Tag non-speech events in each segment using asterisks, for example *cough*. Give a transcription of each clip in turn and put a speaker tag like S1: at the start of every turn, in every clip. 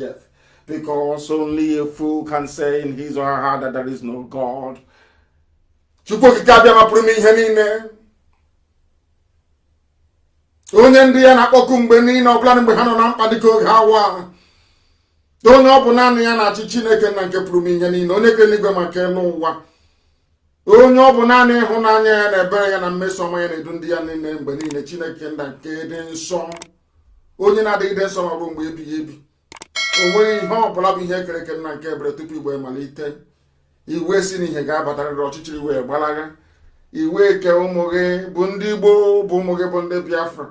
S1: saith, because only a fool can say in his or her heart that there is no God. Chukwu okike abịa mapụrụ m ihe niile onye ndị ya na-akpọku mgbe niile ọbụla mgbe ha nọ na mkpa dịka oge awa onye ọ bụ naanị ya na-achị Chineke na nke pụrụ m ihe niile onye kere n'igwe maka elu ụwa onye ọ bụ naanị ịhụnanya ya na ebere ya na mmeso ọma ya na-edu ndị ya niile mgbe niile Chineke na nke dị nsọ onye na-adịgide nsọ ma ọ bụ mgbe ebighị ebi o ihe ọbụla bụ ihe kere eke nna nke ebere tupu igbe malite iwe si n'ihe ga-abatarịrị ọchịchịrị wee gbalagha iwe eke ụmụ gị bụ ndị igbo bụ ụmụ gị bụ ndị biafra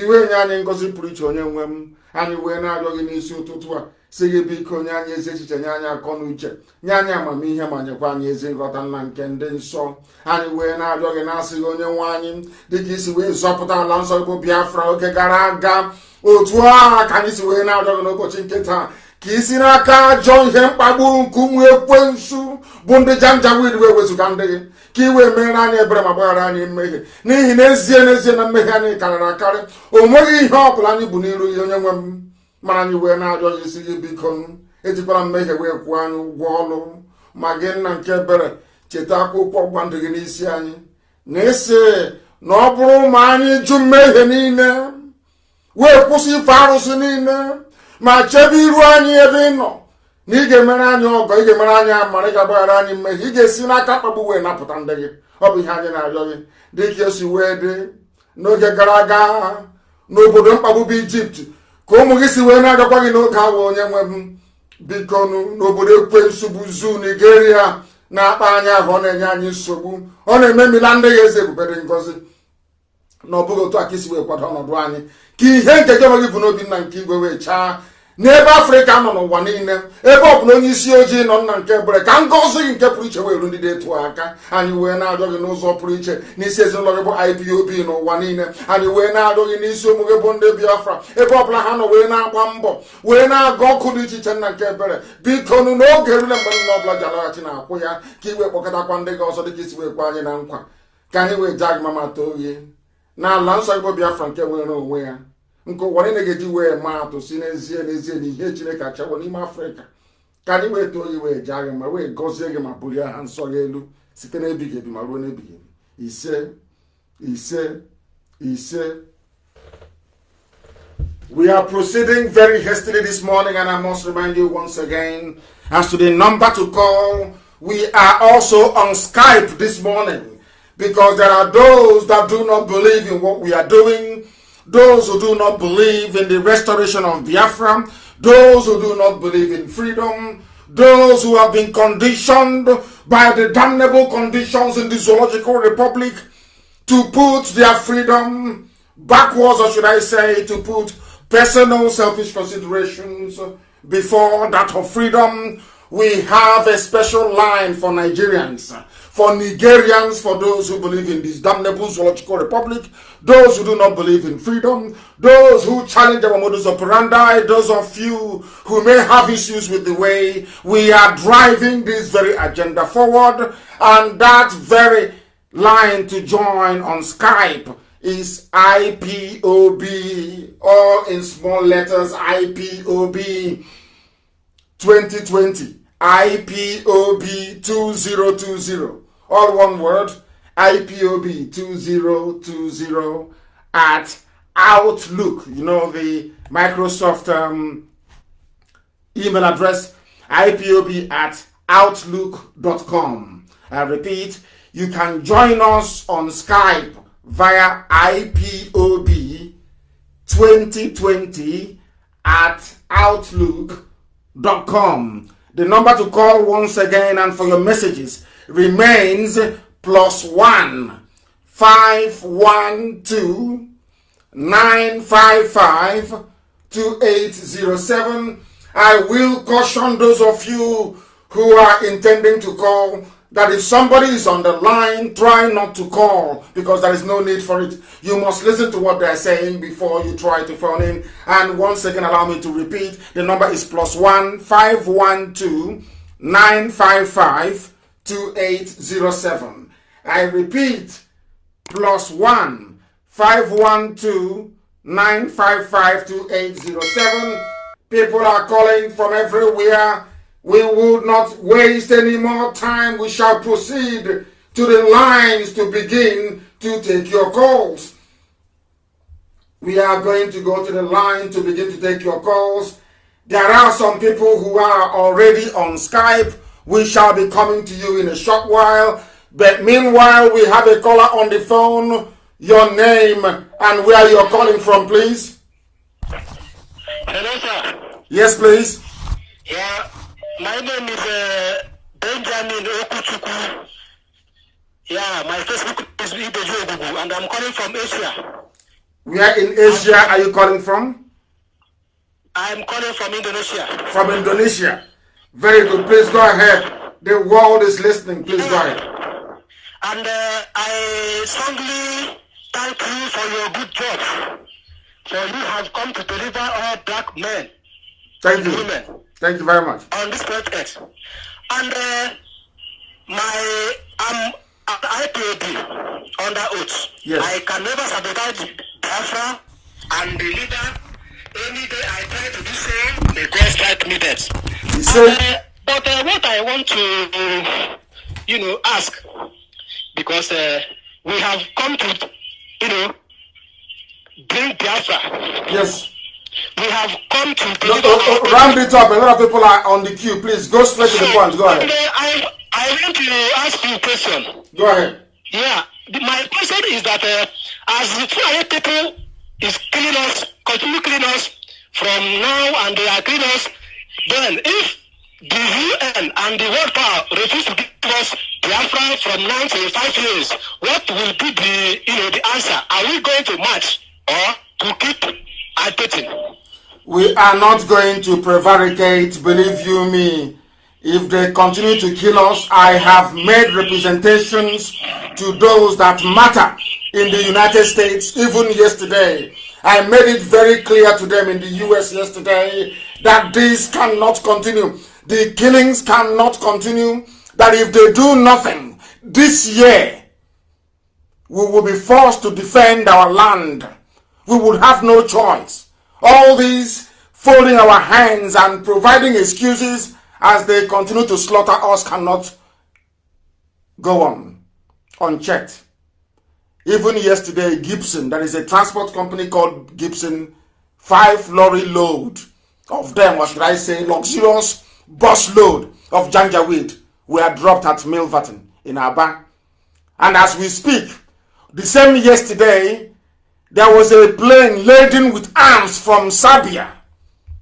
S1: iwe nye anyị ngozi pụrụ iche onye nwe m anyị wee na-arịọ gị n'isi ụtụtụ a si gị biko nye anyị ezi echiche nye anyị akọ na uche nye anyị amamihe ma nyekwa anyị ezi nghọta nna nke ndị nsọ anyị wee na-arịọ gị na-asị gị onye nwe anyị dịka isi wee zọpụta ala nsọ bụ biafra oge gara aga otu a ka anyị si wee na-adọrọ n'ụbọchị nke taa ka isi n'aka ajọ ihe mkpagbu nke ụmụ ekwensu bụ ndị janjawid wee wezụga ndị gị ka ị wee meere anyị ebere ma gbaghara anyị mmehie n'ihi n'ezie n'ezie na mmehie anyị karịrị akarị o nweghị ihe ọ bụla anyị bụ n'iru ihe onye nwe m mara anyị wee na gị isi gị biko ejikwara mmehie wee kwụọ anyị ụgwọ ọnụ ma gị nna nke ebere cheta akwụkwọ gba ndị gị n'isi anyị na ịsị na ọ bụrụ ma anyị jụ mmehie niile wee kwụsị ife arụsị niile ma chebe iru anyị ebe ị nọ na ị ga-emere anyị ọgọ ị ga-emere anyị amara ị ga-agbaghara anyị mmehie ị ga-esi n'aka mkpagbu wee napụta ndị gị ọ bụ ihe anyị na-arịọ gị dị ka esi wee dị n'oge gara aga n'obodo mkpagbu bụ ijipt ka ụmụ gị si wee na-agakwa gị n'oge awa onye nwe m biko n'obodo ekwensu nsogbu zu nigeria na-akpa anyị ahụ ọ na-enye anyị nsogbu ọ na-eme mila ndị gị eze ebubere ngozi na ọ bụghị otu aka isi wee kwado ọnọdụ anyị ka ihe nke gị gị bụ n'obi nna nke igwe wee chaa n'ebe afrịka nọ n'ụwa niile ebe ọ bụla onye isi ojii nọ nna nke ebere ka ngọzi gị nke pụrụ iche wee ru ndị detu aka anyị wee na ajọ gị n'ụzọ pụrụ iche n'isi ezinụlọ gị bụ IPOB n'ụwa niile anyị wee na ajọ gị n'isi ụmụ gị bụ ndị biafra ebe ọbụla ha nọ wee na-agba mbọ wee na-aga ọkụ dị iche iche nna nke ebere biko nụ n'oge rule mgbe nna ọbụla ji alaghachi na akwụ ya ka ị wee kpọkọtakwa ndị gị ọzọ dị ka isi wee kwa anyị na nkwa ka anyị wee jaa gị mama too gị na ala nsọ igbo biafra nke nwere onwe ya nke ụwa niile ga-eji wee maa atụ si n'ezie n'ezie na ihe chineke achọwo n'ime afrịka ka anyị wee too gị wee jaa gị ma wee gọzie gị ma bulie aha nsọ gị elu site n'ebighị ebi ma ruo n'ebighị ebi ise ise ise We are proceeding very hastily this morning, and I must remind you once again as to the number to call. We are also on Skype this morning. Because there are those that do not believe in what we are doing, those who do not believe in the restoration of Biafra, those who do not believe in freedom, those who have been conditioned by the damnable conditions in the Zoological Republic to put their freedom backwards, or should I say, to put personal selfish considerations before that of freedom. We have a special line for Nigerians for Nigerians, for those who believe in this damnable zoological republic, those who do not believe in freedom, those who challenge our modus operandi, those of you who may have issues with the way we are driving this very agenda forward, and that very line to join on Skype is IPOB, all in small letters, IPOB 2020, IPOB 2020 all one word, IPOB2020 at Outlook. You know, the Microsoft um, email address, IPOB at Outlook.com. I repeat, you can join us on Skype via IPOB 2020 at Outlook.com. The number to call once again and for your messages remains plus 1, I will caution those of you who are intending to call that if somebody is on the line, try not to call because there is no need for it. You must listen to what they are saying before you try to phone in. And once again, allow me to repeat the number is plus one five one two nine five five 2807. I repeat, plus 1 512 955 2807. People are calling from everywhere. We will not waste any more time. We shall proceed to the lines to begin to take your calls. We are going to go to the line to begin to take your calls. There are some people who are already on Skype we shall be coming to you in a short while. But meanwhile, we have a caller on the phone. Your name and where you're calling from, please. Hello, sir. Yes, please.
S2: Yeah, my name is uh, Benjamin Okuchuku. Yeah, my Facebook is Ibeju Ogugu, and I'm calling from Asia.
S1: Where in Asia are you calling from?
S3: I'm calling from Indonesia.
S1: From Indonesia. Very good. Please go ahead. The world is listening. Please go ahead. And uh, I
S4: strongly thank you for your good
S2: job. For you have come to deliver all black men. Thank you. Women Thank you very much.
S5: On this project. And uh, my I'm um, at IPAB under oath. Yes. I can never sabotage
S6: Biafra and the leader Any day I try to do so, may God strike
S5: me dead. So, uh, but uh, what I want to, you know, ask, because uh, we have come to, you know,
S4: bring Biafra. Yes. We have come to bring no, Ramp it up. A lot
S1: of people are on the queue. Please go straight so, to the point. Go ahead. Uh,
S4: I, I want to ask you a question. Go ahead. Yeah. My question is that uh, as the Fulani people is clean us, continue clean us from now and they are clean us. Then if the UN and the world power refuse to give us Biafra from now to five years, what will be the you know the answer? Are we going to march or to keep agitating?
S1: We are not going to prevaricate, believe you me. If they continue to kill us, I have made representations to those that matter in the United States, even yesterday. I made it very clear to them in the US yesterday that this cannot continue. The killings cannot continue. That if they do nothing this year, we will be forced to defend our land. We would have no choice. All these folding our hands and providing excuses as they continue to slaughter us cannot go on unchecked. Even yesterday, Gibson, that is a transport company called Gibson, five lorry load of them, what should I say, luxurious bus load of janjaweed were dropped at Milverton in Aba. And as we speak, the same yesterday, there was a plane laden with arms from Serbia,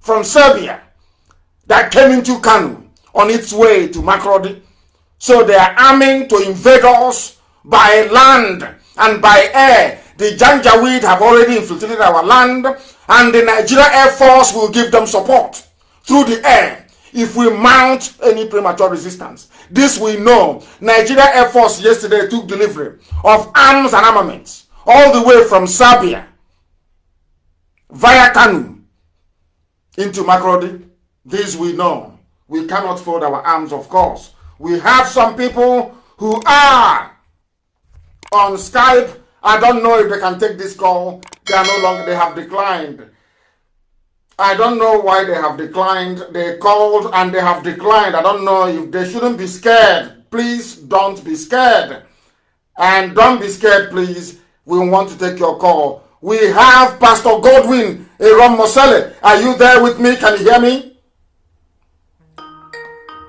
S1: from Serbia, that came into Kanu on its way to Makrodi. So they are arming to invade us by land and by air. The Janjaweed have already infiltrated our land, and the Nigeria Air Force will give them support through the air if we mount any premature resistance. This we know. Nigeria Air Force yesterday took delivery of arms and armaments all the way from Serbia via Kanu into Makrodi. This we know. We cannot fold our arms, of course. We have some people who are on Skype. I don't know if they can take this call. They are no longer, they have declined. I don't know why they have declined. They called and they have declined. I don't know if they shouldn't be scared. Please don't be scared. And don't be scared, please. We want to take your call. We have Pastor Godwin Aaron Mosele. Are you there with me? Can you hear me?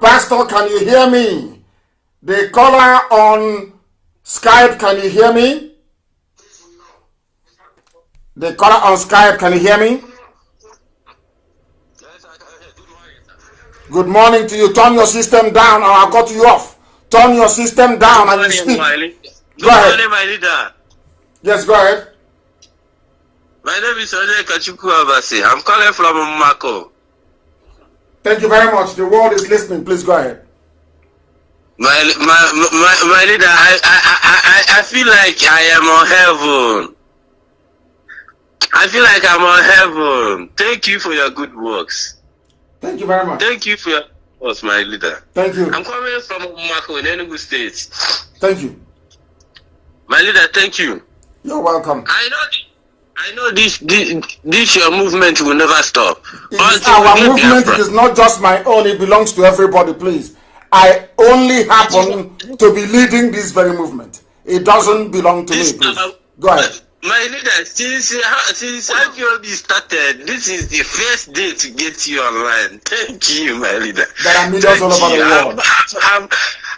S1: Pastor, can you hear me? The caller on Skype, can you hear me? The caller on Skype, can you hear me? Good morning to you. Turn your system down or I'll cut you off. Turn your system down and you speak.
S2: Go ahead. my leader.
S1: Yes, go ahead.
S2: My name is Ole Kachuku Abasi. I'm calling from Mako.
S1: Thank you very much. The world is listening. Please go ahead.
S2: My, my, my, my leader, I, I, I, I feel like I am on heaven. I feel like I'm on heaven. Thank you for your good works. Thank you very much.
S7: Thank you for your works, my leader.
S4: Thank
S8: you. I'm coming from Mako in
S7: Enugu State. Thank you. My leader, thank you. You're welcome. I know
S5: I know this, this, this your movement will never stop. Our movement
S1: is not just my own, it belongs to everybody, please. I only happen to be leading this very movement. It doesn't belong to this, me.
S8: Please. Uh,
S2: Go ahead. Uh, my leader, since uh, since IPOB started, this is the first day to get you online. *laughs*
S7: Thank you, my leader. There are millions Thank all over you. the world. I'm, I'm,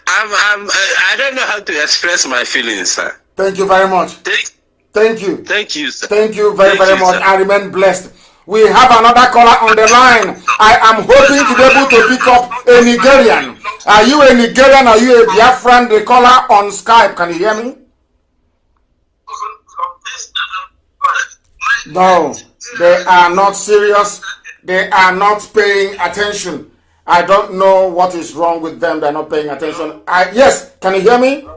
S7: I'm, I'm, I don't know how to express my feelings, sir.
S1: Thank you very much. Thank, Thank you. Thank you, sir. Thank you very, Thank very you, much. Sir. I remain blessed. We have another caller on the line. I am hoping to be able to pick up a Nigerian. Are you a Nigerian? Are you a Biafran? The caller on Skype. Can you hear me? No, they are not serious. They are not paying attention. I don't know what is wrong with them. They're not paying attention. I, yes, can you hear
S9: me?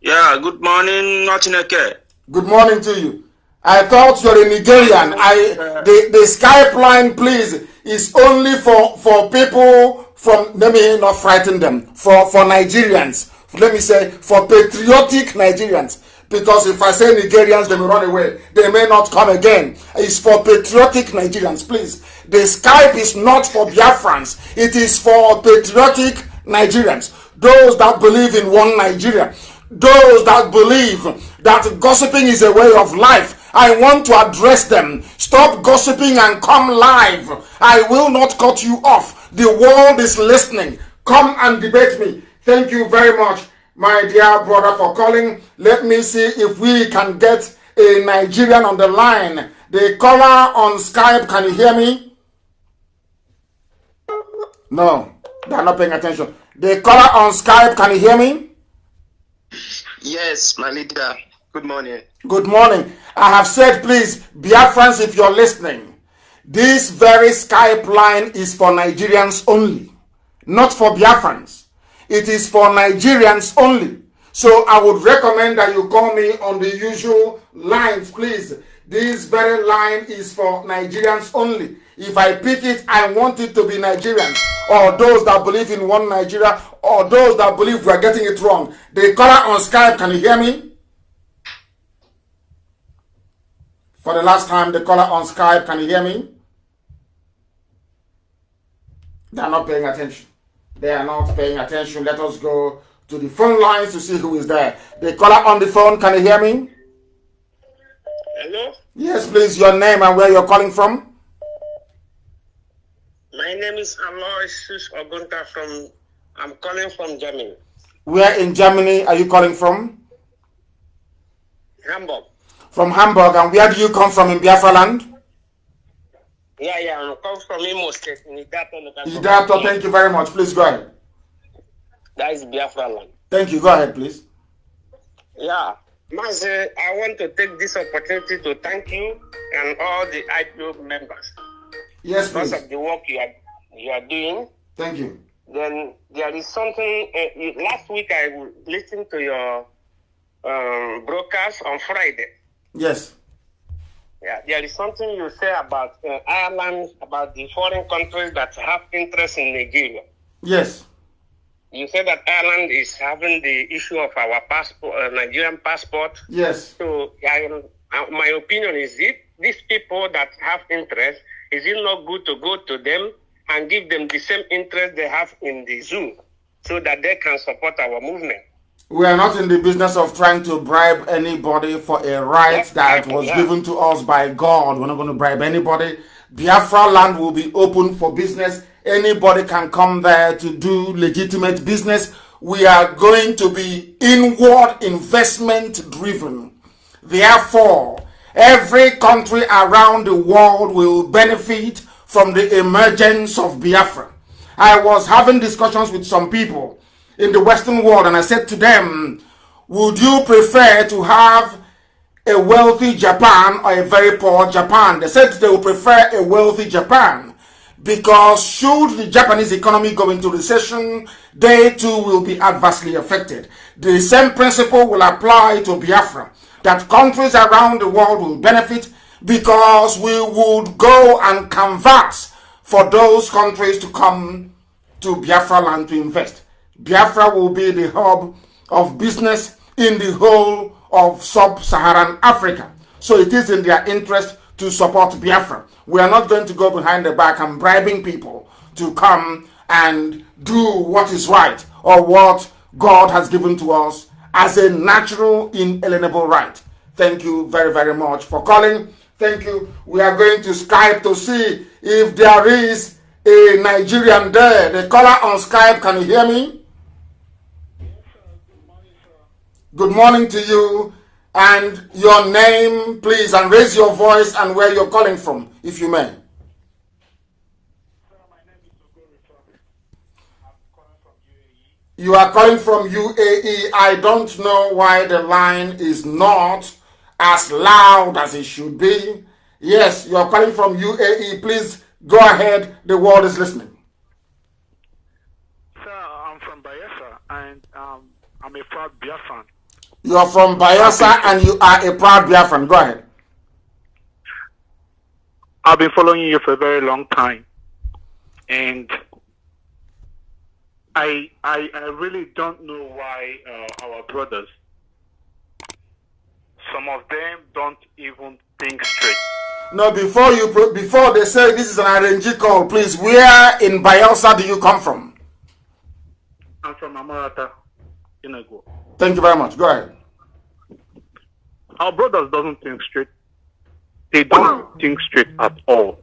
S9: Yeah, good morning, Notineke.
S1: Good morning to you. I thought you're a Nigerian. I the the Skype line, please, is only for for people from. Let me not frighten them. For for Nigerians, let me say for patriotic Nigerians. Because if I say Nigerians, they may run away. They may not come again. It's for patriotic Nigerians, please. The Skype is not for Biafrans. It is for patriotic Nigerians. Those that believe in one Nigeria. Those that believe that gossiping is a way of life I want to address them. Stop gossiping and come live. I will not cut you off. The world is listening. Come and debate me. Thank you very much, my dear brother, for calling. Let me see if we can get a Nigerian on the line. The caller on Skype, can you hear me? No, they are not paying attention. The caller on Skype, can you hear me?
S3: Yes, my leader. Good morning.
S1: Good morning. I have said, please, Biafrans, if you're listening, this very Skype line is for Nigerians only, not for Biafrans. It is for Nigerians only. So I would recommend that you call me on the usual lines, please. This very line is for Nigerians only. If I pick it, I want it to be Nigerians or those that believe in one Nigeria or those that believe we are getting it wrong. The caller on Skype, can you hear me? For the last time, the caller on Skype, can you hear me? They are not paying attention. They are not paying attention. Let us go to the phone lines to see who is there. The caller on the phone, can you hear me? Hello? Yes, please, your name and where you're calling from.
S2: My name is Aloysius Ogunta from, I'm calling from Germany.
S1: Where in Germany are you calling from? Hamburg from Hamburg, and where do you come from in Biafra land?
S2: Yeah, yeah, I come from Imo State in Idato. Idato,
S1: thank you very much. Please go ahead.
S2: That is Biafra land.
S1: Thank you. Go ahead, please.
S2: Yeah. Master, eh, I want to take this opportunity to thank you and all the IPO members.
S1: Yes, because please. Because
S2: of the work you are, you are doing. Thank you. Then there is something. Uh, last week I listened to your um, broadcast on Friday. Yes. Yeah, there is something you say about uh, Ireland, about the foreign countries that have interest in Nigeria. Yes. You said that Ireland is having the issue of our passport, uh, Nigerian passport. Yes. So, I, uh, my opinion is it these people that have interest, is it not good to go to them and give them the same interest they have in the zoo so that they can support our movement?
S1: We are not in the business of trying to bribe anybody for a right that was yeah. given to us by God. We're not going to bribe anybody. Biafra land will be open for business. Anybody can come there to do legitimate business. We are going to be inward investment driven. Therefore, every country around the world will benefit from the emergence of Biafra. I was having discussions with some people in the Western world, and I said to them, Would you prefer to have a wealthy Japan or a very poor Japan? They said they would prefer a wealthy Japan because, should the Japanese economy go into recession, they too will be adversely affected. The same principle will apply to Biafra that countries around the world will benefit because we would go and converse for those countries to come to Biafra land to invest. Biafra will be the hub of business in the whole of sub-Saharan Africa. So it is in their interest to support Biafra. We are not going to go behind the back and bribing people to come and do what is right or what God has given to us as a natural, inalienable right. Thank you very, very much for calling. Thank you. We are going to Skype to see if there is a Nigerian there. The caller on Skype, can you hear me? Good morning to you and your name, please, and raise your voice and where you're calling from, if you may. You are calling from UAE. I don't know why the line is not as loud as it should be. Yes, you are calling from UAE. Please go ahead. The world is listening. Sir,
S10: I'm from Bayelsa, and um, I'm a proud Biafran.
S1: You are from Bayelsa and you are a proud Biafran. Go ahead.
S10: I've been following you for a very long time. And I, I, I really don't know why uh, our brothers, some of them don't even
S1: think straight. No, before you before they say this is an RNG call, please, where in Bayelsa do you come from?
S10: I'm from Amarata,
S11: Inago.
S1: Thank you very much. Go ahead.
S10: Our brothers doesn't think straight. They don't *coughs* think straight at all.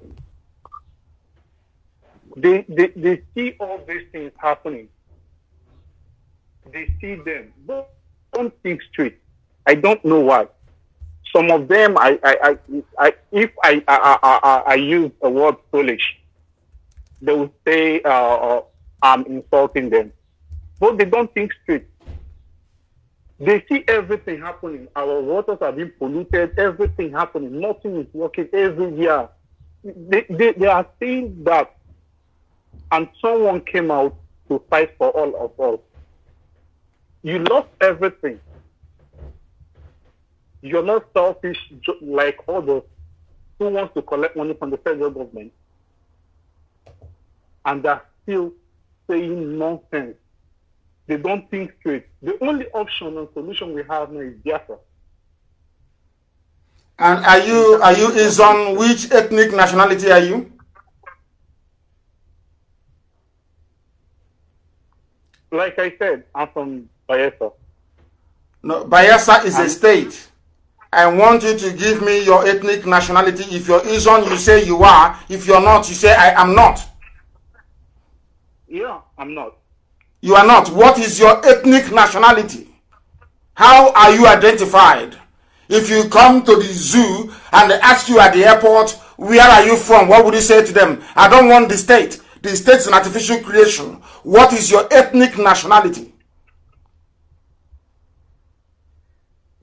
S10: They, they, they see all these things happening. They see them, but don't think straight. I don't know why. Some of them, I, I, I, I if I, I, I, I, use the word foolish, they will say uh, uh, I'm insulting them, but they don't think straight. They see everything happening. Our waters are being polluted, everything happening, nothing is working every year. They, they, they are seeing that. And someone came out to fight for all of us. You lost everything. You're not selfish like others who wants to collect money from the federal government. And they're still saying nonsense they don't think straight. The only option and solution we have now is Biafra.
S1: And are you are you is on which ethnic nationality are you?
S10: Like I said, I'm from Bayelsa.
S1: No, Bayelsa is and a state. I want you to give me your ethnic nationality. If you're Izon, you say you are. If you're not, you say I am not. Yeah, I'm not. You are not. What is your ethnic nationality? How are you identified? If you come to the zoo and they ask you at the airport, where are you from? What would you say to them? I don't want the state. The state is an artificial creation. What is your ethnic nationality?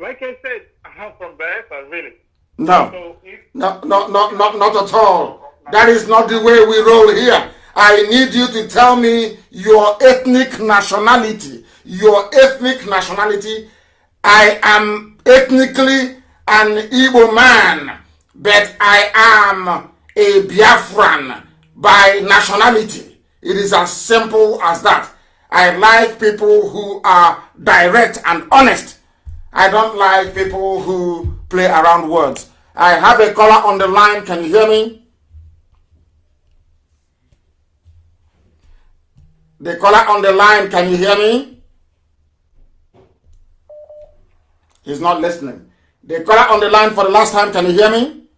S10: Like I said, I'm from Biafra, really.
S11: No. So
S1: if... no. No, no, no, not at all. That is not the way we roll here. I need you to tell me your ethnic nationality. Your ethnic nationality. I am ethnically an Igbo man, but I am a Biafran by nationality. It is as simple as that. I like people who are direct and honest. I don't like people who play around words. I have a caller on the line. Can you hear me? The caller on the line, can you hear me? He's not listening. The caller on the line for the last time, can you hear me?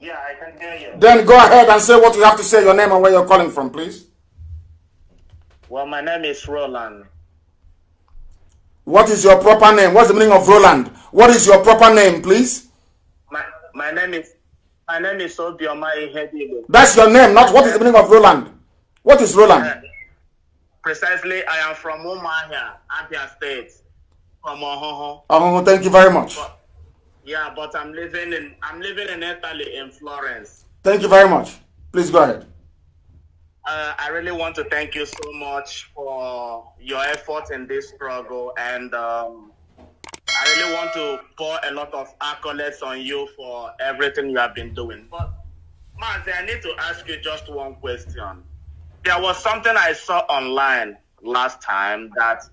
S6: Yeah, I can hear you. Then
S1: go ahead and say what you have to say, your name and where you're calling from, please.
S6: Well, my name is Roland.
S1: What is your proper name? What's the meaning of Roland? What is your proper name, please?
S6: My, my name is my name is Obioma Ihedilo. That's your name, not
S1: what is the meaning of Roland? What is Roland?
S6: Precisely, I am from Umahia, Abia State, from Ohoho.
S1: thank you very much. But,
S6: yeah, but I'm living in I'm living in Italy in Florence.
S1: Thank you very much. Please go ahead.
S6: Uh, I really want to thank you so much for your effort in this struggle, and um, I really want to pour a lot of accolades on you for everything you have been doing. But, Mazi, I need to ask you just one question there was something I saw online last time that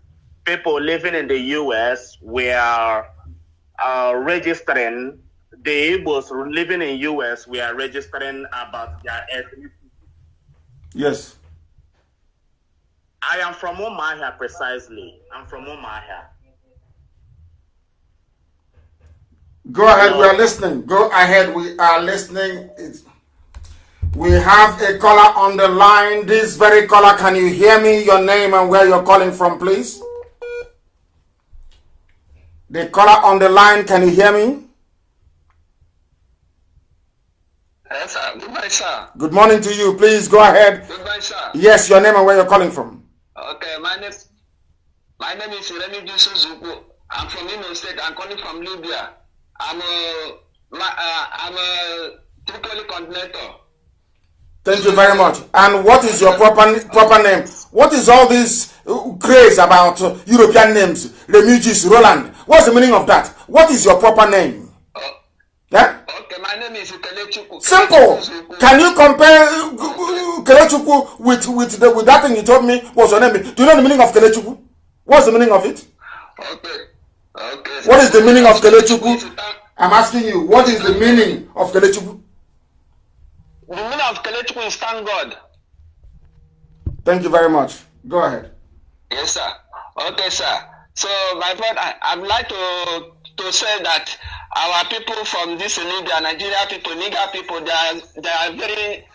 S6: people living in the U.S. were uh, registering. The Igbos living in U.S. were registering about their ethnicity. Yes. I am from Omaha precisely. I'm from Omaha.
S1: Go ahead, we are listening. Go ahead, we are listening. It's we have a caller on the line. This very caller, can you hear me? Your name and where you're calling from, please. The caller on the line, can you hear me?
S2: Yes, sir. Good morning, sir.
S1: Good morning to you. Please go ahead. Goodbye, sir. Yes, your name and where you're calling from. Okay, my name, my name is Remy Suzuku. I'm from Imo State. I'm calling from Libya. I'm a, my, uh, I'm a Tripoli coordinator. Thank you very much. And what is your proper proper name? What is all this uh, craze about uh, European names? Refugees, Roland. What's the meaning of that? What is your proper name? Yeah? Uh, eh? Okay, my name is Kelechuku. Simple. Can you compare Kelechuku with with the, with that thing you told me? was your name? Do you know the meaning of Kelechuku? What's the meaning of it? Okay. Okay. What is the meaning of Kelechuku? I'm asking you. What is the meaning of Kelechuku? The women of Kelechi will stand God. Thank you very much. Go ahead.
S2: Yes, sir. Okay, sir. So, my friend, I, would like to to say that our people from this Libya, Nigeria people, Niger people, they are, they are very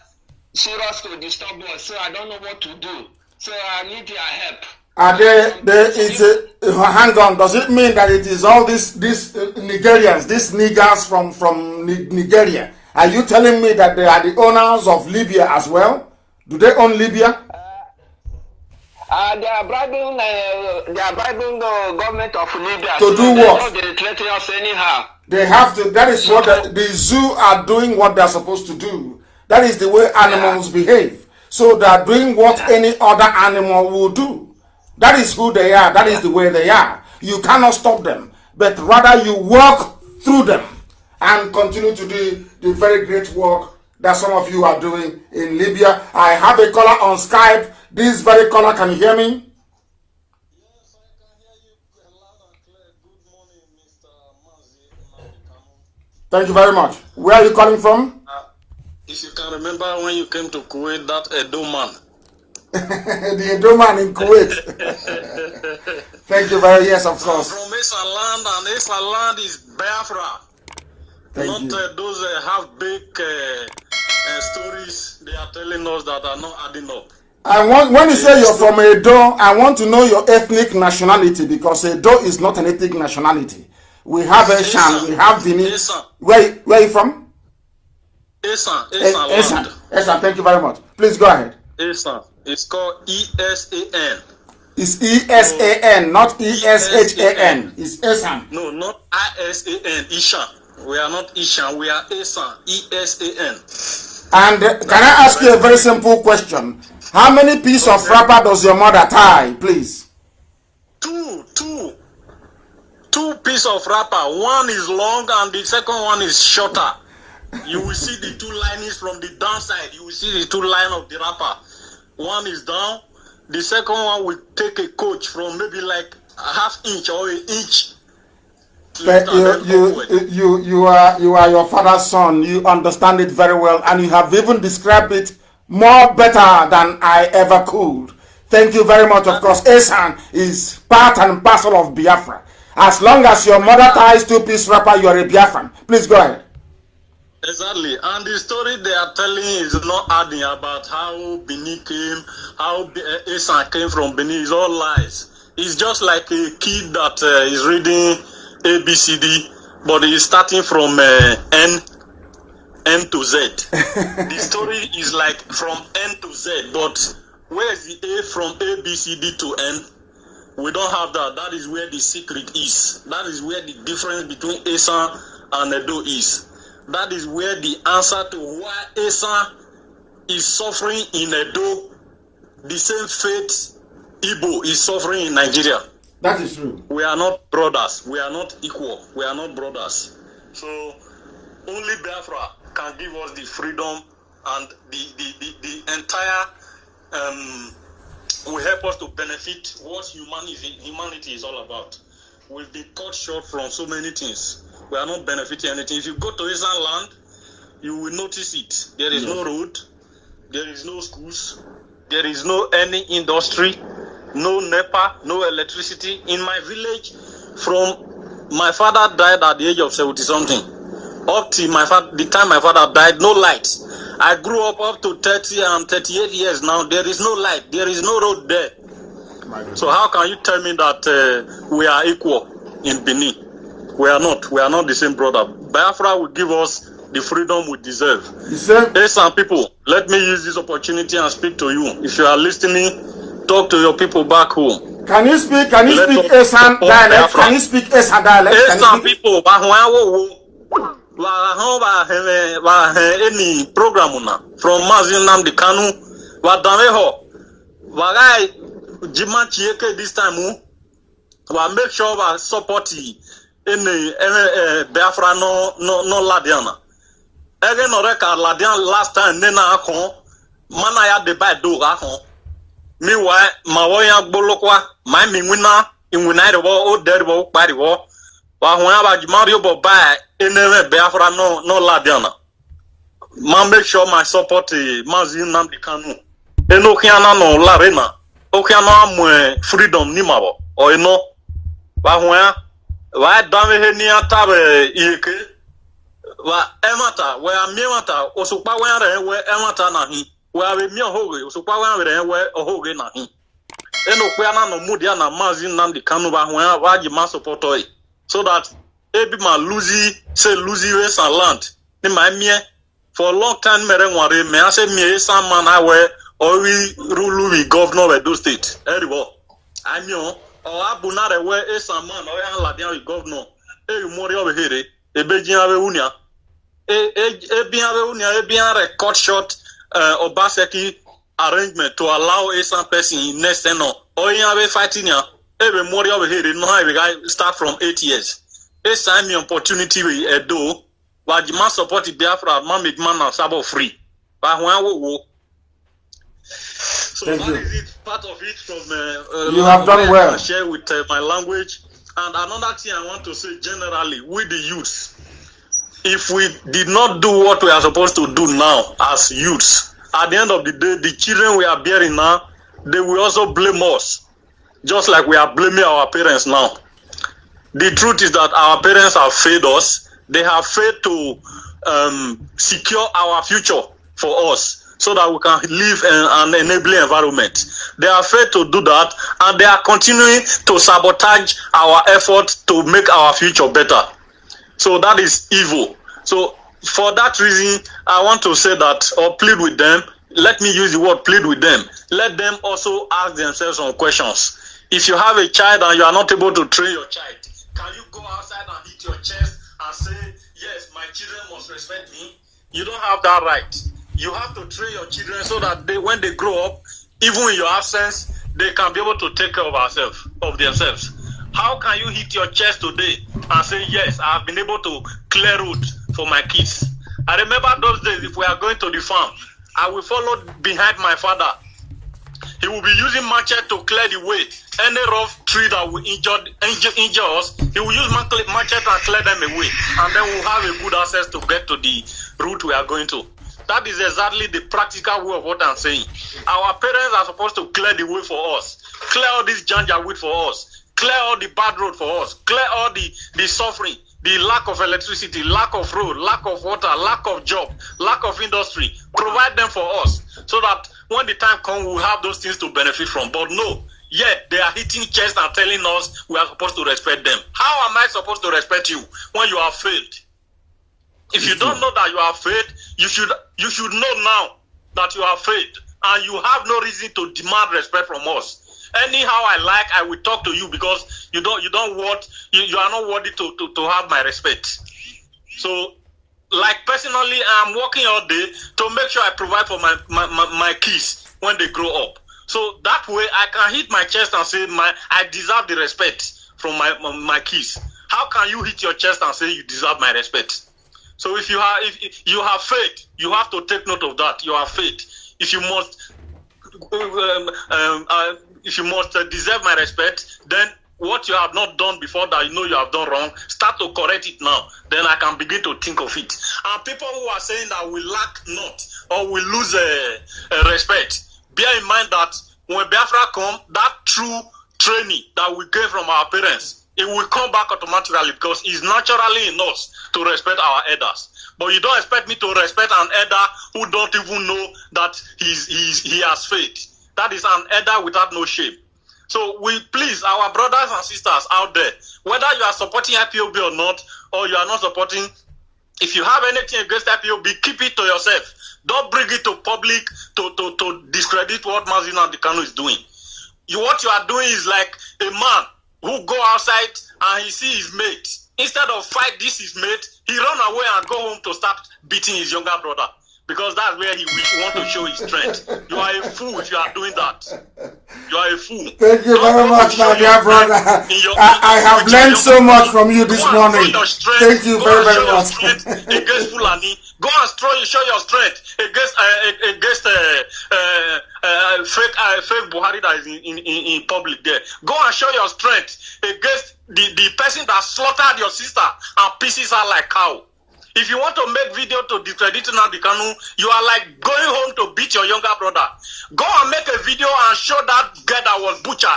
S1: serious to disturb us. So I don't know what to do. So I need your help. Are they, they is uh, hang on. Does it mean that it is all these these uh, Nigerians, these niggers from from Nigeria are you telling me that they are the owners of Libya as well? Do they own Libya? Uh, uh they are bribing, uh, they are bribing the government of Libya to so do what? They us anyhow. They have to. That is what the, the, zoo are doing. What they are supposed to do. That is the way animals yeah. behave. So they are doing what yeah. any other animal will do. That is who they are. That yeah. is the way they are. You cannot stop them, but rather you walk through them and continue to do the very great work that some of you are doing in Libya. I have a caller on Skype. This very caller can you hear me? Thank you very much. Where are you calling from? Uh, if you can remember when you came to Kuwait, that Edo man. *laughs* the Edo man in Kuwait. *laughs* Thank you very much. Yes, of course. from Esa land, and Esa land is Biafra.
S3: Thank
S7: not uh, those uh, have big uh, uh, stories they are telling us that are not adding
S1: up. I want when you say you're from Edo, I want to know your ethnic nationality because Edo is not an ethnic nationality. We have Eshan, we have Bini. Yes, where where are you from? Esan. Esan. Esan. Thank you very much. Please go ahead. Esan. It's called E S A N. It's E S A N, not E S H A N. E It's Esan. No, not I S A N. Ishan. We
S8: are not Ishan, we are Esan. E S A
S1: N. And uh, can I ask you a very simple question? How many pieces okay. of wrapper does your mother tie, please?
S7: Two, two. Two pieces of wrapper. One is long and the second one is shorter. You will see the two linings from the downside. You will see the two line of the wrapper. One is down. The second one will
S1: take a coach from maybe like a half inch or an inch But you, you, you, you, are, you are your father's son. You understand it very well, and you have even described it more better than I ever could. Thank you very much. Of course, Asan is part and parcel of Biafra. As long as your mother ties two piece wrapper, you are a Biafran. Please go ahead. Exactly. And the story they
S7: are telling is not adding about how Benin came, how uh, Asan came from Benin. It's all lies. It's just like a kid that uh, is reading A B C D, but it's starting from uh, N N to Z. *laughs*
S8: the
S7: story is like from N to Z, but where is the A from A B C D to N? We don't have that. That is where the secret is. That is where the difference between Asa and Edo is. That is where the answer to why Asa is suffering in Edo, the same fate Igbo is suffering in Nigeria. That is true. We are not brothers. We are not equal. We are not brothers. So only Biafra can give us the freedom and the the, the, the entire um, will help us to benefit what humanity humanity is all about. We've been cut short from so many things. We are not benefiting anything. If you go to Eastern land, you will notice it. There is no road, there is no schools, there is no any industry no NEPA, no electricity in
S9: my village.
S7: From my father died at the age of seventy something, up till my father, the time my father died, no lights. I grew up up to thirty and thirty-eight years now. There is no light, there is no road there. So how can you tell me that uh, we are equal in Benin? We are not. We are not the same brother. Biafra will give us the freedom we deserve. Yes, Hey, some people, let me use this opportunity and speak to you. If you are listening, talk to your people back home.
S8: Can you speak? Can you Let speak
S1: Esan dialect? Can you speak Esan dialect? Esan
S7: people, Bahuawo, any program from Mazin Namdi Kanu, Wadameho, Wagai, Jima Chieke this time, wa make sure we support any eh, Biafra no no no Ladiana. Ege no reka Ladian last time nena akon, mana ya deba do akon. miwa ma wo ya gbolokwa ma mi wina inwina riwo o deriwo kpariwo wa hu ya ba jimari bo ba enere biafra no no labiana ma make sure my support mazi nnamdi kanu enokiana no larena okiana amwe freedom ni mabo o eno wa hu ya wa dame he ni atabe yeke wa emata wa miemata osukpa wa re we emata na hi wee ohoge osokwa ha were ewe ohoge na hi enokwe na no mudi ya na maazi nnamdi kanu ba hụ ya ba ji ma sọpọtọ so that ebi ma luzi se luzi we sa land ni ma mie for long time mere nware me ase mie sa ma na wee ori rulu wi governor of edo state eribo amio ọ abụ na rewe esa man ọ ya e ladian wi governor eyi mori ọ behere ebe ji ha be unia ebi e, e ha be unia ebi ha record shot uh, Obaseki arrangement to allow a some person next ten or oyin abe fighting ya ebe mori abe here no abe guy start from eight years a sign me opportunity we edo wajima support Biafra man make man na sabo free but when we wo
S8: so Thank that you. is
S7: it part of it from uh, uh, you have done well I share with uh, my language and another thing I want to say generally with the youth if we did not do what we are supposed to do now as youths, at the end of the day, the children we are bearing now, they will also blame us, just like we are blaming our parents now. The truth is that our parents have failed us. They have failed to um, secure our future for us so that we can live in an enabling environment. They have failed to do that and they are continuing to sabotage our efforts to make our future better. So that is evil. So for that reason, I want to say that or plead with them. Let me use the word plead with them. Let them also ask themselves some questions. If you have a child and you are not able to train your child, can you go outside and hit your chest and say, Yes, my children must respect me? You don't have that right. You have to train your children so that they, when they grow up, even in your absence, they can be able to take care of ourselves, of themselves. How can you hit your chest today and say, Yes, I have been able to clear road for my kids? I remember those days if we are going to the farm, I will follow behind my father. He will be using machete to clear the way. Any rough tree that will injure, injure, injure us, he will use machete and clear them away. And then we'll have a good access to get to the route we are going to. That is exactly the practical way of what I'm saying. Our parents are supposed to clear the way for us, clear all this janja weed for us. Clear all the bad road for us. Clear all the, the suffering, the lack of electricity, lack of road, lack of water, lack of job, lack of industry. Provide them for us so that when the time comes, we'll have those things to benefit from. But no, yet they are hitting chests and telling us we are supposed to respect them. How am I supposed to respect you when you have failed? If you don't know that you have failed, you should you should know now that you have failed and you have no reason to demand respect from us anyhow I like, I will talk to you because you don't you don't want you, you are not worthy to, to, to have my respect. So like personally I'm working all day to make sure I provide for my, my, my, my kids when they grow up. So that way I can hit my chest and say my I deserve the respect from my, my, my kids. How can you hit your chest and say you deserve my respect? So if you have if you have faith, you have to take note of that. You have faith. If you must um, um, uh, if you must uh, deserve my respect, then what you have not done before that you know you have done wrong, start to correct it now. Then I can begin to think of it. And people who are saying that we lack not or we lose uh, uh, respect, bear in mind that when Biafra come, that true training that we gain from our parents, it will come back automatically because it's naturally in us to respect our elders. But you don't expect me to respect an elder who don't even know that he's, he's, he has faith. That is an header without no shape. So we please our brothers and sisters out there, whether you are supporting IPOB or not, or you are not supporting, if you have anything against IPOB, keep it to yourself. Don't bring it to public to, to, to discredit what Mazino and Dikano is doing. You, what you are doing is like a man who go outside and he see his mate. Instead of fight this his mate, he run away and go home to start beating his younger brother. because that's where he will want to show his strength. You are a
S12: fool if you are doing that. You are a fool.
S7: Thank you very much, my dear brother. Your,
S1: I, I, have learned so much from you this morning. Thank you very, very much. *laughs* against Fulani. Go and show, show your strength
S7: against uh, against uh, uh, uh, fake uh, fake Buhari that is in, in, in public there. Go and show your strength against the, the person that slaughtered your sister and pieces her like cow. If you want to make video to discredit Nnamdi Kanu, you are like going home to beat your younger brother. Go and make a video and show that guy that was butchered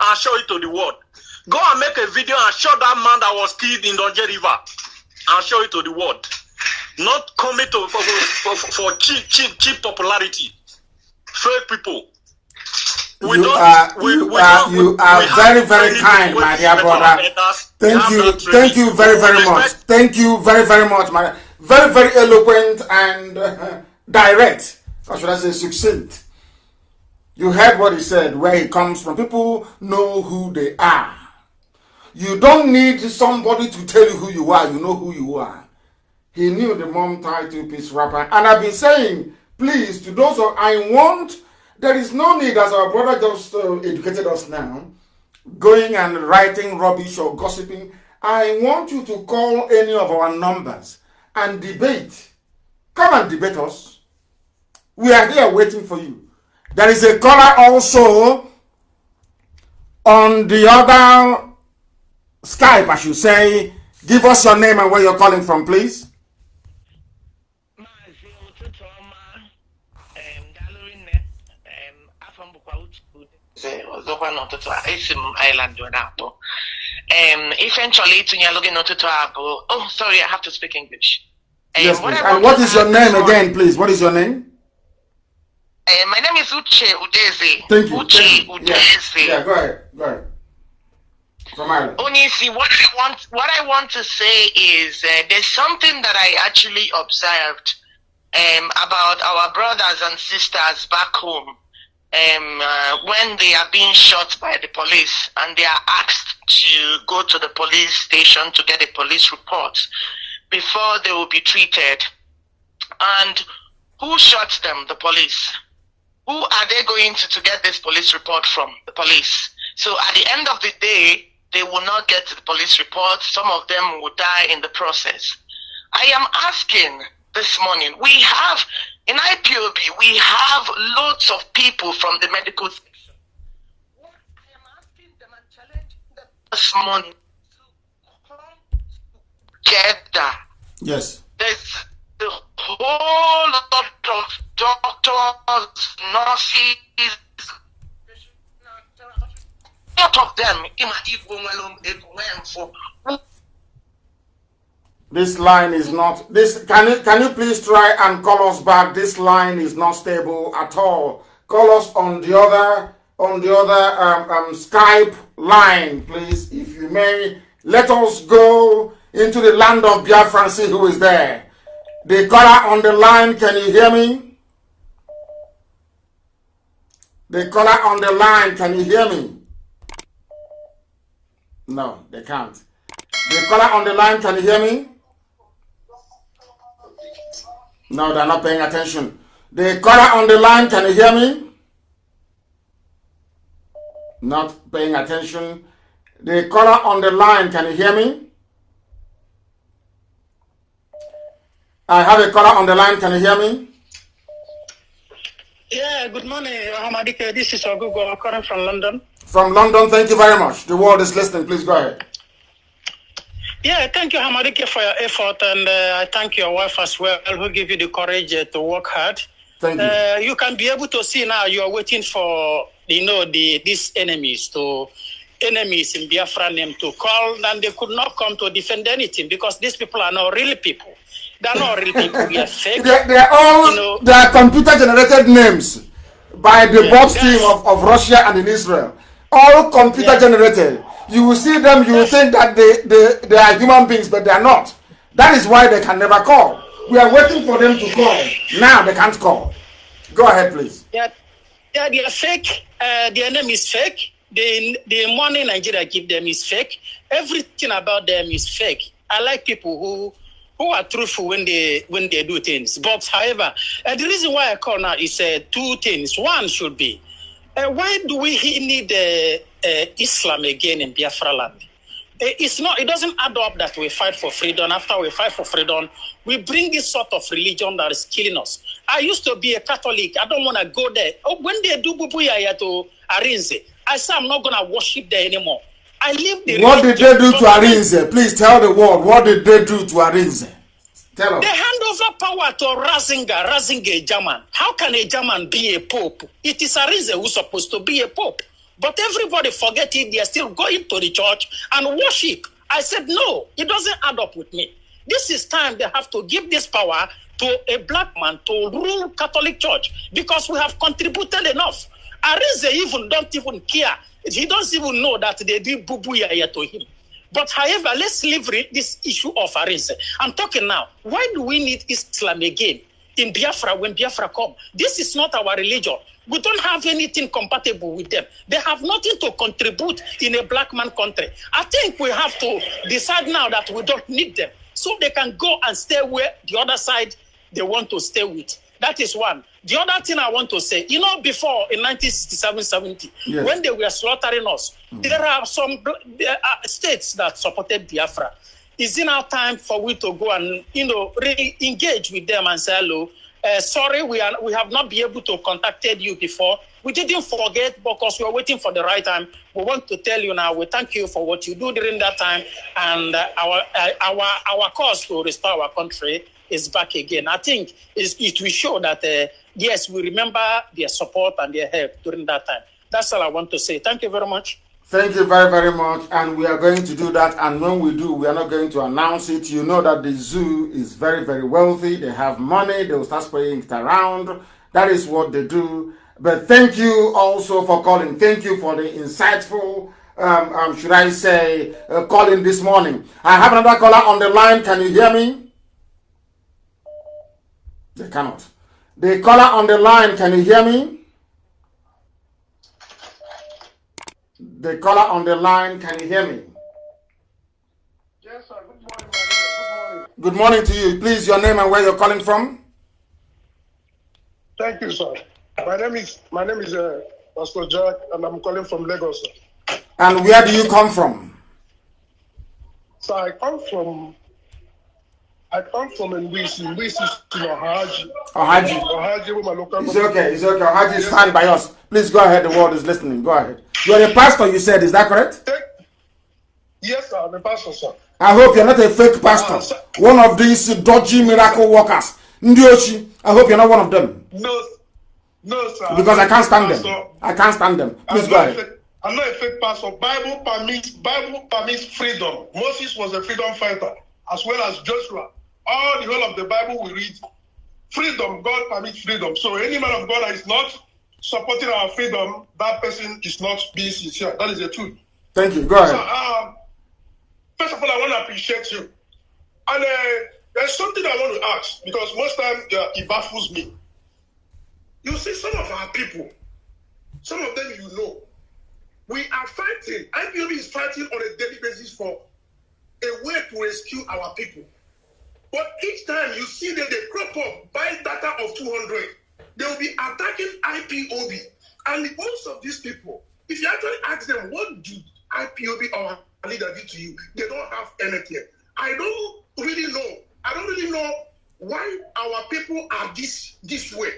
S7: and show it to the world. Go and make a video and show that man that was killed in Donje River and show it to the world. Not coming to for, for, for cheap, cheap, cheap popularity. Fake people. We you are we, you we are
S1: don't, you are very very kind, my dear brother. Thank you, thank you very very much. Thank you very very much, my very very eloquent and uh, direct. Or should I say succinct? You heard what he said, where he comes from. People know who they are. You don't need somebody to tell you who you are. You know who you are. He knew the mom title piece rapper, and I've been saying, please, to those who I want There is no need, as our brother just uh, educated us now, going and writing rubbish or gossiping. I want you to call any of our numbers and debate. Come and debate us. We are here waiting for you. There is a caller also on the other Skype, I should say. Give us your name and where you're calling from, please.
S6: over n'ụtụtụ a esi m Ireland wee um, ife m chọrọ itinye alụ gị oh sorry I have to speak English
S1: um, what, and what is your name again please what is your name
S6: uh, my name is Uche Udeze thank you Uche thank you. Udeze yeah. yeah go ahead go ahead from Ireland. Onisi, what I want, what I want to say is uh, there's something that I actually observed um, about our brothers and sisters back home um, uh, when they are being shot by the police and they are asked to go to the police station to get a police report before they will be treated. And who shot them? The police. Who are they going to, to get this police report from? The police. So at the end of the day, they will not get the police report. Some of them will die in the process. I am asking this morning. We have, in IPOB, we have lots of people from the medical section. What I am
S4: asking them and challenging them this morning to come together. Yes. There's the whole lot of doctors, nurses, lot of them,
S1: this line is not, this, can you, can you please try and call us back? This line is not stable at all. Call us on the other, on the other um, um, Skype line, please, if you may. Let us go into the land of Biafra and see who is there. The caller on the line, can you hear me? The caller on the line, can you hear me? No, they can't. The caller on the line, can you hear me? No, they're not paying attention. The caller on the line, can you hear me? Not paying attention. The caller on the line, can you hear me? I have a caller on the line, can you hear me?
S5: Yeah, good morning, Ahmadike. This is Ogugo, calling from London. From London, thank you very much.
S1: The world is listening, please go
S5: ahead. Yeah, thank you, Hamadike, for your effort, and uh, I thank your wife as well, who gave you the courage uh, to work hard. Thank you. Uh, you can be able to see now. You are waiting for you know the these enemies to enemies in Biafra name to call, and they could not come to defend anything because these people are not real people. They are
S8: not real people. They are *laughs* fake. they, they, are all
S1: you know, they are computer generated names by the yeah, team of, of Russia and in Israel all computer generated. You will see them, you will think that they, they, they are human beings, but they are not. That is why they can never call. We are waiting for them to call. Now they can't call. Go ahead, please.
S8: Yeah,
S5: yeah they are fake. Uh, their name is fake. The, the money Nigeria give them is fake. Everything about them is fake. I like people who who are truthful when they when they do things. But however, uh, the reason why I call now is uh, two things. One should be Uh, why do we need uh, uh, Islam again in Biafra land? It's not, it doesn't add up that we fight for freedom. After we fight for freedom, we bring this sort of religion that is killing us. I used to be a Catholic. I don't want to go there. Oh, when they do Bubuyaya to Arinze, I say I'm not going to worship there anymore. I leave the What did they do to
S1: Arinze? Please tell the world, what did they do to Arinze? Tell They hand over power to Razinga, Razinger,
S5: German. How can a German be a pope? It is reason who's supposed to be a pope. But everybody forget it. They are still going to the church and worship. I said, no, it doesn't add up with me. This is time they have to give this power to a black man to rule Catholic Church because we have contributed enough. Arize even don't even care. He doesn't even know that they did boo to him. But however, let's leave this issue of race. I'm talking now. Why do we need Islam again in Biafra when Biafra come? This is not our religion. We don't have anything compatible with them. They have nothing to contribute in a black man country. I think we have to decide now that we don't need them so they can go and stay where the other side they want to stay with. That is one. The other thing I want to say, you know, before in 1967 70, yes. when they were slaughtering us, mm. there are some states that supported Biafra. Is it now time for we to go and, you know, re engage with them and say, hello, uh, sorry, we, are, we have not been able to contact you before. We didn't forget because we were waiting for the right time. We want to tell you now. We thank you for what you do during that time, and uh, our uh, our our cause to restore our country is back again. I think it will show that, uh, yes, we remember their support and their help during that time. That's all I want to say. Thank you very much.
S1: Thank you very, very much. And we are going to do that. And when we do, we are not going to announce it. You know that the zoo is very, very wealthy. They have money. They will start spraying it around. That is what they do. But thank you also for calling. Thank you for the insightful, um, um, should I say, uh, calling this morning. I have another caller on the line. Can you hear me? They cannot. The caller on the line, can you hear me? The caller on the line, can you hear me? Yes, sir. Good morning, Good morning. Good morning to you. Please, your name and where you're calling from.
S4: Thank you, sir. My name is my name is uh, Pastor Jack, and I'm calling from Lagos.
S1: Sir. And where do you come from?
S4: So I come from I come from Nwisi. Nwisi is in Ohaji. Ohaji. Ohaji with my local It's okay. It's okay. Ohaji, you stand by
S1: us. Please go ahead. The world is listening. Go ahead. You are a pastor, you said. Is that correct?
S4: Yes, sir. I'm a pastor, sir.
S1: I hope you're not a fake pastor. Uh, one of these dodgy miracle workers. Ndiochi, I hope you're not one of them. No, no, sir. Because I can't stand
S8: them. I can't stand them. Please go ahead. I'm not a fake pastor.
S4: Bible permits Bible permits freedom. Moses was a freedom fighter, as well as Joshua all the whole of the Bible we read, freedom, God permits freedom. So any man of God that is not supporting our freedom, that person is not being sincere. That is the truth. Thank you. Go ahead. So,
S12: um, first
S4: of all, I want to appreciate you. And uh, there's something I want to ask because most time uh, it baffles me. You see, some of our people, some of them you know, we are fighting. IPOB is fighting on a daily basis for a way to rescue our people. But each time you see that they crop up, buy data of 200, they will be attacking IPOB. And most of these people, if you actually ask them, what do IPOB or leader do to you? They don't have anything. I don't really know. I don't really know why our people are this this way.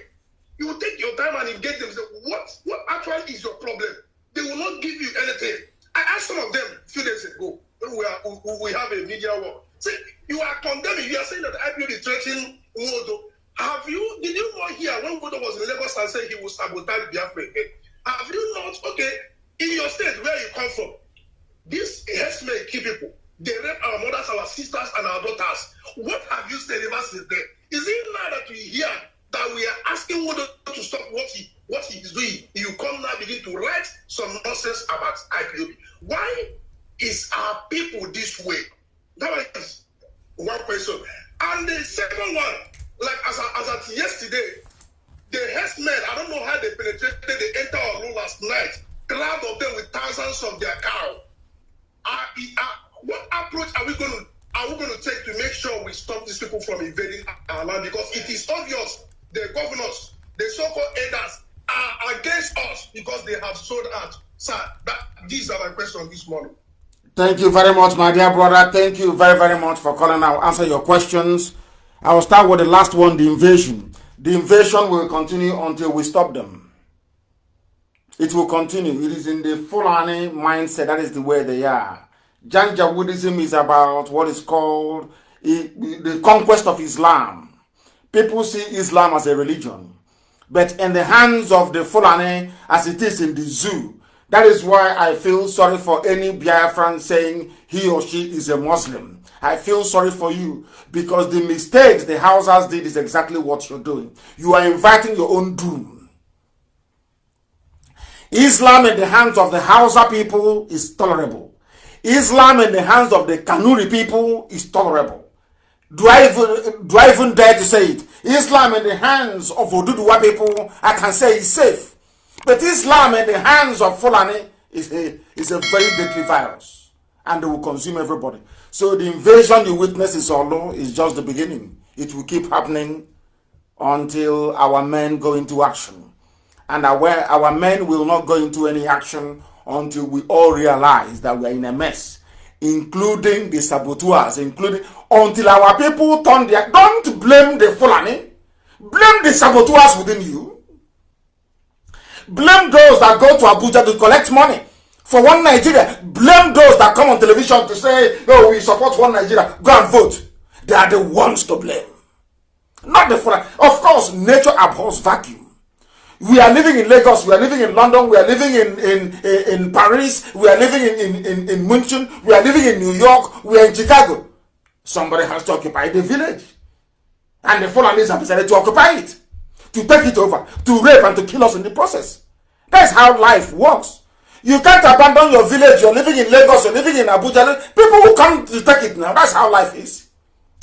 S4: You take your time and engage them. Say, what what actually is your problem? They will not give you anything. I asked some of them a few days ago. We, are, we have a media war. See, you are condemning. You are saying that IPOB is threatening Wodo. Have you, did you not hear when Wodo was in Lagos and said he would sabotage Biafra again? Have you not, okay, in your state where you come from, these herdsmen kill people. They rape our mothers, our sisters, and our daughters. What have you said ever since then? Is it now that we hear that we are asking Wodo to stop what he what he is doing? You come now begin to write some nonsense about IPOB. Why is our people this way? That was one question. And the second one, like as, as at yesterday, the herdsmen, I don't know how they penetrated, they entered our room last night, crowd of them with thousands of their cow. Are, are, what approach are we going to are we going to take to make sure we stop these people from invading our land? Because it is obvious the governors, the so-called elders, are against us because they have sold out. Sir, that,
S1: these are my questions this morning. Thank you very much, my dear brother. Thank you very, very much for calling. I'll answer your questions. I will start with the last one, the invasion. The invasion will continue until we stop them. It will continue. It is in the Fulani mindset. That is the way they are. Janjaweedism is about what is called the conquest of Islam. People see Islam as a religion. But in the hands of the Fulani, as it is in the zoo, that is why I feel sorry for any Biafran saying he or she is a Muslim. I feel sorry for you because the mistakes the Hausas did is exactly what you're doing. You are inviting your own doom. Islam in the hands of the Hausa people is tolerable. Islam in the hands of the Kanuri people is tolerable. Do I, even, do I even dare to say it? Islam in the hands of Oduduwa people, I can say it's safe. But Islam in the hands of Fulani is a, is a very deadly virus. And they will consume everybody. So the invasion you witness is low is just the beginning. It will keep happening until our men go into action. And our, our men will not go into any action until we all realize that we are in a mess. Including the saboteurs, including until our people turn their don't blame the Fulani, blame the saboteurs within you Blame those that go to Abuja to collect money for one Nigeria. Blame those that come on television to say, oh, we support one Nigeria. Go and vote. They are the ones to blame. Not the foreign. Of course, nature abhors vacuum. We are living in Lagos, we are living in London, we are living in, in, in, in Paris, we are living in, in, in, in Munich, we are living in New York, we are in Chicago. Somebody has to occupy the village. And the Fulanis have decided to occupy it to take it over, to rape and to kill us in the process. That's how life works. You can't abandon your village. You're living in Lagos, you're living in Abuja. People will come to take it now. That's how life is.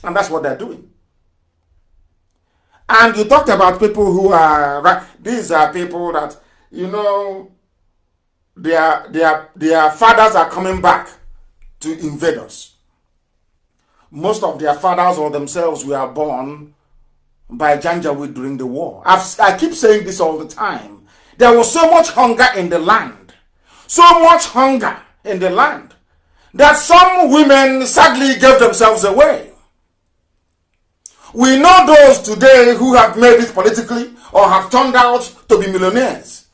S1: And that's what they're doing. And you talked about people who are, these are people that, you know, their, their, their fathers are coming back to invade us. Most of their fathers or themselves were born by Janjaweed during the war. I've, I keep saying this all the time. There was so much hunger in the land, so much hunger in the land, that some women sadly gave themselves away. We know those today who have made it politically or have turned out to be millionaires.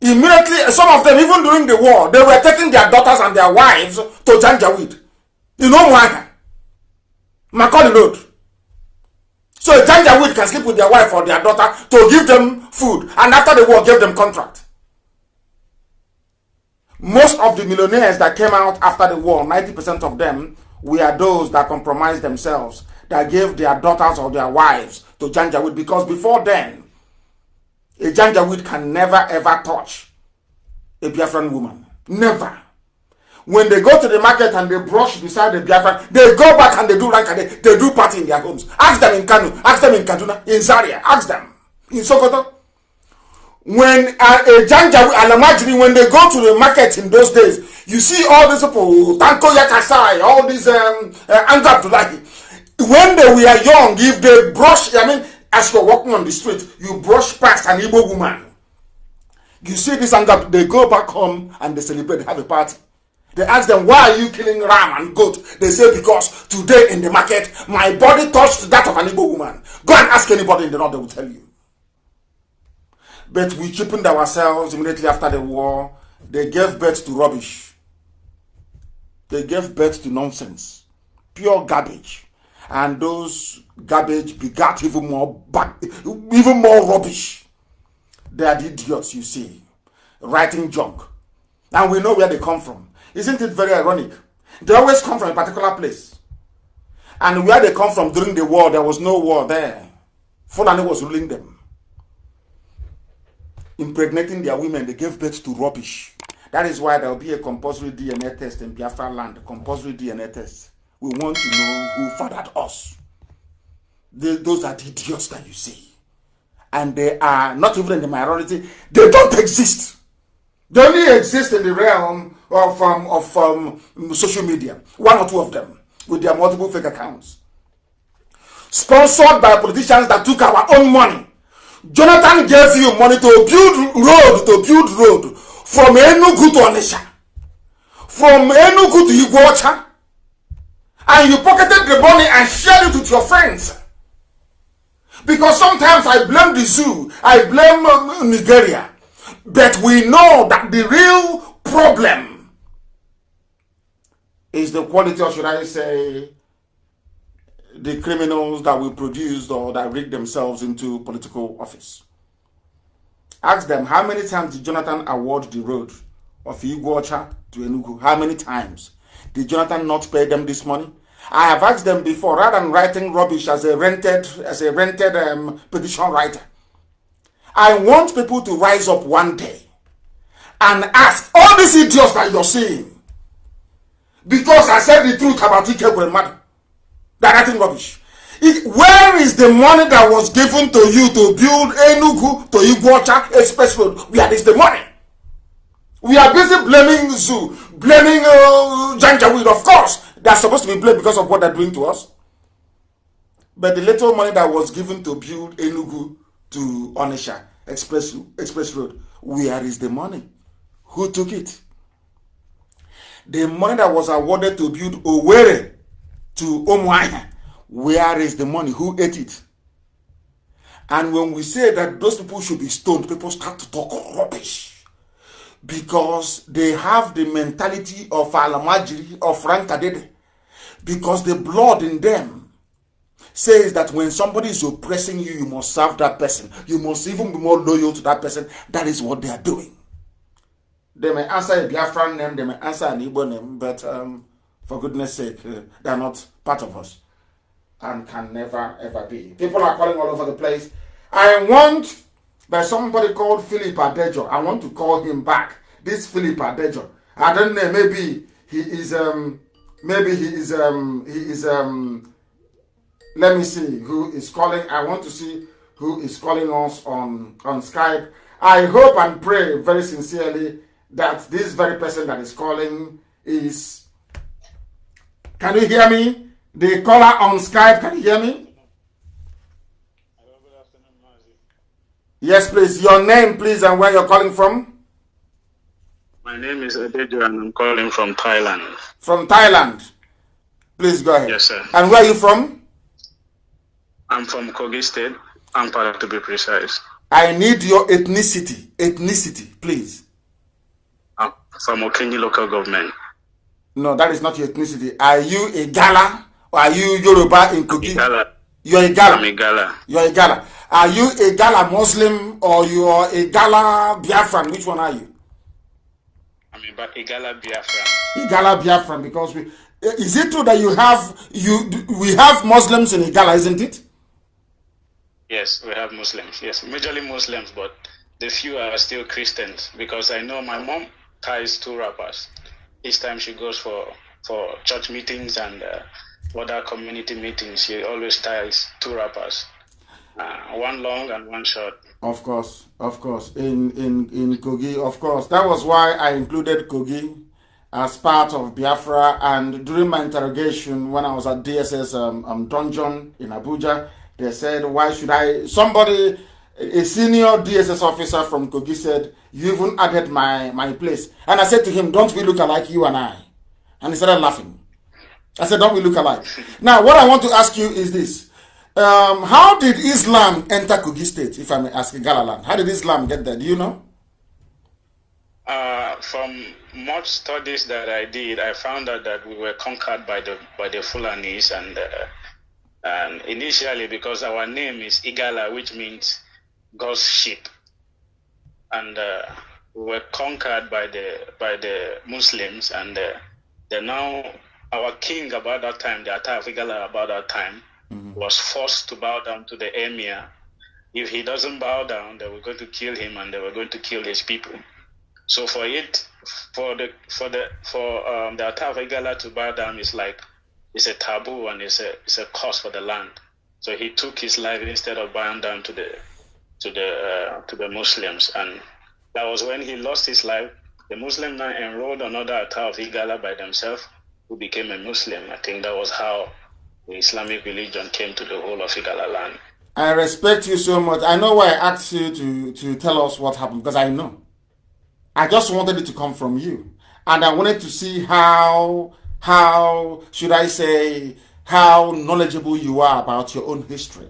S1: Immediately, some of them, even during the war, they were taking their daughters and their wives to Janjaweed. You know why? Makodi Road. So a Janjaweed can sleep with their wife or their daughter to give them food and after the war give them contract. Most of the millionaires that came out after the war, 90% of them were those that compromised themselves, that gave their daughters or their wives to Janjaweed because before then, a Janjaweed can never ever touch a Biafran woman. Never when they go to the market and they brush beside the Biafran, they go back and they do rank and they, they do party in their homes. Ask them in Kano, ask them in Kaduna, in Zaria, ask them in Sokoto. When uh, a janja and a when they go to the market in those days, you see all these people, Tanko Yakasai, all these um, uh, Anga Abdullahi. When they were young, if they brush, I mean, as you're walking on the street, you brush past an Igbo woman. You see this anger, they go back home and they celebrate, they have a party. They ask them, why are you killing ram and goat? They say, because today in the market, my body touched that of an Igbo woman. Go and ask anybody in the north, they will tell you. But we cheapened ourselves immediately after the war. They gave birth to rubbish. They gave birth to nonsense. Pure garbage. And those garbage begat even more, even more rubbish. They are the idiots you see. Writing junk. And we know where they come from. Isn't it very ironic? They always come from a particular place. And where they come from during the war, there was no war there. Fulani was ruling them. Impregnating their women, they gave birth to rubbish. That is why there will be a compulsory DNA test in Biafra land, compulsory DNA test. We want to know who fathered us. those are the idiots that you see. And they are not even in the minority. They don't exist. They only exist in the realm of, um, of um, social media, one or two of them, with their multiple fake accounts. Sponsored by politicians that took our own money. Jonathan gave you money to build road, to build road from Enugu to Onitsha, from Enugu to Iguacha, and you pocketed the money and shared it with your friends. Because sometimes I blame the zoo, I blame um, Nigeria. But we know that the real problem is the quality, or should I say, the criminals that we produced or that rigged themselves into political office. Ask them, how many times did Jonathan award the road of Iguacha to Enugu? How many times? Did Jonathan not pay them this money? I have asked them before, rather than writing rubbish as a rented, as a rented um, petition writer, I want people to rise up one day and ask all these idiots that you're seeing because I said the truth about Ikekwe Madu. They're writing rubbish. It, where is the money that was given to you to build Enugu to Iguacha Express Road? Where is the money? We are busy blaming Zoo, blaming uh, Janjaweed, of course. They are supposed to be blamed because of what they're doing to us. But the little money that was given to build Enugu to Onisha Express, Express Road. Where is the money? Who took it? The money that was awarded to build Owerri to Omuahia, where is the money? Who ate it? And when we say that those people should be stoned, people start to talk rubbish because they have the mentality of Alamajiri or Frank Kadede because the blood in them says that when somebody is oppressing you, you must serve that person. You must even be more loyal to that person. That is what they are doing. They may answer a Biafran name, they may answer an Igbo name, but um, for goodness sake, uh, they are not part of us and can never ever be. People are calling all over the place. I want, by somebody called Philip Adejo. I want to call him back. This Philip Adejo. I don't know, maybe he is, um, maybe he is, um, he is, um, let me see who is calling. I want to see who is calling us on, on Skype. I hope and pray very sincerely that this very person that is calling is. Can you hear me? The caller on Skype, can you hear me? Yes, please. Your name, please, and where you're calling from.
S11: My name is Adejo, and I'm calling from Thailand. From Thailand. Please go ahead. Yes, sir. And where are you from? I'm from Kogi State, Ampara to be precise.
S1: I need your ethnicity. Ethnicity, please.
S11: I'm from Okenji local government. No, that
S1: is not your ethnicity. Are you a Gala or are you Yoruba in Kogi? Igala. You're a Gala. I'm a Gala. You're a Gala. Are you a Gala Muslim or you are a Gala Biafran? Which one are you?
S11: I'm a Igala Biafran.
S1: Igala Biafran, because we. Is it true that you have you we have Muslims in Igala, isn't it?
S11: Yes, we have Muslims. Yes, majorly Muslims, but the few are still Christians because I know my mom ties two rappers. Each time she goes for for church meetings and uh, other community meetings, she always ties two rappers, uh, one long and one short.
S1: Of course, of course, in in in Kogi, of course. That was why I included Kogi as part of Biafra. And during my interrogation, when I was at DSS um, um dungeon in Abuja. They said, why should I? Somebody, a senior DSS officer from Kogi said, you even added my, my place. And I said to him, don't we look alike, you and I? And he started laughing. I said, don't we look alike? *laughs* now, what I want to ask you is this. Um, how did Islam enter Kogi State, if I may ask, Galaland? How did Islam get there? Do you know?
S11: Uh, from much studies that I did, I found out that we were conquered by the by the Fulanis, and uh, um, initially because our name is Igala, which means God's sheep, and uh, we were conquered by the by the Muslims, and uh, the now our king about that time, the Ata of Igala about that time, mm-hmm. was forced to bow down to the emir. If he doesn't bow down, they were going to kill him, and they were going to kill his people. So for it, for the for the for um, the Ata of Igala to bow down is like it's a taboo and it's a it's a curse for the land. So he took his life instead of bowing down to the to the uh, to the Muslims, and that was when he lost his life. The Muslim now enrolled another attack of Igala by themselves, who became a Muslim. I think that was how the Islamic religion came to the whole of Igala land.
S1: I respect you so much. I know why I asked you to, to tell us what happened because I know. I just wanted it to come from you. And I wanted to see how how should I say, how knowledgeable you are about your own history.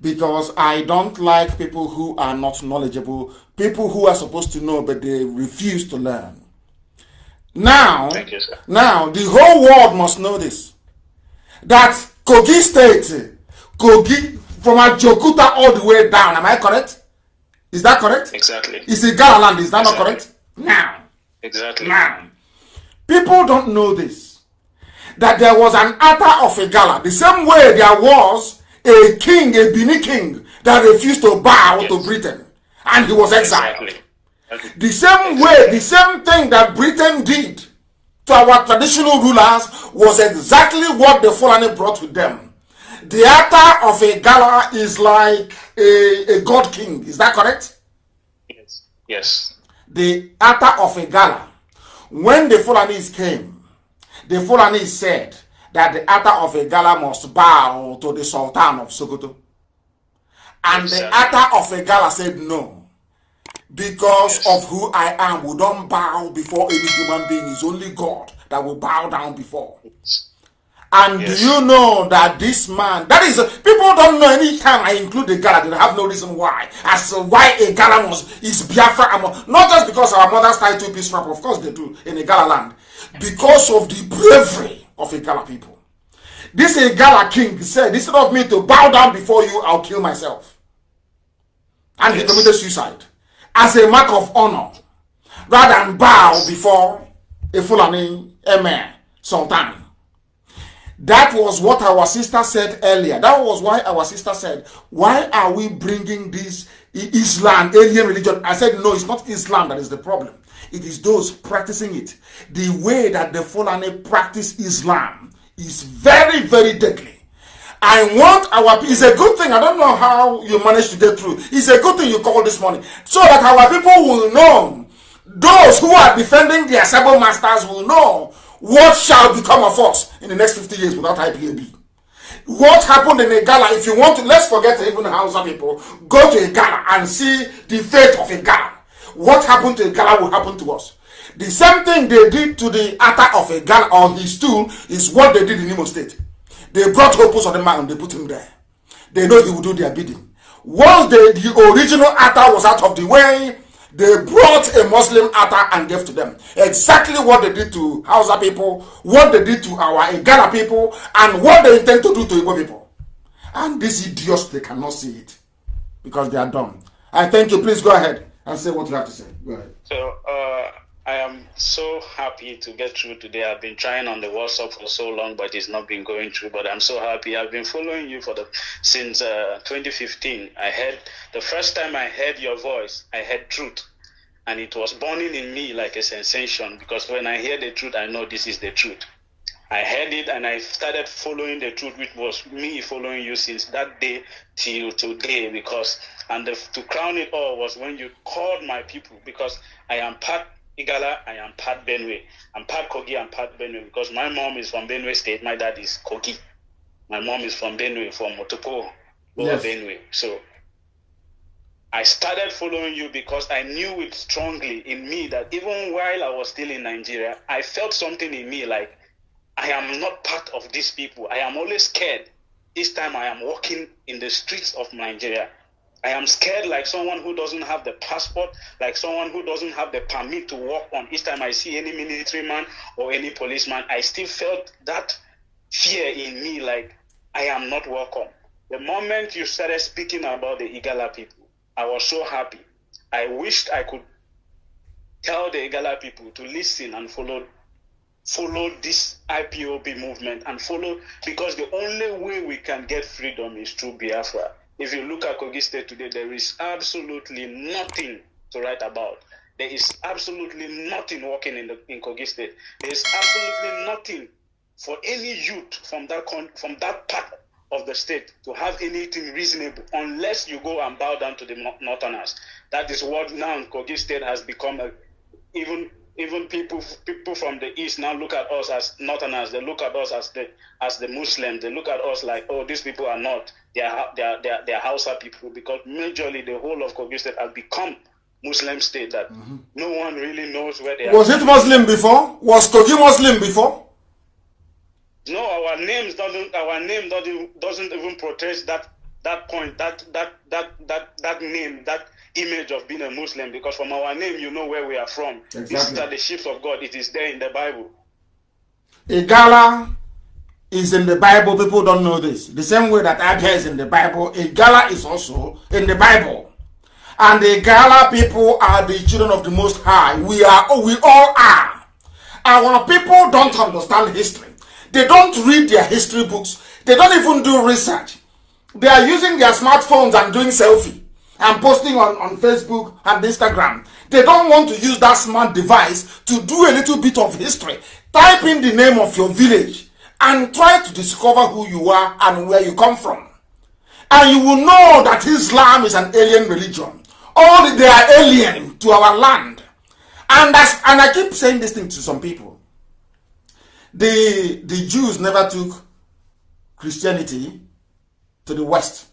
S1: Because I don't like people who are not knowledgeable, people who are supposed to know but they refuse to learn.
S12: Now, you,
S1: now the whole world must know this. That Kogi State, Kogi from Ajokuta all the way down, am I correct? Is that correct? Exactly. Is it Galaland? Is that exactly. not correct? Now. Exactly. Now. People don't know this. that there was an altar of a gala. The same way there was a king, a Bini king, that refused to bow yes. to Britain and he was exiled. The same way, the same thing that Britain did to our traditional rulers was exactly what the Fulani brought with them. The altar of a gala is like a, a god king. Is that correct?
S11: Yes. Yes.
S1: The altar of a gala. When the Fulanis came, The Fulani said that the altar of a gala must bow to the Sultan of Sokoto. And yes, the altar of a gala said no. Because yes. of who I am, we don't bow before any human being. It's only God that will bow down before. And yes. do you know that this man, that is, people don't know any time I include the Gala, they have no reason why. As to why a Gala was, is Biafra, not just because our mothers tie two piece wrap, of course they do, in a Gala land. because of the bravery of Igala people. This Igala king said, instead of me to bow down before you, I'll kill myself. And he committed suicide as a mark of honor rather than bow before a Fulani emir sultan. That was what our sister said earlier. That was why our sister said, why are we bringing this Islam, alien religion? I said, no, it's not Islam that is the problem. it is those practicing it. The way that the Fulani practice Islam is very, very deadly. I want our people. It's a good thing. I don't know how you managed to get through. It's a good thing you called this morning. So that our people will know, those who are defending their cyber masters will know what shall become of us in the next 50 years without IPAB. What happened in a gala, if you want to, let's forget even Hausa people, go to a gala and see the fate of a gala what happened to a gala will happen to us. The same thing they did to the altar of a gala on his stool is what they did in Imo State. They brought Hopus on the mountain, they put him there. They know he will do their bidding. Once the, the original altar was out of the way, they brought a Muslim altar and gave to them. Exactly what they did to Hausa people, what they did to our Igala people, and what they intend to do to Igbo people. And these idiots, they cannot see it because they are dumb. I thank you. Please go ahead. and say what you have to say.
S11: Go ahead. So uh, I am so happy to get through today. I've been trying on the WhatsApp for so long, but it's not been going through. But I'm so happy. I've been following you for the since uh, 2015. I heard the first time I heard your voice, I heard truth. And it was burning in me like a sensation because when I hear the truth, I know this is the truth. I heard it and I started following the truth, which was me following you since that day till today because and the, to crown it all was when you called my people, because I am part Igala, I am part Benue. I'm part Kogi, I'm part Benue, because my mom is from Benue State, my dad is Kogi. My mom is from Benue, from Motoko, yes. Benue. So I started following you because I knew it strongly in me that even while I was still in Nigeria, I felt something in me like, I am not part of these people. I am always scared. This time I am walking in the streets of Nigeria. I am scared like someone who doesn't have the passport, like someone who doesn't have the permit to walk on. Each time I see any military man or any policeman, I still felt that fear in me, like I am not welcome. The moment you started speaking about the Igala people, I was so happy. I wished I could tell the Igala people to listen and follow follow this IPOB movement and follow because the only way we can get freedom is through Biafra. If you look at Kogi State today, there is absolutely nothing to write about. There is absolutely nothing working in the in Kogi State. There is absolutely nothing for any youth from that con- from that part of the state to have anything reasonable unless you go and bow down to the northerners. That is what now Kogi State has become. A, even even people people from the east now look at us as northerners. They look at us as the as the Muslims. They look at us like, oh, these people are not their their their, Hausa people because majorly the whole of Kogi State has become Muslim state that mm-hmm. no one really knows where they was are. it Muslim
S1: before? Was Kogi Muslim before?
S11: No, our names doesn't our name doesn't doesn't even protest that that point that that that that that name that image of being a Muslim because from our name you know where we are from. Exactly. These the ships of God. It is there in the Bible.
S1: Igala is in the Bible. People don't know this. The same way that Abia is in the Bible, a gala is also in the Bible. And the gala people are the children of the Most High. We are, we all are. Our people don't understand history. They don't read their history books. They don't even do research. They are using their smartphones and doing selfie and posting on, on Facebook and Instagram. They don't want to use that smart device to do a little bit of history. Type in the name of your village and try to discover who you are and where you come from. And you will know that Islam is an alien religion. All they are alien to our land. And, that's, and I keep saying this thing to some people. The, the Jews never took Christianity to the West.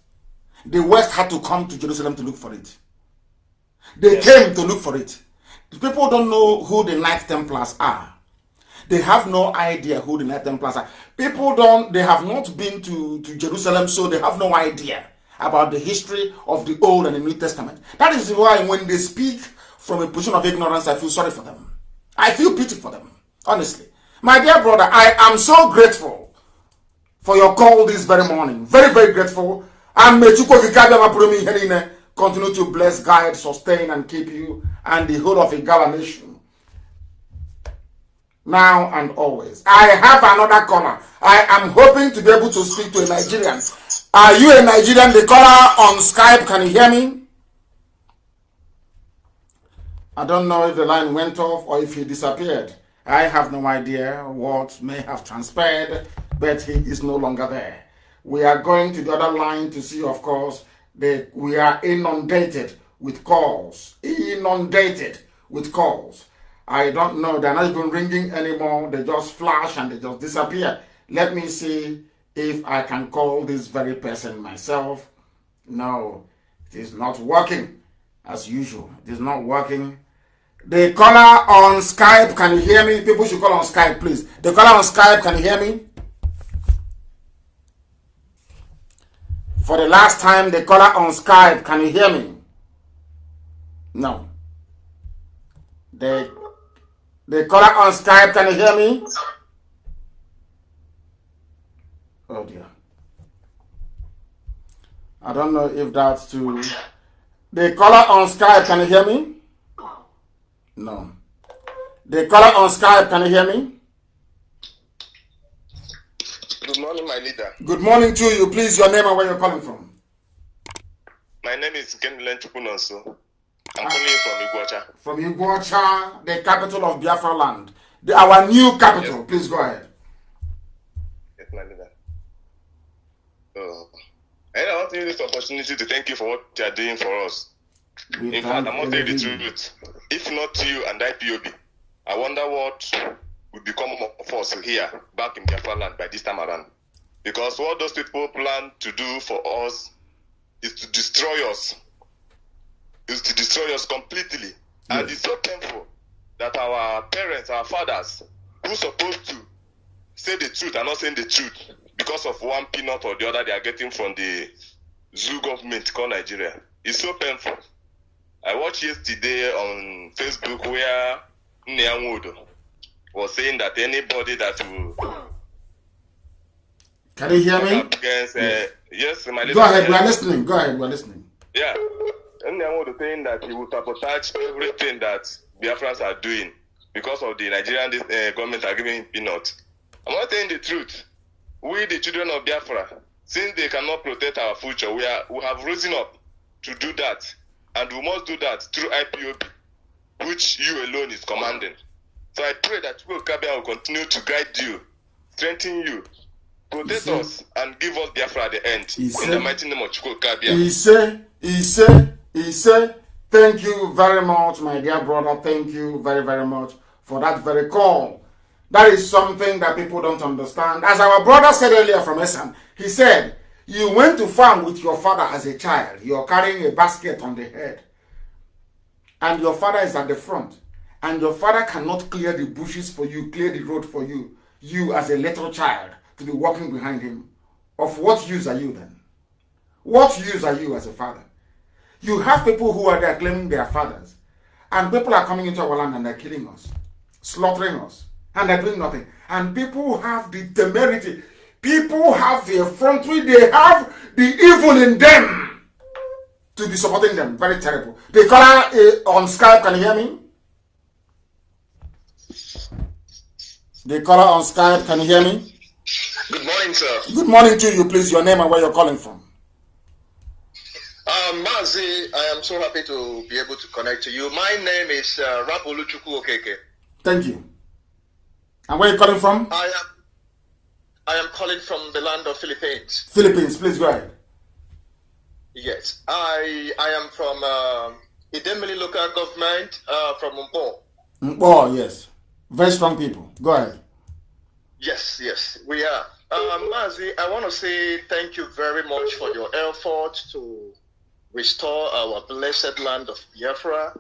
S1: The West had to come to Jerusalem to look for it. They yes. came to look for it. The people don't know who the Knights Templars are. They have no idea who the Nathan Templars are. People don't, they have not been to, to Jerusalem, so they have no idea about the history of the Old and the New Testament. That is why when they speak from a position of ignorance, I feel sorry for them. I feel pity for them, honestly. My dear brother, I am so grateful for your call this very morning. Very, very grateful. And Mechuko Vikabia continue to bless, guide, sustain, and keep you and the whole of Igala nation now and always. I have another caller. I am hoping to be able to speak to a Nigerian. Are you a Nigerian? The caller on Skype, can you hear me? I don't know if the line went off or if he disappeared. I have no idea what may have transpired, but he is no longer there. We are going to the other line to see, of course, that we are inundated with calls. Inundated with calls. I don't know. They're not even ringing anymore. They just flash and they just disappear. Let me see if I can call this very person myself. No, it is not working as usual. It is not working. The caller on Skype, can you hear me? People should call on Skype, please. The caller on Skype, can you hear me? For the last time, the caller on Skype, can you hear me? No. The the caller on Skype, can you hear me? Oh dear. I don't know if that's too. The caller on Skype, can you hear me? No. The caller on Skype, can you hear me?
S13: Good morning, my leader.
S1: Good morning to you. Please, your name and where you're calling from.
S13: My name is Ken Lenchukunonso. I'm uh, from Iguacha. From
S1: Iguacha, the capital of Biafra land. The, our new capital. Yes. Please go ahead.
S13: Yes, my leader. Oh. And I want to use this opportunity to thank you for what you are doing for us. We In fact, I must tell the truth. If not you and IPOB, I wonder what would become of us here back in Biafra land by this time around. Because what those people plan to do for us is to destroy us is to destroy us completely. Yes. And it's so painful that our parents, our fathers, who supposed to say the truth are not saying the truth because of one peanut or the other they are getting from the zoo government called Nigeria. It's so painful. I watched yesterday on Facebook where Nyanwood was saying that anybody that will can you hear me? Against, uh, yes. yes, my Go ahead, we are listening. Go ahead,
S1: we are listening. Yeah. Nnem would think
S13: that he would sabotage everything that Biafrans are doing because of the Nigerian uh, government are giving him peanuts. I'm not telling the truth. We, the children of Biafra, since they cannot protect our future, we, are, we have risen up to do that. And we must do that through IPOB, which you alone is commanding. So I pray that Chibu Kabia will continue to guide you, strengthen you, protect Ise. us, and give us Biafra at the end. Ise. said, the mighty name of Chibu Kabia. Ise.
S1: Ise. He said, Thank you very much, my dear brother. Thank you very, very much for that very call. That is something that people don't understand. As our brother said earlier from Essam, he said, You went to farm with your father as a child. You're carrying a basket on the head. And your father is at the front. And your father cannot clear the bushes for you, clear the road for you. You, as a little child, to be walking behind him. Of what use are you then? What use are you as a father? You have people who are there claiming their fathers, and people are coming into our land and they're killing us, slaughtering us, and they're doing nothing. And people have the temerity, people have the effrontery, they have the evil in them to be supporting them. Very terrible. The caller uh, on Skype, can you hear me? The caller on Skype, can you hear me?
S14: Good morning, sir.
S1: Good morning to you, please. Your name and where you're calling from.
S14: Um, Mazi, I am so happy to be able to connect to you. My name is uh, Rapolu Okeke.
S1: Thank you. And where are you calling from?
S14: I am, I am calling from the land of Philippines. Philippines, please go ahead.
S1: Yes, I I am from uh, Idemili local government uh, from Mpo. Mpo, yes. Very strong people. Go ahead.
S14: Yes, yes, we are. Um, Mazi, I want to say thank you very much for your effort to restore our blessed land of Biafra.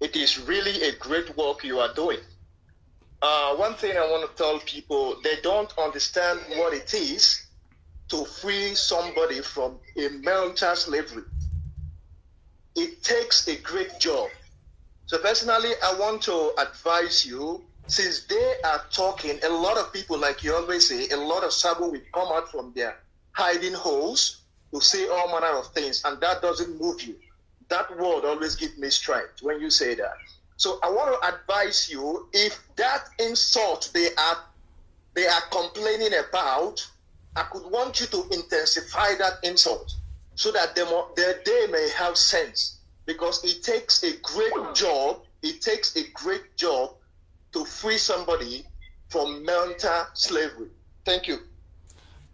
S14: It is really a great work you are doing. Uh, one thing I want to tell people they don't understand what it is to free somebody from a mental slavery. It takes a great job. So, personally, I want to advise you since they are talking, a lot of people, like you always say, a lot of Sabo will come out from their hiding holes to say all manner of things, and that doesn't move you. That word always gives me strength when you say that. So I want to advise you if that insult they are they are complaining about, I could want you to intensify that insult so that they, mo- that they may have sense. Because it takes a great job, it takes a great job to free somebody from mental slavery. Thank you.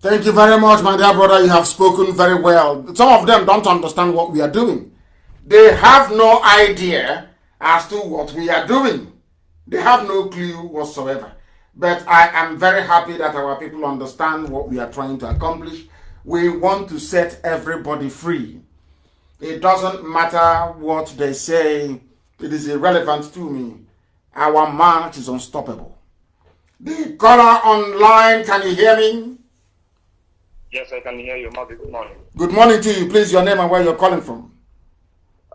S1: Thank you very much, my dear brother. You have spoken very well. Some of them don't understand what we are doing. They have no idea as to what we are doing. They have no clue whatsoever. But I am very happy that our people understand what we are trying to accomplish. We want to set everybody free. It doesn't matter what they say, it is irrelevant to me. Our march is unstoppable. The color online,
S15: can you hear me? Yes, I can hear you, Mavi. Good morning.
S1: Good morning to you. Please, your name and where you're calling from.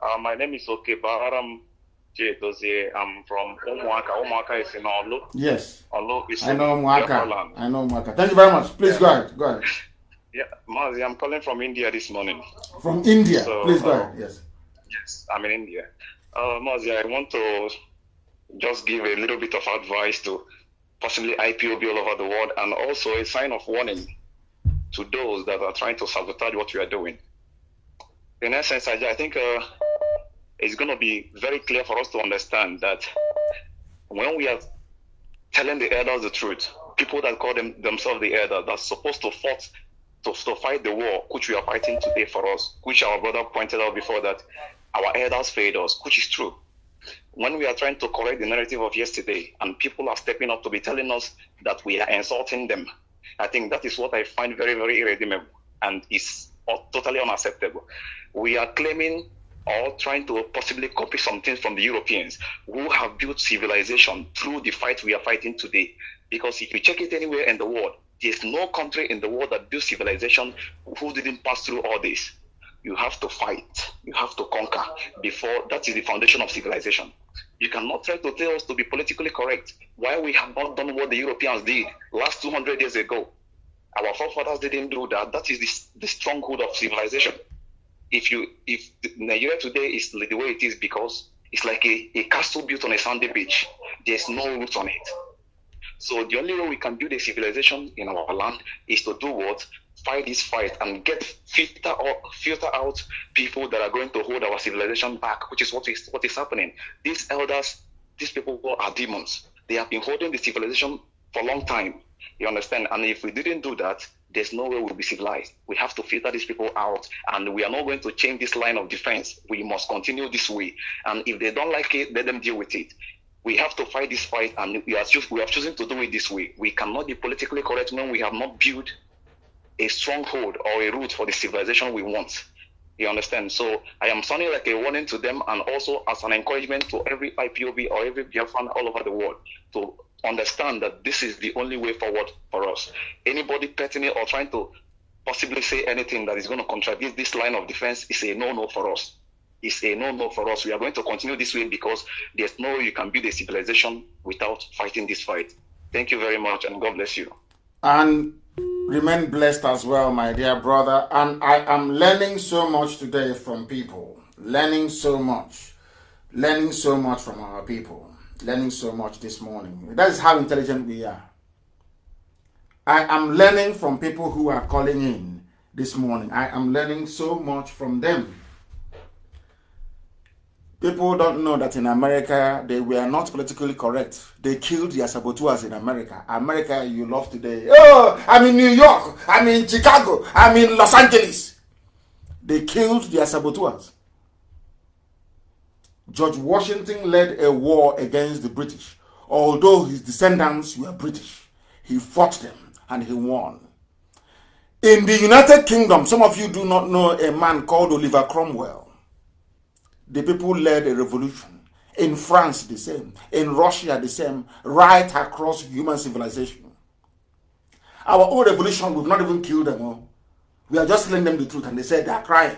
S15: Uh, my name is Okebaram J. I'm from Omuaka. Omuaka is in Olu. Yes. Olu is I know Omuaka. I
S1: know Omuaka. Thank you very much. Please yeah. go ahead. Go
S15: ahead. *laughs* Yeah, Mazi, I'm calling from India this morning. From India? So, Please go uh, ahead. Yes. Yes, I'm in India. Uh, Mazi, I want to just give a little bit of advice to possibly IPOB all over the world and also a sign of warning to those that are trying to sabotage what you are doing. In essence, I, I think uh, it's going to be very clear for us to understand that when we are telling the elders the truth, people that call them, themselves the elders that's supposed to fight to, to fight the war which we are fighting today for us, which our brother pointed out before that our elders failed us, which is true. When we are trying to correct the narrative of yesterday and people are stepping up to be telling us that we are insulting them, I think that is what I find very, very irredeemable and is totally unacceptable. We are claiming or trying to possibly copy something from the Europeans who have built civilization through the fight we are fighting today. Because if you check it anywhere in the world, there's no country in the world that built civilization who didn't pass through all this. You have to fight, you have to conquer before that is the foundation of civilization. You cannot try to tell us to be politically correct while we have not done what the Europeans did last 200 years ago. Our forefathers didn't do that. That is the, the stronghold of civilization. If you if Nigeria today is the way it is because it's like a, a castle built on a sandy beach. There's no roots on it. So the only way we can build a civilization in our land is to do what? fight this fight and get filter or filter out people that are going to hold our civilization back, which is what is what is happening. These elders, these people are demons. They have been holding the civilization for a long time. You understand? And if we didn't do that, there's no way we'll be civilized. We have to filter these people out, and we are not going to change this line of defense. We must continue this way. And if they don't like it, let them deal with it. We have to fight this fight, and we are, we are choosing to do it this way. We cannot be politically correct when we have not built a stronghold or a root for the civilization we want. You understand? So I am sounding like a warning to them and also as an encouragement to every IPOB or every Biafran all over the world to understand that this is the only way forward for us. Anybody petting or trying to possibly say anything that is going to contradict this line of defense is a no-no for us. It's a no-no for us. We are going to continue this way because there's no way you can build a civilization without fighting this fight. Thank you very much and God bless you.
S1: And Remain blessed as well, my dear brother. And I am learning so much today from people. Learning so much. Learning so much from our people. Learning so much this morning. That is how intelligent we are. I am learning from people who are calling in this morning. I am learning so much from them. People don't know that in America they were not politically correct. They killed their saboteurs in America. America you love today. Oh, I'm in New York. I'm in Chicago. I'm in Los Angeles. They killed their saboteurs. George Washington led a war against the British. Although his descendants were British, he fought them and he won. In the United Kingdom, some of you do not know a man called Oliver Cromwell. the people led a revolution. In France, the same. In Russia, the same. Right across human civilization. Our own revolution, we've not even killed them all. Oh. We are just telling them the truth, and they said they are crying.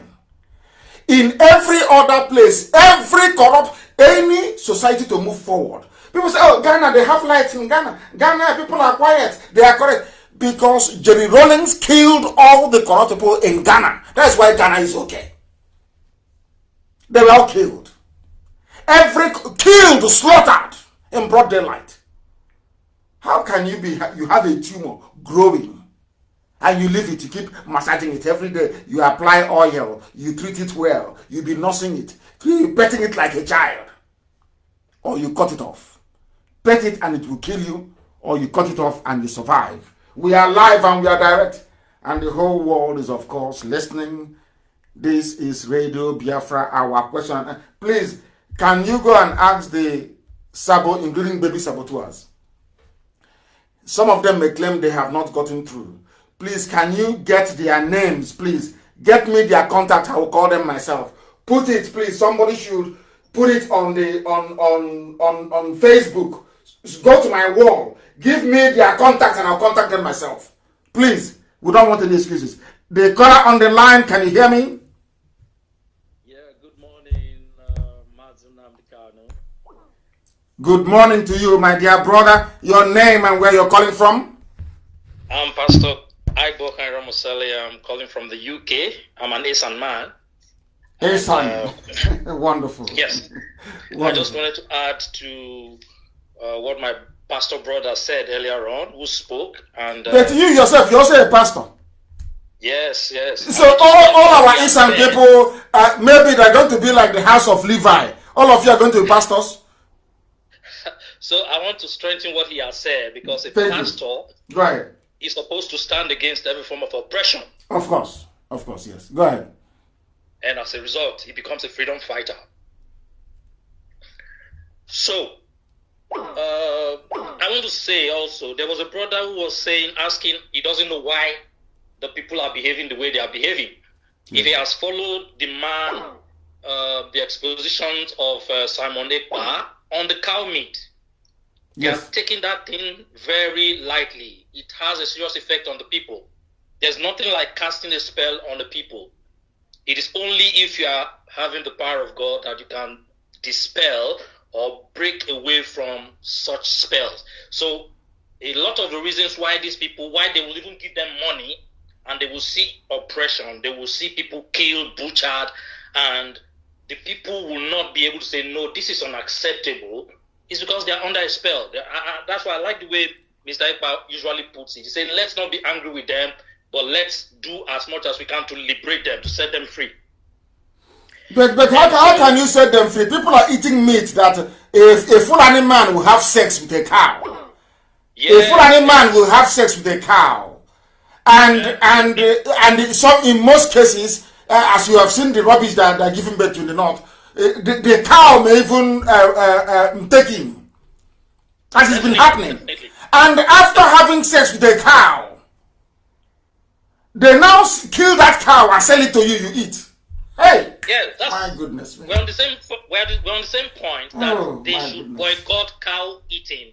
S1: In every other place, every corrupt, any society to move forward. People say, oh, Ghana, they have lights in Ghana. Ghana, people are quiet. They are correct. Because Jerry Rawlings killed all the corrupt people in Ghana. That's why Ghana is okay. They were all killed. Every killed, slaughtered in broad daylight. How can you be, you have a tumor growing and you leave it, you keep massaging it every day. You apply oil, you treat it well, you be nursing it, you petting it like a child, or you cut it off. Pet it and it will kill you, or you cut it off and you survive. We are live and we are direct, and the whole world is, of course, listening This is Radio Biafra Our question. Please, can you go and ask the Sabo, including baby saboteurs? Some of them may claim they have not gotten through. Please, can you get their names, please? Get me their contact. I will call them myself. Put it, please. Somebody should put it on the on on on on Facebook. Go to my wall. Give me their contact, and I'll contact them myself. Please, we don't want any excuses. The caller on the line, can you hear me? Good morning to you, my dear brother. Your name and where you're calling from? I'm Pastor Ibokan Ramosale. I'm calling from the UK.
S9: I'm an Asian man. Asian, Uh, *laughs* Wonderful. Yes. Wonderful. *laughs* I just wanted to add to uh, what my pastor brother said earlier on, who spoke. and. Uh, but you yourself, you're
S1: also a pastor.
S8: Yes, yes. So
S1: all, all our Asian people, uh, maybe they're going to be like the house of Levi. All of you are going to be pastors.
S9: So I want to strengthen what he has said because a Thank pastor right, is supposed to stand against every form of oppression.
S1: Of course. Of course, yes. Go ahead.
S9: And as a result, he becomes a freedom fighter. So uh, I want to say also, there was a brother who was saying, asking, he doesn't know why the people are behaving the way they are behaving. Yes. If he has followed the man, uh, the expositions of uh, Simon Epa on the cow meat, Yes. You have that thing very lightly. It has a serious effect on the people. There's nothing like casting a spell on the people. It is only if you are having the power of God that you can dispel or break away from such spells. So, a lot of the reasons why these people, why they will even give them money and they will see oppression, they will see people killed, butchered, and the people will not be able to say, no, this is unacceptable is because they are under a spell. that's why I like the way Mr. Iqbal usually puts it. He saying, let's not be angry with them, but let's do as much as we can to liberate them, to set them free.
S1: But, but how, how can you set them free? People are eating meat that a, a Fulani man will have sex with a cow.
S8: Yes. A Fulani
S1: man will have sex with a cow. And, yeah. and, uh, and some, in most cases, uh, as you have seen the rubbish that are given back to the north, Eh, the, the cow may even uh, uh, uh take him. As it's been happening. And after having sex with a cow, they now kill that cow and sell it to you, you eat.
S9: Hey! Yes, that's, my goodness. We're on the same, we're, we're on the same point that oh, they should goodness. boycott cow eating.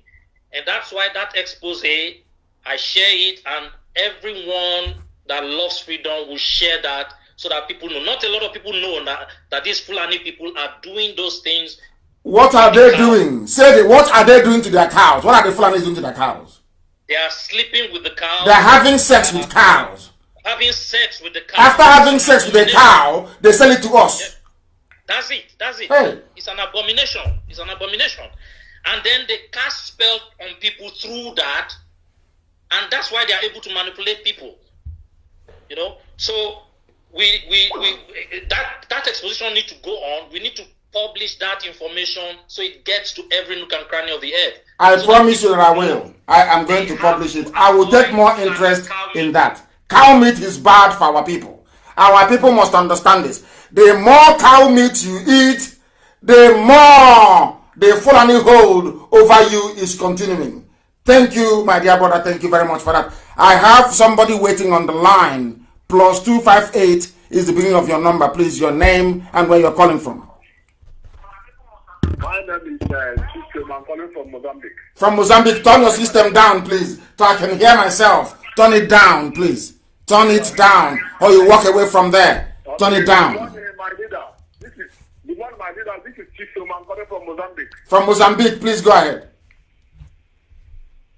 S9: And that's why that expose, I share it, and everyone that loves freedom will share that so that people know. Not a lot of people know that, that these Fulani people are doing those things.
S1: What are they doing? Say it. What are they doing to their cows? What are the Fulani doing to their cows?
S9: They are sleeping with the cows. They're having
S1: sex with uh, cows.
S9: Having sex with the cow. After having
S1: sex with a cow, they sell it to us.
S9: That's it. That's it. Hey. It's an abomination. It's an abomination. And then they cast spells on people through that. And that's why they are able to manipulate people. You know? So we, we, we that, that exposition need to go on. We need to publish that information
S1: so it gets to every nook and cranny of the earth. I so promise you that I will. I am going to publish it. I will take more interest in that. Cow meat is bad for our people. Our people must understand this. The more cow meat you eat, the more the Fulani hold over you is continuing. Thank you, my dear brother. Thank you very much for that. I have somebody waiting on the line plus two five eight is the beginning of your number. Please, your name and where you're calling from. My name is uh, System. I'm calling from Mozambique. From Mozambique. Turn your system down, please. So I can hear myself. Turn it down, please. Turn it down. Or you walk away from there. Turn it down. This is, this is System. I'm calling from Mozambique. From Mozambique. Please go ahead.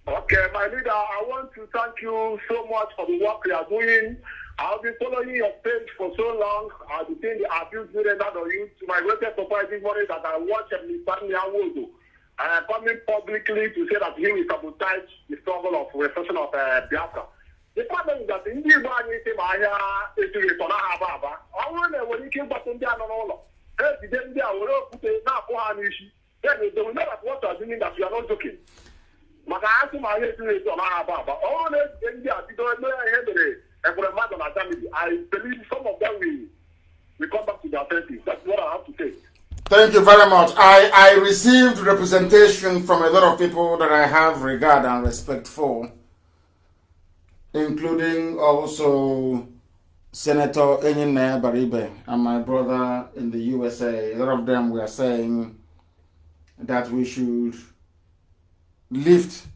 S4: Okay, my leader, I want to thank you so much for the work you are doing I've be following your page for so long. I've been seeing the abuse rendered on you to my greatest surprise this morning that I watch Mr. to And I'm coming publicly to say that he will sabotage the struggle of repression of uh, Biafra. The problem is that ndị Igbo anyị si ma ahịa esiri ịtọ na ha aba aba ọ bụrụ na enwere ike ịgbata ndị a nọ n'ụlọ ha ejide ndị a were okwute na-apụ ha n'isi then they will know that what you are doing that you are not joking maka asị ma ahịa esiri ịtọ na ha aba aba ọ bụrụ na ejide ndị a bido mee ihe mere environment and our family. I believe some of them will, will come back to their senses. That's what I have to say.
S1: Thank you very much. I, I received representation from a lot of people that I have regard and respect for, including also Senator Enyine Baribe and my brother in the USA. A lot of them were saying that we should lift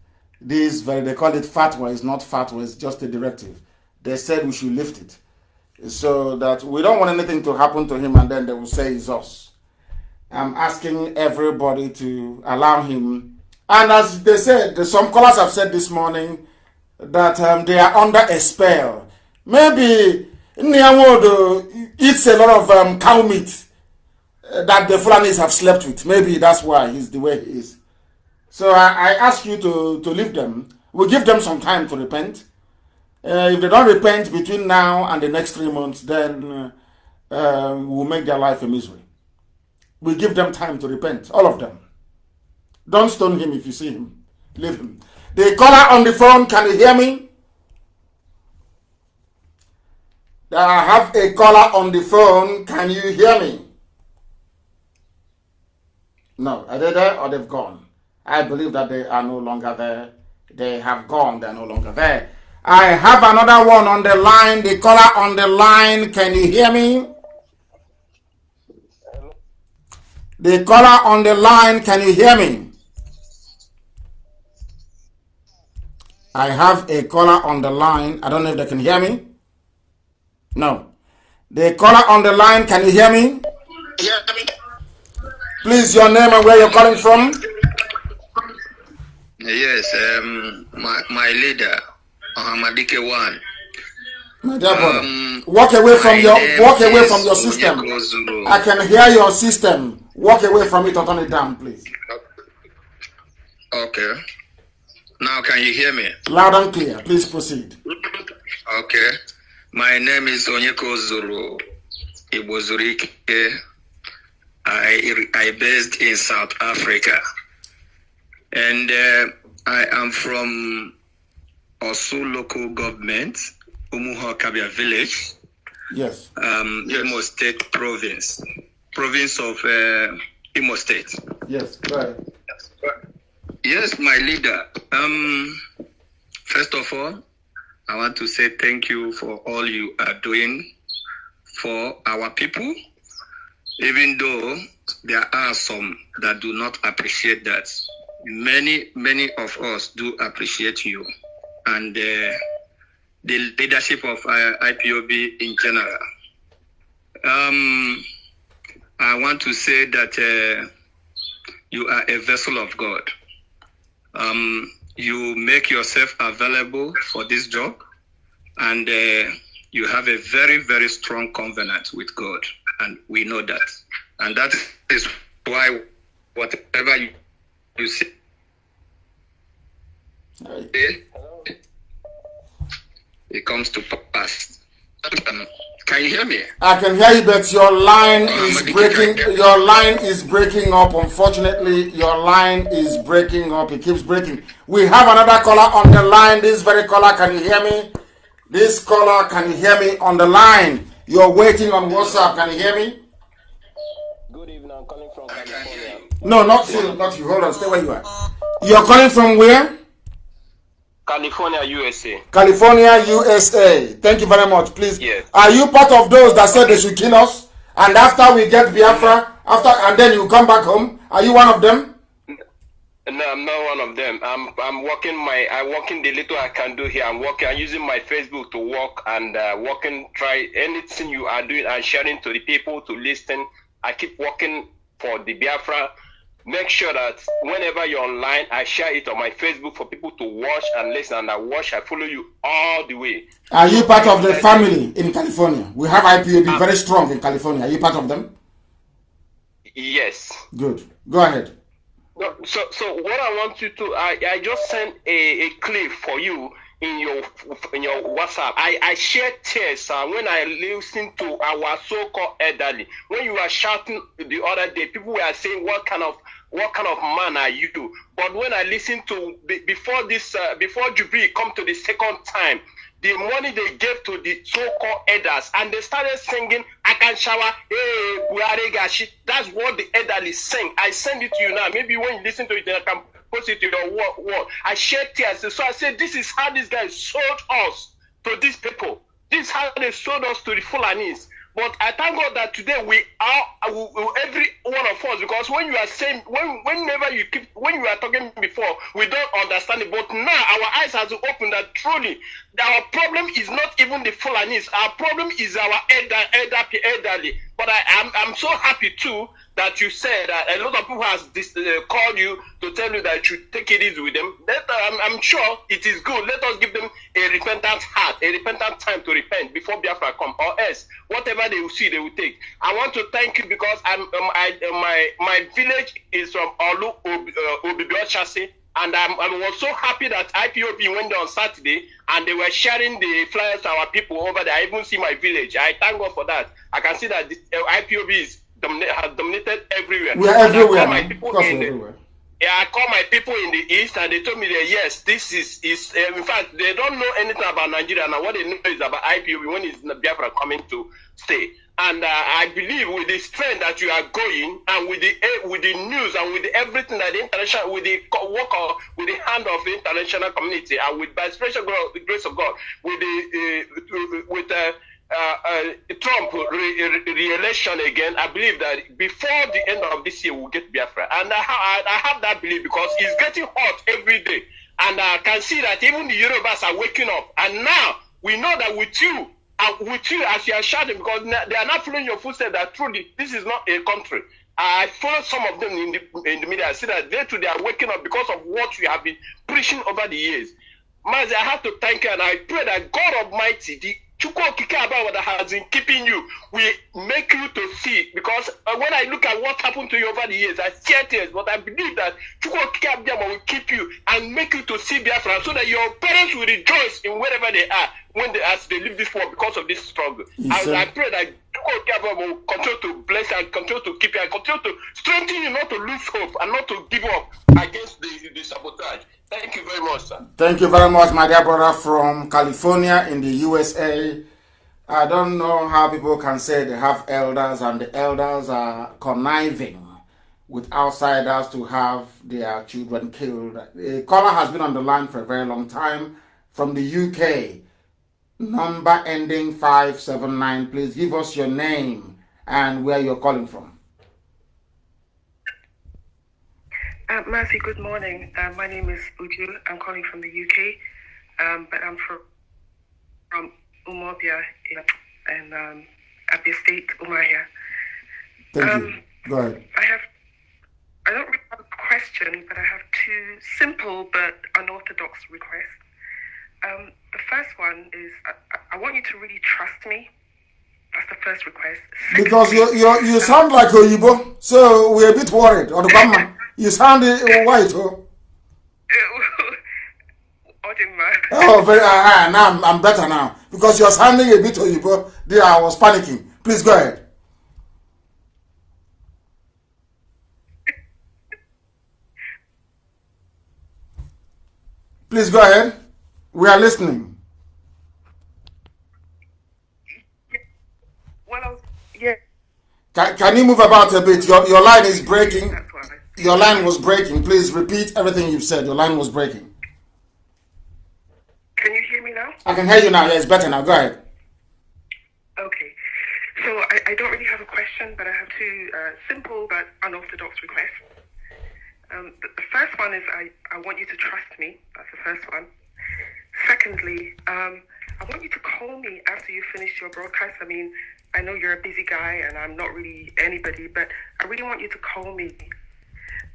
S1: this very, they call it fatwa, it's not fatwa, it's just a directive they said we should lift it. So that we don't want anything to happen to him and then they will say it's us. I'm asking everybody to allow him. And as they said, some callers have said this morning that um, they are under a spell. Maybe Nyamodo eats uh, a lot of um, cow meat uh, that the Fulanis have slept with. Maybe that's why he's the way he is. So I, I ask you to, to leave them. We we'll give them some time to repent. Uh, if they don't repent between now and the next three months, then uh, um, we'll make their life a misery. We give them time to repent, all of them. Don't stone him if you see him. Leave him. The caller on the phone, can you hear me? I have a caller on the phone. Can you hear me? No. Are they there or they've gone? I believe that they are no longer there. They have gone. They're no longer there. I have another one on the line, the caller on the line. Can you hear me? The caller on the line, can you hear me? I have a caller on the line. I don't know if they can hear me. No. The caller on the line, can you hear me? Please, your name and where you're calling from.
S16: Yes, um, my, my leader. Ahamadike uh-huh, one. um,
S1: walk away from your walk away from your system. I can hear your system. Walk away from it or turn it down, please.
S16: Okay. Now can you hear me? Loud and clear.
S11: Please proceed.
S16: Okay. My name is Onyeko Zulu. Ibozurike. I I based in South Africa, and uh, I am from also local government, Umuha Kabia Village. Yes. Um, yes. Imo State Province, province of
S3: uh, Imo State. Yes, right. Yes, my leader. Um, first of all,
S16: I want to say thank you for all you are doing for our people, even though there are some that do not appreciate that. Many, many of us do appreciate you and uh, the leadership of uh, IPOB in general. Um, I want to say that uh, you are a vessel of God. Um, you make yourself available for this job, and uh, you have a very, very strong covenant with God, and we know that. And that is why whatever you, you say,
S1: it comes
S13: to pass. Um, can you hear me?
S1: I can hear you, but your line oh, is breaking. Your line is breaking up. Unfortunately, your line is breaking up. It keeps breaking. We have another caller on the line. This very caller, can you hear me? This caller, can you hear me on the line? You're waiting on WhatsApp. Can you hear
S8: me? Good
S1: evening. I'm calling from California. No, not you. Not you. Hold on. Stay where you are. You're calling from where?
S16: California, USA.
S1: California, USA. Thank you very much. Please. Yes. Are you part of those that said they should kill us? And after we get Biafra, after and then you come back home, are you one of them? No, I'm not one of them. I'm I'm
S16: working my I'm working the little I can do here. I'm working. I'm using my Facebook to work and uh, working. Try anything you are doing and sharing to the people to listen. I keep working for the Biafra make sure that whenever you're online, I share it on my Facebook for people to watch and listen. And I watch, I follow you all the way.
S1: Are you part of the family in California? We have IPAB um, ah. very strong in California. Are you part of them? Yes. Good. Go ahead. So, so what I want you to, I, I just
S7: sent a, a clip for you in your in your WhatsApp. I, I share tears uh, when I listen to our so-called elderly. When you were shouting the other day, people were saying, "What kind of what kind of man are you? But when I listened to before this, uh, before Jubilee come to the second time, the money they gave to the so-called elders, and they started singing Akanshawa, hey, Buaregashi. That's what the elderly sing. I send it to you now. Maybe when you listen to it, I can post it to your wall. I shed tears. So I said, this is how these guys sold us to these people. This is how they sold us to the Fulanese. But I thank God that today we are every one of us because when you are saying when whenever you keep when you are talking before we don't understand it. But now our eyes has opened that truly our problem is not even the Fulanis. Our problem is our elder, elder, elderly. But I, am I'm, I'm so happy too that you said that a lot of people has this, uh, called you to tell you that you take it easy with them. Let, uh, I'm, I'm sure it is good. Let us give them a repentant heart, a repentant time to repent before Biafra come, or else whatever they will see, they will take. I want to thank you because I'm um, I, uh, my my village is from Olu Ob, uh, Chassis and I'm, I was so happy that IPOB went on Saturday and they were sharing the flyers to our people over there. I even see my village. I thank God for that.
S8: I can see that the uh, IPOB is domina- has dominated everywhere. We are everywhere. everywhere. Yeah, I call my people in the east and they told me that
S7: yes, this is is uh, in fact they don't know anything about Nigeria now. What they know is about IPOB when is Biafra coming to stay. And uh, I believe with the strength that you are going, and with the uh, with the news, and with everything that the international, with the work of, with the hand of the international community, and with by special grace of God, with the eh, uh, with uh, uh, Trump re-election re- again, I believe that before the end of this year we'll get Biafra, and I, ha- I have that belief because it's getting hot every day, and I can see that even the Yorubas are waking up, and now we know that with you uh, with you as you are shouting because they are not following your footsteps that truly this is not a country. I follow some of them in the, in the media. I see that they too they are waking up because of what we have been preaching over the years. Man, I have to thank you and I pray that God Almighty, the Chukwu Okike Abawada has been keeping you will make you to see. Because uh, when I look at what happened to you over the years, I share tears, but I believe that Chukwu Okike Abawada will keep you and make you to see Biafra so that your parents will rejoice in wherever they are when they, as they live
S8: this world because of this struggle. Yes, and I pray that Chukwu Okike Abawada will continue to bless and continue to keep you and
S4: continue to strengthen you not to lose hope and not to give up against the, the sabotage.
S1: Thank you very much, sir. Thank you very much, my dear brother from California in the USA. I don't know how people can say they have elders and the elders are conniving with outsiders to have their children killed. A caller has been on the line for a very long time from the UK.
S8: Number
S1: ending 579. Please give us your name and where you're calling from.
S2: Uh, Mercy, good morning. Uh, my name is Uju. I'm calling from the UK, um, but I'm from, from Umobia in, in um, Abia State, Umaya. Thank um, you. Go ahead. I have, I don't really have a question, but I have two simple but unorthodox requests. Um, the first one is I, I, want you to really trust
S8: me. That's the first request. because you,
S1: you, you sound like a Yibo, so we're a bit worried on the *laughs* You sound white, oh. *laughs* oh, very. uh, uh, now I'm, I'm, better now because you're sounding a bit you, bro. There, I was panicking. Please go ahead. *laughs* Please go ahead. We are listening.
S2: Well, yeah.
S1: Can, can you move about a bit? Your your line is breaking. Your line was breaking. Please repeat everything you've said. Your line was breaking.
S2: Can you hear me now? I can hear you now. Yeah, it's
S1: better now. Go ahead.
S2: Okay. So I, I don't really have a question, but I have two uh, simple but unorthodox requests. Um, the, the first one is I, I want you to trust me. That's the first one. Secondly, um, I want you to call me after you finish your broadcast. I mean, I know you're a busy guy and I'm not really anybody, but I really want you to call me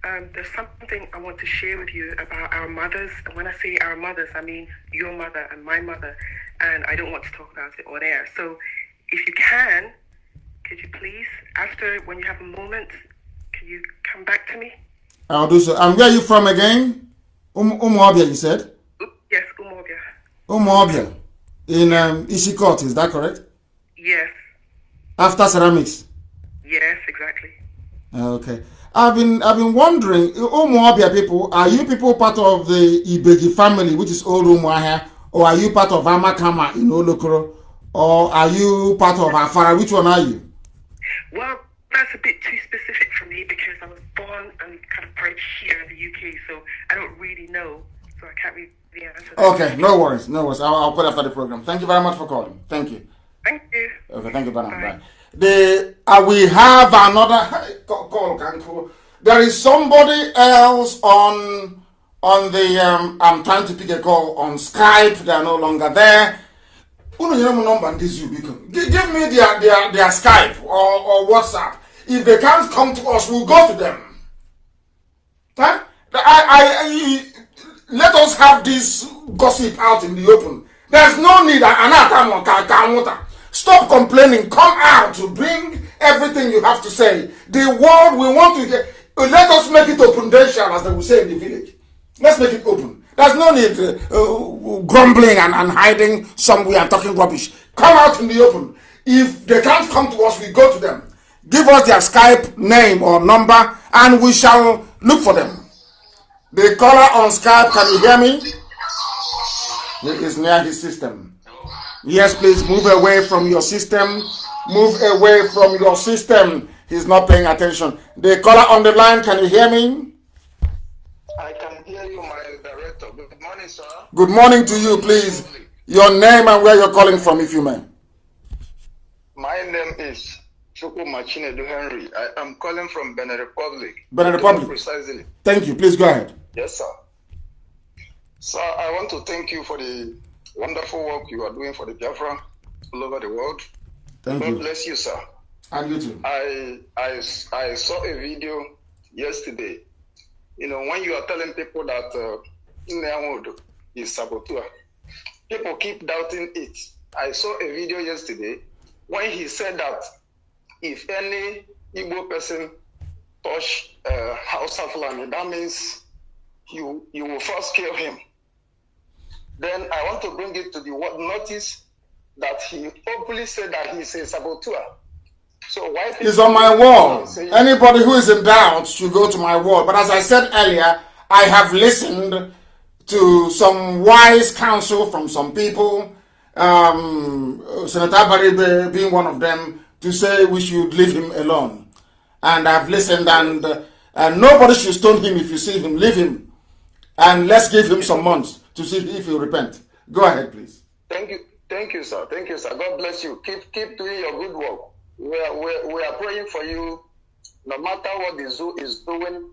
S2: um, there's something I want to share with you about our mothers. And when I say our mothers, I mean your mother and my mother. And I don't want to talk about it on air. So if you can, could you
S1: please, after when you have a moment, can you come back to me? I'll do so. And um, where are you from again? Um, Umuabia, you said?
S2: Yes, Umuabia.
S1: Umuabia. In um, Ishikot, is that correct? Yes. After ceramics?
S8: Yes, exactly.
S1: Uh, okay. I've been I've been wondering, Umuabia people, are you people part of the Ibeji family, which is old Umuahia, or are you part of Amakama in Olokoro, or are you part of Afara? Which one are you?
S4: Well, that's a bit too specific for me because I was born and kind of bred
S2: here in the UK, so I don't really know, so I can't really answer. That.
S1: Okay, no worries, no worries. I'll, I'll put after the program. Thank you very much for calling. Thank you. Thank you. Okay, thank you, Bye. Bye the uh, we have another call There is somebody else on on the um, I'm trying to pick a call on Skype. They are no longer there. number This you Give me their, their, their Skype or, or WhatsApp. If they can't come to us, we'll go to them. Huh? I, I, I, let us have this gossip out in the open. There's no need. Anata mo ka ka nwụta. Stop complaining. Come out. Bring everything you have to say. The world we want to hear. Let us make it open, as they will say in the village. Let's make it open. There's no need uh, uh, grumbling and, and hiding somewhere and talking rubbish. Come out in the open. If they can't come to us, we go to them. Give us their Skype name or number and we shall look for them. The caller on Skype, can you hear me? He is near his system. Yes, please move away from your system. Move away from your system. He's not paying attention. The caller on the line, can you hear me? I can hear you, my director. Good morning, sir. Good morning to you, please. Your name and where you're calling from, if you may.
S3: My name is Chukwu Machinedu Henry. I am calling from Benin Republic. Benin Republic. Precisely.
S1: Thank you. Please go ahead. Yes, sir. Sir, I want to thank you for the wonderful work you are doing for the Biafra all over the world.
S8: Thank God you. bless you, sir. And you too. I, I, I saw a video yesterday. You know, when you are
S3: telling people that uh, Nneamodo is saboteur, people keep doubting it. I saw a video yesterday when he said that if any Igbo person touch uh, House of Lani, that means you you will first kill him. Then I want to bring it to the
S1: notice that he openly said that he's a saboteur. So why it's on my wall. Anybody who is in doubt should go to my wall. But as I said earlier, I have listened to some wise counsel from some people, um, Senator Baribe being one of them, to say we should leave him alone. And I've listened, and, uh, and nobody should stone him if you see him. Leave him. And let's give him some months. to see if you repent. Go ahead, please. Thank you.
S3: Thank you, sir. Thank you, sir. God bless you. Keep keep doing your good work. We are, we we are praying for you. No matter what the zoo is doing,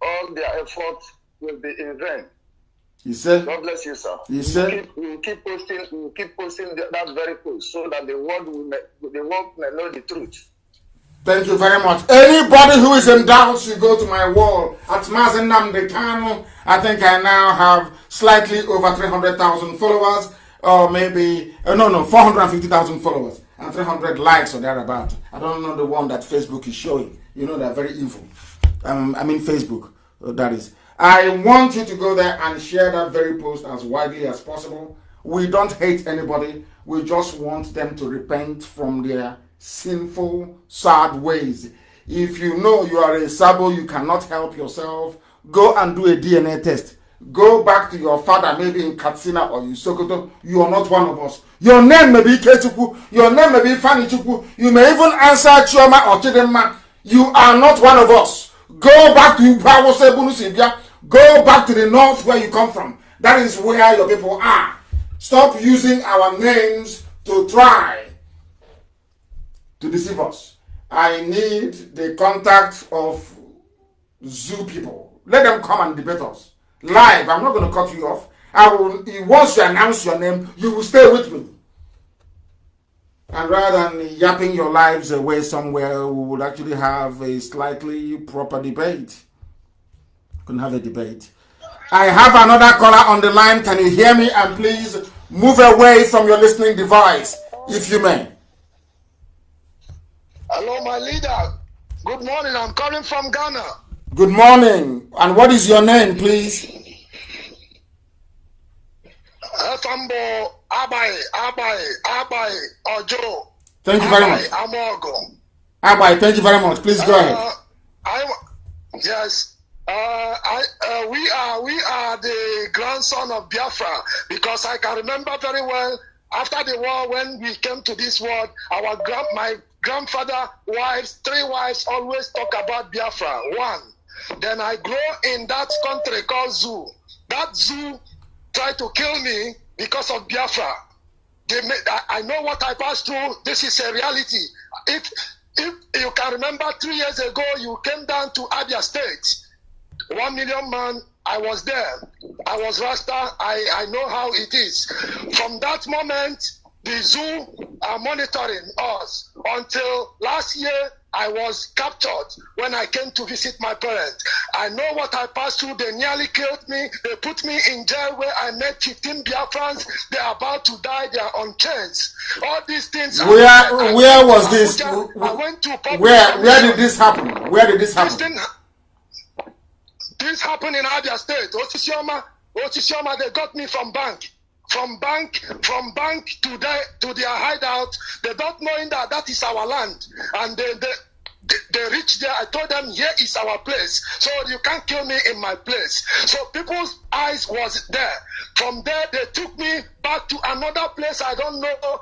S3: all
S1: their efforts will be in vain. He said, God bless you, sir. He said, we keep, we will keep
S3: posting, we will keep
S1: posting that very post so that the world will, the world may know the truth. Thank you very much. Anybody who is in doubt should go to my wall at Mazinam Decano. I think I now have slightly over 300,000 followers, or maybe, uh, no, no, 450,000 followers and 300 likes or thereabout. I don't know the one that Facebook is showing. You know, they're very evil. Um, I mean, Facebook, uh, that is. I want you to go there and share that very post as widely as possible. We don't hate anybody. We just want them to repent from their sinful, sad ways. If you know you are a sabo, you cannot help yourself, go and do a DNA test. Go back to your father, maybe in Katsina or in Sokoto. You are not one of us. Your name may be Ketuku. Your name may be Fanny You may even answer Chioma or Chidema. You are not one of us. Go back to Go back to the north where you come from. That is where your people are. Stop using our names to try to deceive us. I need the contact of zoo people. Let them come and debate us. Live, I'm not going to cut you off. I will, once you announce your name, you will stay with me. And rather than yapping your lives away somewhere, we would actually have a slightly proper debate. Couldn't have a debate. I have another caller on the line. Can you hear me? And please move away from your listening device, if you may. Hello, my leader.
S4: Good morning. I'm calling from Ghana.
S1: Good morning. And what is your name, please?
S4: Etambo Abai Abai Abai
S1: Ojo. Thank you very much. Amogo. Abai, thank you very much. Please
S8: go ahead. Uh, I, yes. Uh, I, uh, we are we
S4: are the grandson of Biafra because I can remember very well after the war when we came to this world, our grand, my grandfather, wives, three wives always talk about Biafra. One. Then I grow in that country called Zoo. That Zoo tried to kill me because of Biafra. They made, I, I know what I passed through. This is a reality. If if you can remember three years ago, you came down to Abia State. One million man, I was there. I was Rasta. I, I know how it is. From that moment, the zoo are monitoring us until last year I was captured when I came to visit my parents. I know what I passed through. They nearly killed me. They put me in jail where I met 15 Biafrans.
S8: They're about to die. They on chains. All these things. Where I, where was this? I went to where
S4: where did
S1: this happen? Where did this happen? This, thing, this happened in Abia State. Otisioma,
S4: Otisioma, they got me from bank. from bank from bank to their to their hideout. They don't knowing that that is our land, and they, they they reached there. I told them, here is our place. So you can't kill me in my place. So people's eyes was there. From there, they took me back to another place. I don't know.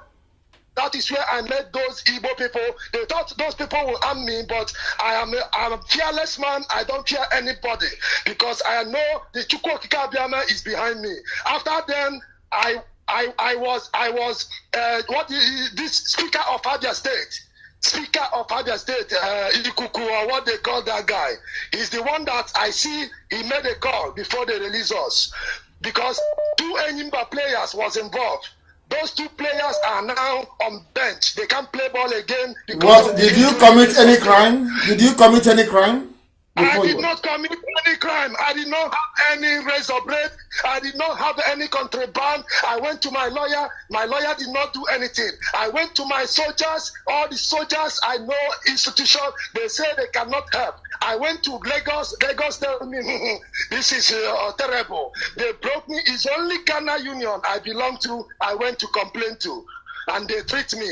S4: That is where I met those Igbo people. They thought those people will harm me, but I am a, I'm a fearless man. I don't fear anybody because I know the Chukwokika is behind me. After then, I I I was I was uh, what this speaker of Abia State. Speaker of Abia State, uh, Ikuku, or what they call that guy, is the one that I see he made a call before they release us because two Enyimba players was involved.
S1: Those two players are now on bench. They can't play ball again. What, did you commit any crime? Did you commit any crime? I did not commit any crime. I did not have any razor blade.
S4: I did not have any contraband. I went to my lawyer. My lawyer did not do anything. I went to my soldiers. All the soldiers I know, institution, they say they cannot help. I went to Lagos. Lagos tell me, *laughs* this is uh, terrible. They broke me. It's only Ghana Union I belong to. I went to complain to. And they treat me.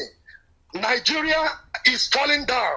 S4: Nigeria is falling down.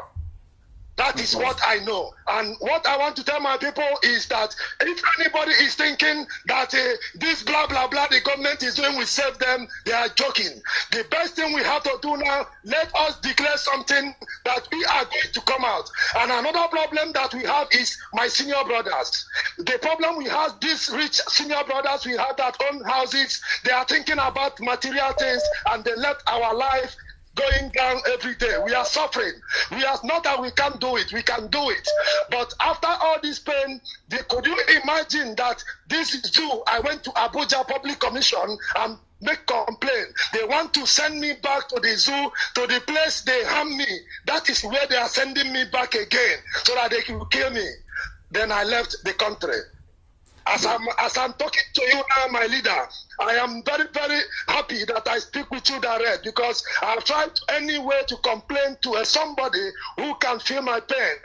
S4: That is what I know. And what I want to tell my people is that if anybody is thinking that uh, this blah, blah, blah the government is doing will save them, they are joking. The best thing we have to do now, let us declare something that we are going to come out. And another problem that we have is my senior brothers. The problem we have, these rich senior brothers, we have that own houses. They are thinking about material things and they let our life going down every day. We are suffering. We are not that we can't do it. We can do it. But after all this pain, they, could you imagine that this is due? I went to Abuja Public Commission and make complaint. They want to send me back to the zoo, to the place they harm me. That is where they are sending me back again, so that they can kill me. Then I left the country. As I'm, as I'm talking to you now, my leader, I am very, very happy that I speak with you direct because I've tried any way to complain to somebody who can feel my pain.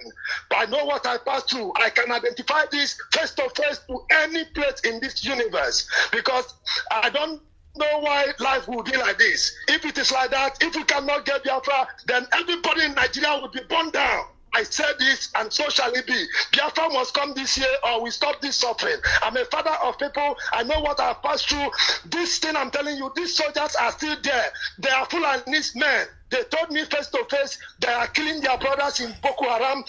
S4: But I know what I pass through. I can identify this face to face to any place in this universe because I don't know why life will be like this. If it is like that, if we cannot get Biafra, then everybody in Nigeria will be burned down. I said this, and so shall it be. Biafra must come this year, or we stop this suffering. I'm a father of people. I know what I've passed through. This thing I'm telling you, these soldiers are still there. They are full of these men. They told me face to face they are killing their brothers in Boko Haram.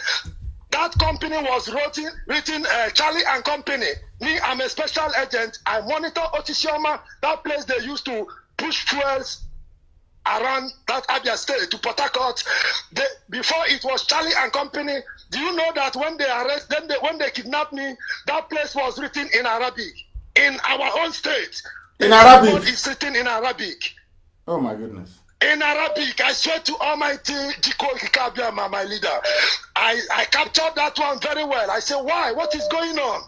S4: That company was written, written uh, Charlie and Company. Me, I'm a special agent. I monitor Otisioma, that place they used to push fuels around that Abia State to Port Harcourt. before it was Charlie and Company. Do you know that when they arrest, then they, when they kidnapped me, that place was written in Arabic in our own state.
S1: In Arabic,
S4: it's written in Arabic.
S1: Oh my goodness.
S4: In Arabic, I swear to Almighty Jiko Kikabiama, my leader. I, I captured that one very well. I said, why? What is going on?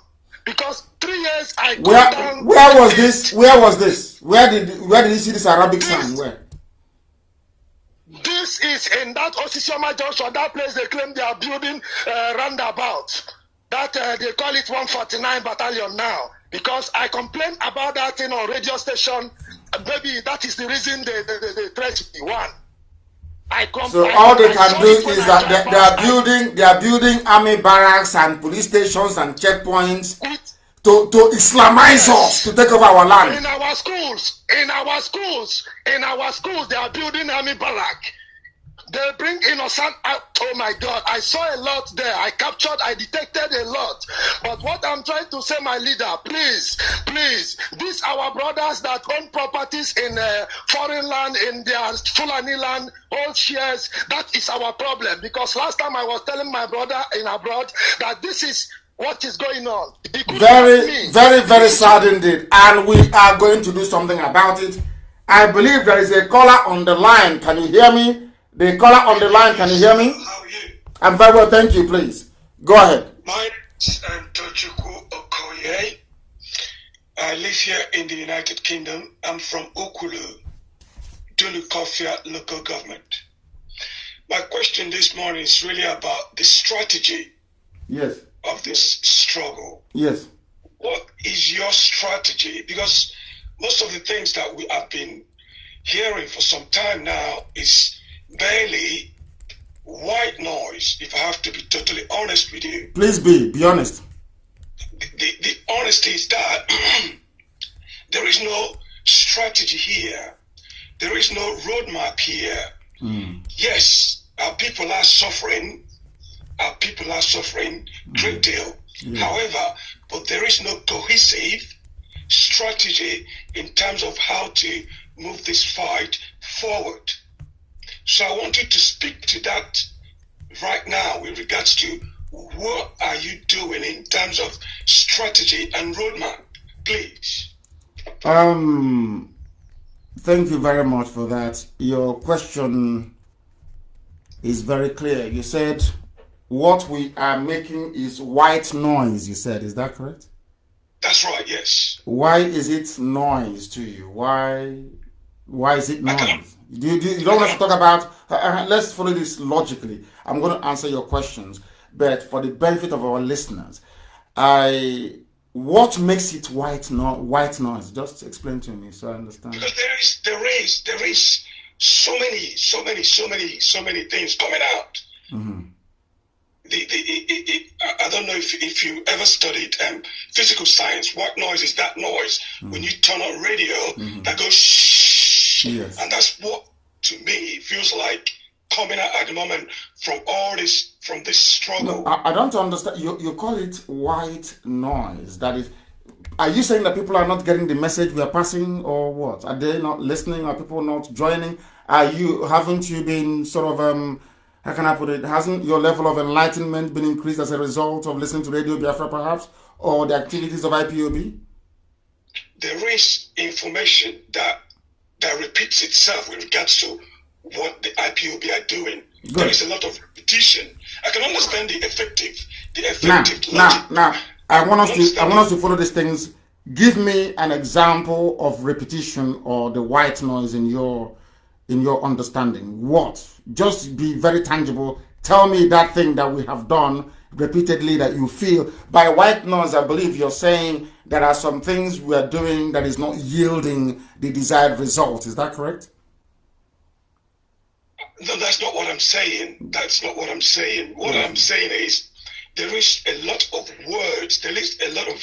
S4: Because three years I where, where was
S1: this? Where was this? Where did where did you see this Arabic this, sign? Where?
S4: This is in that Osisioma Junction, that place they claim they are building uh, roundabout. That uh, they call it 149 Battalion now. Because I complained about that thing on radio station. Maybe that is the reason they, they, they, they threatened me. One. I compl- so all they can do is that they, they are
S1: building they are building army barracks and police stations and checkpoints. It, to, to Islamize yes. us, to take over our land. In our schools, in our schools, in our schools, they are building
S4: army barrack. They bring innocent out. Oh my God, I saw a lot there. I captured, I detected a lot. But what I'm trying to say, my leader, please, please, these our brothers that own properties in uh, foreign land, in their Fulani land, all shares. That is our problem. Because last
S8: time I was telling my brother in abroad that this is what is going on? Very,
S1: very, very sad indeed. And we are going to do something about it. I believe there is a caller on the line. Can you hear me? The caller on the line, can you hear me? How are you? I'm very well, thank you, please. Go ahead. My name Tochukwu
S12: Okoye. I live here in the United Kingdom. I'm from Okulu, Dunukofia local government. My question this morning is really about the strategy. Yes of this struggle. Yes. What is your strategy? Because most of the things that we have been hearing for some time now is barely
S1: white noise, if I have to be totally honest with you. Please be, be honest. The, the, the honesty is that *clears throat* there is no strategy here, there is no roadmap here. Mm. Yes, our people
S12: are suffering our people are suffering mm great deal. Yeah. Mm. However, but there is no cohesive strategy in terms of how to move this fight forward. So I wanted to speak to that right now in regards to
S1: what are you doing in terms of strategy and roadmap, please. Um, thank you very much for that. Your question is very clear. You said what we are making is white noise, you said. Is that correct? That's right, yes. Why is it noise to you? Why why is it noise? Do you, do you, don't have to talk about, uh, uh let's follow this logically. I'm going to answer your questions, but for the benefit of our listeners, I what makes it white no, white noise? Just explain to me so I understand. Because
S12: there is there is there is so many so many so many so many things coming out. Mm-hmm the, the, it, it, I don't know if, if you ever studied um, physical science. What
S8: noise is that noise? Mm. When you turn on radio, mm-hmm. that goes shh. Yes. And that's what, to me, feels like coming out at the moment from all this, from this struggle.
S1: No, I, I, don't understand. You, you call it white noise. That is, are you saying that people are not getting the message we are passing or what? Are they not listening? Are people not joining? Are you, haven't you been sort of, um, how can I put it? Hasn't your level of enlightenment been increased as a result of listening to Radio Biafra, perhaps, or the activities of IPOB? There is information that that repeats itself
S12: with regards to what the IPOB are doing. Good. There is a lot of repetition. I can understand the effective, the effective.
S1: Now, logic. now, now, I want us to, I want us to follow these things. Give me an example of repetition or the white noise in your, in your understanding. What? Just be very tangible. Tell me that thing that we have done repeatedly that you feel. By white noise, I believe you're saying there are some things we are doing that is not yielding the desired result. Is that correct?
S12: No, that's not what I'm saying. That's not what I'm saying. What hmm. I'm saying is there is a lot of words. There is a lot of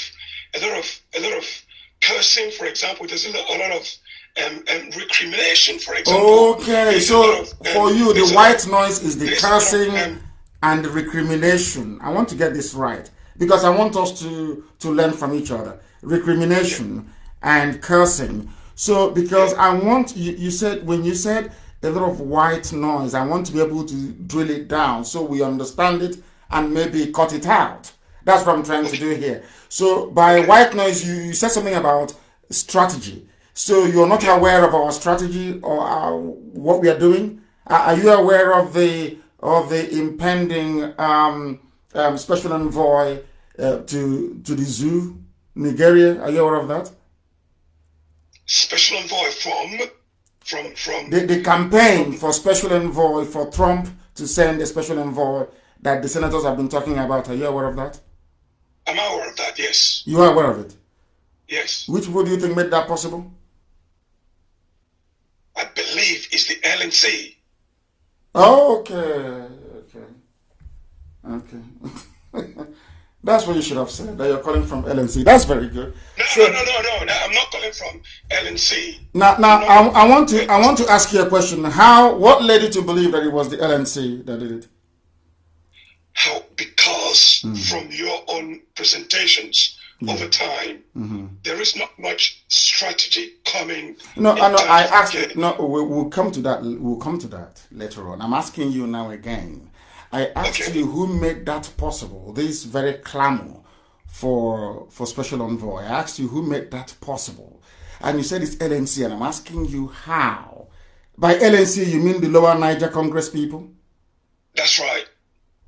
S12: a lot of a lot of cursing, for example. There's a lot, a lot of um, um, recrimination, for
S1: example. Okay, so of, um, for you, the white noise is the cursing um, and the recrimination. I want to get this right because I want us to, to learn from each other. Recrimination yeah. and cursing. So, because yeah. I want, you, you said, when you said a lot of white noise, I want to be able to drill it down so we understand it and maybe cut it out. That's what I'm trying to do here. So, by white noise, you, you said something about strategy. So you're not aware of our strategy or our, what we are doing? Are you aware of the of the impending um, um, special envoy uh, to to the zoo, Nigeria? Are you aware of that?
S12: Special envoy from from from
S1: the, the campaign for special envoy for Trump to send a special envoy that the senators have been talking about. Are you aware of that? I'm aware of that. Yes. You are aware of it. Yes. Which people do you think made that possible? I believe is the LNC. okay, okay, okay. *laughs* That's what you should have said. That you're calling from LNC. That's very good.
S12: No, so, no, no, no, no, I'm not calling from LNC.
S1: Now, now, I, I want to, I want to ask you a question. How, what led you to believe that it was the LNC that did it?
S8: How? Because mm. from your own presentations, Mm-hmm. over time.
S12: Mm-hmm. There is not much strategy coming.
S1: No, no. I asked. Again. No, we, will come to that. We'll come to that later on. I'm asking you now again. I asked okay. you who made that possible. This very clamor for for special envoy. I asked you who made that possible, and you said it's LNC. And I'm asking you how. By LNC, you mean the Lower Niger Congress people? That's right.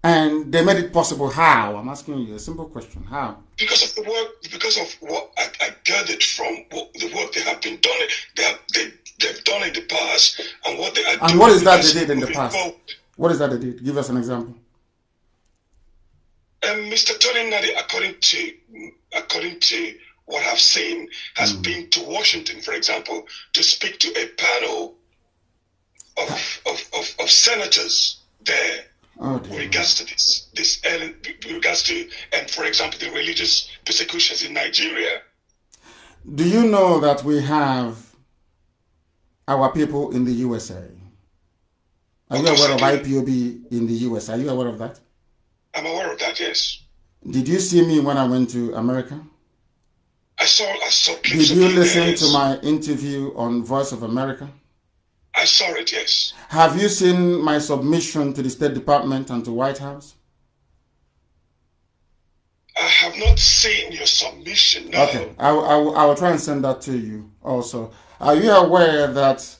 S1: And they made it possible. How? I'm asking you a simple question. How? Because of the work, because of what I, I gathered from
S12: what, the work they have been done, they have, they, they've done in the past, and what they are And what is that they did
S1: in the past? What is that they did? Give us an example. Um, Mr. Tony Nadi, according to according to what I've seen, has mm. been to Washington, for example, to speak to a panel of, of, of, of senators there oh, regards to this, this regards to, and for example, the religious persecutions in Nigeria. Do you know that we have our people in the USA? Are you aware of IPOB in the US? Are you aware of that?
S12: I'm aware of that,
S1: yes. Did you see me when I went to America? I saw I saw Did you listen to my interview on Voice of America?
S12: I saw it, yes.
S1: Have you seen my submission to the State Department and to White House?
S12: I have not seen your submission. No. Okay,
S1: I, I, I will try and send that to you also. Are you aware that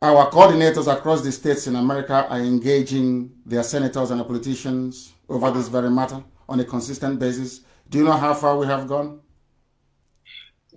S1: our coordinators across the states in America are engaging their senators and their politicians over this very matter on a consistent basis? Do you know how far we have gone?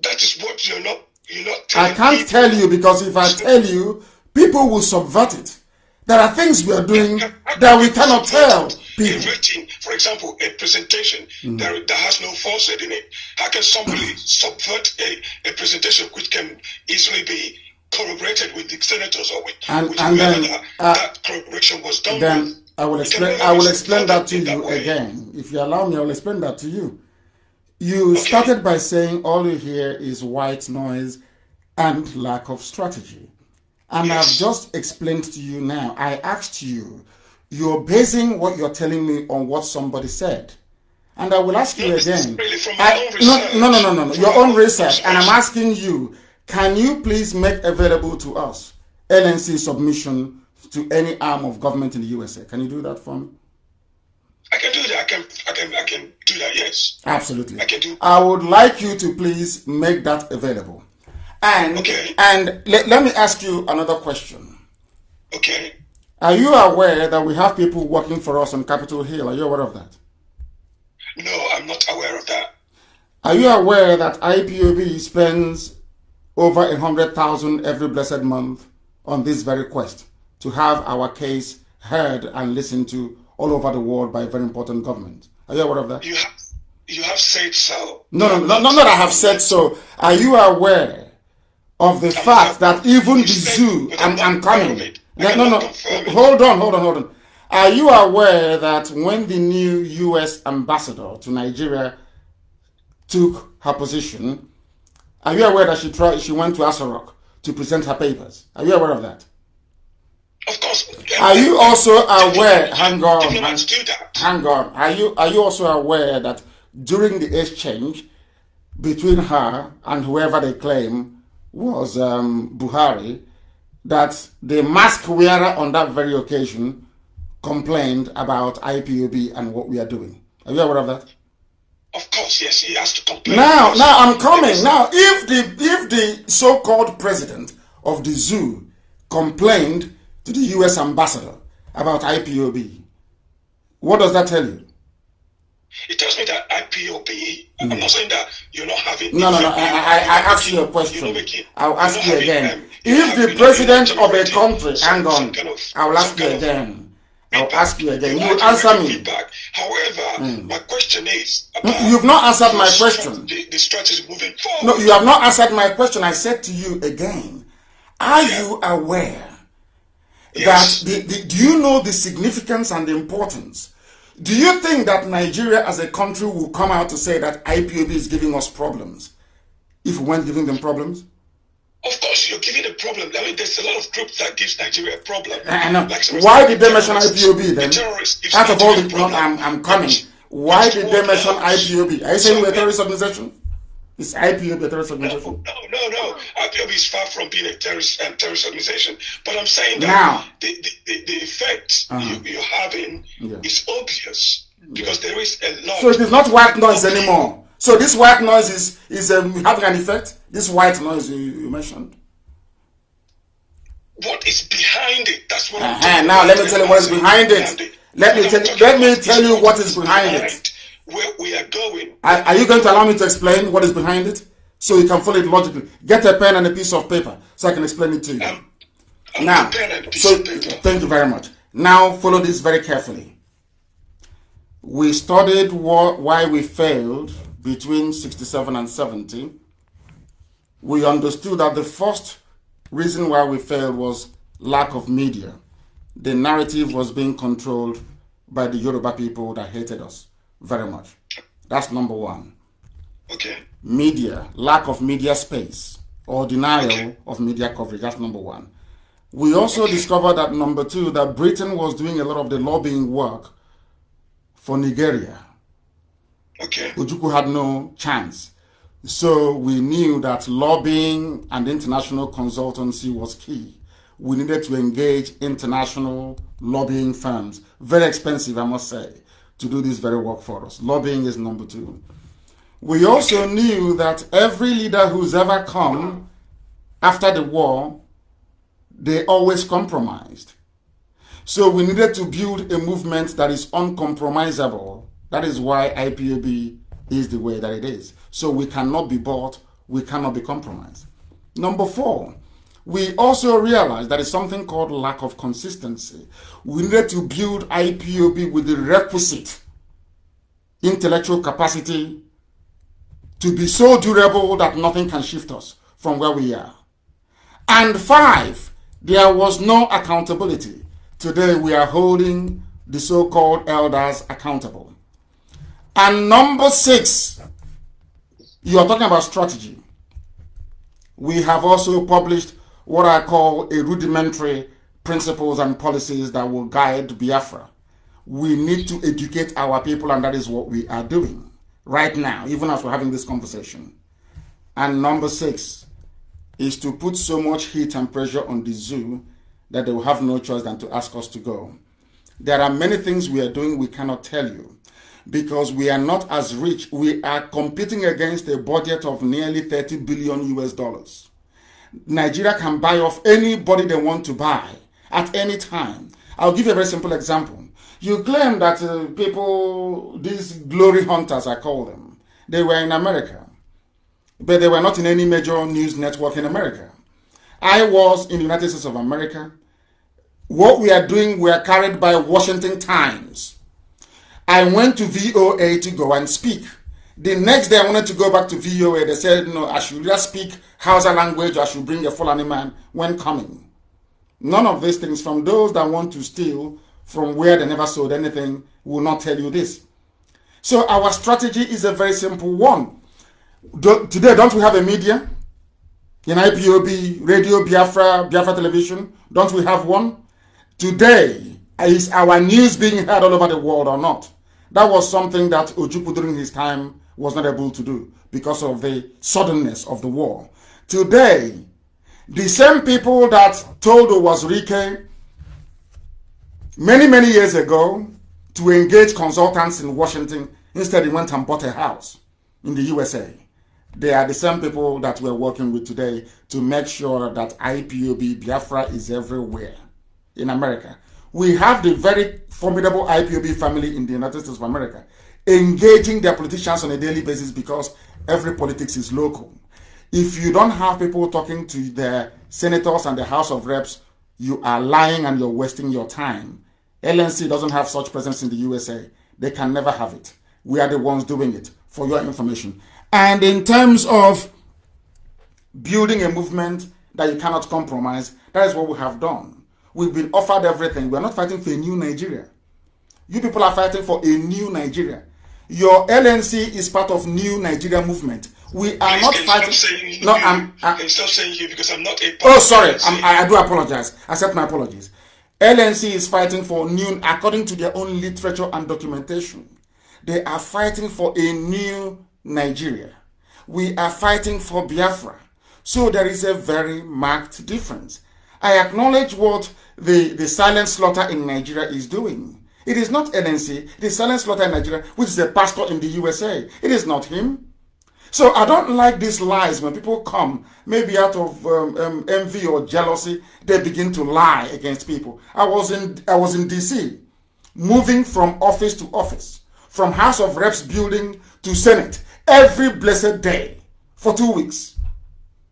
S12: That is what you're not.
S1: You're not I can't tell you because if I tell you, people will subvert it. There are things we are doing that we cannot tell people. Inventing, for example, a presentation mm. that, that has no falsehood in it. How can somebody *clears throat*
S12: subvert a, a presentation which can easily be corroborated with the senators or with,
S1: and, with and then, that, uh, that
S12: corroboration was done then
S1: with. I will explain. I will explain that to you that again. If you allow me, I will explain that to you. You okay. started by saying all you hear is white noise and lack of strategy. And yes. I've just explained to you now, I asked you, you're basing what you're telling me on what somebody said. And I will ask you again.
S8: I,
S1: no, no, no, no, no. Your own research. And I'm asking you, can you please make available to us LNC submission to any arm of government in the USA? Can you do that for me? I can do that. I can, I can, I can do that, yes. Absolutely. I can do I would like you to please make that available. And okay. and let, let me ask you another question. Okay. Are you aware that we have people working for us on Capitol Hill? Are you aware of that? No, I'm not aware of that. Are you aware that IPOB spends over a hundred thousand every blessed month on this very quest to have our case heard and listened to all over the world by a very important government? Are you aware of that? You have,
S12: you have said so. No, no, no, no. not I
S1: have said so. Are you aware of the fact that even the zoo, I'm, I'm coming. No, no, no. Hold on, hold on, hold on. Are you aware that when the new U.S. ambassador to Nigeria took her position, are you aware that she tried, she went to Asarok to present her papers? Are you aware of that? Of course. Are you also aware? Hang on. Hang on. Are you are you also aware that during the exchange between her and whoever they claim was um, Buhari, that the mask wearer on that very occasion complained about IPOB and what we are doing. Are you aware of that?
S8: Of course, yes, he has to complain. Now, now I'm coming. Now,
S1: if the if the so-called president of the zoo complained to the U.S. ambassador about IPOB, what does that tell you? It tells me that IPOPE. Mm. I'm not saying that you're not having. No, no, no. I, I, I you a question. I'll ask you again. Um, if the president of a country, some, hang on, kind of, I'll ask you again. I'll ask you again. You answer me. Feedback.
S12: However, mm. my question
S1: is. You've not answered my question. The, the strategy moving forward. No, you have not answered my question. I said to you again. Are yeah. you aware yes. that the, the, do you know the significance and the importance do you think that Nigeria as a country will come out to say that IPOB is giving us problems if we weren't giving them problems? Of course, you're giving a problem. I mean, there's a lot of groups that gives Nigeria a problem. I know. Like Why did they mention IPOB then? The Out of all the problems, I'm, I'm coming. Why did they mention IPOB? Are you saying we're a terrorist organization? Is
S6: IPOB a terrorist organization? No, no,
S12: no. IPOB is far from being a terrorist um, terrorist organization. But I'm saying that now. The, the, the effect uh -huh. you, are having yeah. is obvious because yeah. there is a lot.
S1: So it is not white noise anymore. So this white noise is is um, having an effect. This white noise you, you mentioned.
S12: What is behind it? That's what.
S1: Uh -huh. Now let me tell you what is behind it. Let me tell, let me tell you what is behind it
S12: where we are going.
S1: Are, are you going to allow me to explain what is behind it? So you can follow it logically. Get a pen and a piece of paper so I can explain it to you. Um, now, so, thank you very much. Now, follow this very carefully. We studied what, why we failed between 67 and 70. We understood that the first reason why we failed was lack of media. The narrative was being controlled by the Yoruba people that hated us very much. That's number one. Okay. Media, lack of media space or denial okay. of media coverage. That's number one. We also okay. discovered that number two, that Britain was doing a lot of the lobbying work for Nigeria. Okay. Ujuku had no chance. So we knew that lobbying and international consultancy was key. We needed to engage international lobbying firms. Very expensive, I must say to do this very work for us. Lobbying is number two. We also knew that every leader who's ever come after the war, they always compromised. So we needed to build a movement that is uncompromisable. That is why IPAB is the way that it is. So we cannot be bought, we cannot be compromised. Number four, we also that it's something called lack of consistency. We need to build IPOB with the requisite intellectual capacity to be so durable that nothing can shift us from where we are. And five, there was no accountability. Today we are holding the so called elders accountable. And number six, you are talking about strategy. We have also published what I call a rudimentary principles and policies that will guide Biafra. We need to educate our people, and that is what we are doing right now, even as we're having this conversation. And number six is to put so much heat and pressure on the zoo that they will have no choice than to ask us to go. There are many things we are doing we cannot tell you because we are not as rich. We are competing against a budget of nearly 30 billion US dollars. Nigeria can buy off anybody they want to buy at any time. I'll give you a very simple example. You claim that uh, people, these glory hunters, I call them, they were in America, but they were not in any major news network in America. I was in the United States of America. What we are doing, we are carried by Washington Times. I went to VOA to go and speak. The next day, I wanted to go back to VOA. They said, no, I should just speak Hausa language I should bring a Fulani man when coming. None of these things from those that want to steal from where they never sold anything will not tell you this. So our strategy is a very simple one. Do, today, don't we have a media? In IPOB, Radio Biafra, Biafra Television, don't we have one? Today, is our news being heard all over the world or not? That was something that Ojukwu during his time was not able to do because of the suddenness of the war. Today, the same people that told Wazurike many, many years ago to engage consultants in Washington, instead he went and bought a house in the USA. They are the same people that we're working with today to make sure that IPOB Biafra is everywhere in America. We have the very formidable IPOB family in the United States of America engaging their politicians on a daily basis because every politics is local. If you don't have people talking to the senators and the House of Reps, you are lying and you're wasting your time. LNC doesn't have such presence in the USA. They can never have it. We are the ones doing it, for your information. And in terms of building a movement that you cannot compromise, that is what we have done. We've been offered everything. We are not fighting for a new Nigeria. You people are fighting for a new Nigeria your LNC is part of new Nigeria movement. We are not
S12: fighting. No, I'm. I, am stop saying you because I'm not a.
S1: oh, sorry. I, I do apologize. Accept my apologies. LNC is fighting for new, according to their own literature and documentation. They are fighting for a new Nigeria. We are fighting for Biafra. So there is a very marked difference. I acknowledge what the, the silent slaughter in Nigeria is doing. It is not NNC. It is Silent Slaughter in Nigeria, which is a pastor in the USA. It is not him. So I don't like these lies when people come, maybe out of um, um, envy or jealousy, they begin to lie against people. I was in I was in DC, moving from office to office, from House of Reps building to Senate every blessed day for two weeks.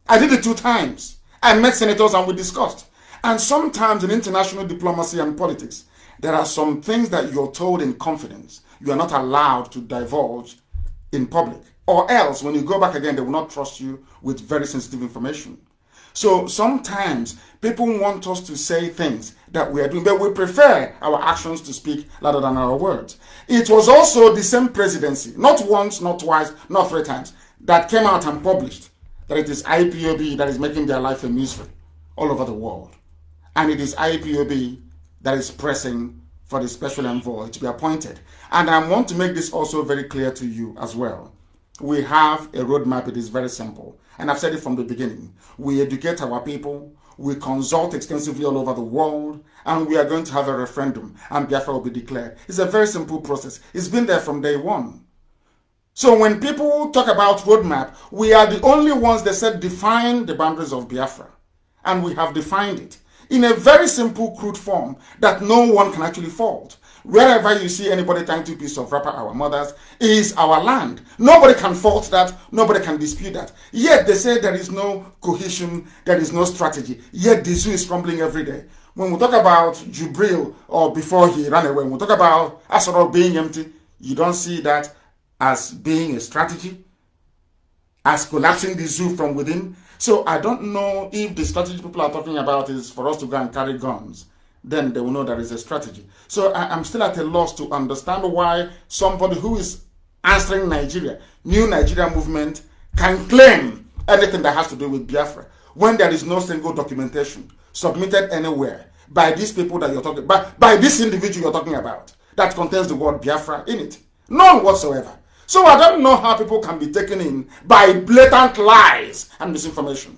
S1: I did it two times. I met senators and we discussed. And sometimes in international diplomacy and politics, there are some things that you're told in confidence you are not allowed to divulge in public. Or else, when you go back again, they will not trust you with very sensitive information. So sometimes people want us to say things that we are doing, but we prefer our actions to speak louder than our words. It was also the same presidency, not once, not twice, not three times, that came out and published that it is IPOB that is making their life a misery all over the world. And it is IPOB that is pressing for the special envoy to be appointed. And I want to make this also very clear to you as well. We have a roadmap, it is very simple. And I've said it from the beginning. We educate our people, we consult extensively all over the world, and we are going to have a referendum, and Biafra will be declared. It's a very simple process. It's been there from day one. So when people talk about roadmap, we are the only ones that said define the boundaries of Biafra. And we have defined it in a very simple, crude form that no one can actually fault. Wherever you see anybody trying to piece of wrapper, our mothers, is our land. Nobody can fault that. Nobody can dispute that. Yet they say there is no cohesion, there is no strategy. Yet the zoo is crumbling every day. When we talk about Jubril or before he ran away, when we talk about Asoro being empty, you don't see that as being a strategy, as collapsing the zoo from within, so I don't know if the strategy people are talking about is for us to go and carry guns. Then they will know there is a strategy. So I, am still at a loss to understand why somebody who is answering Nigeria, new Nigeria movement, can claim anything that has to do with Biafra when there is no single documentation submitted anywhere by these people that you're talking by, by this individual you're talking about that contains the word Biafra in it. None whatsoever. So I don't know how people can be taken in by blatant lies and misinformation.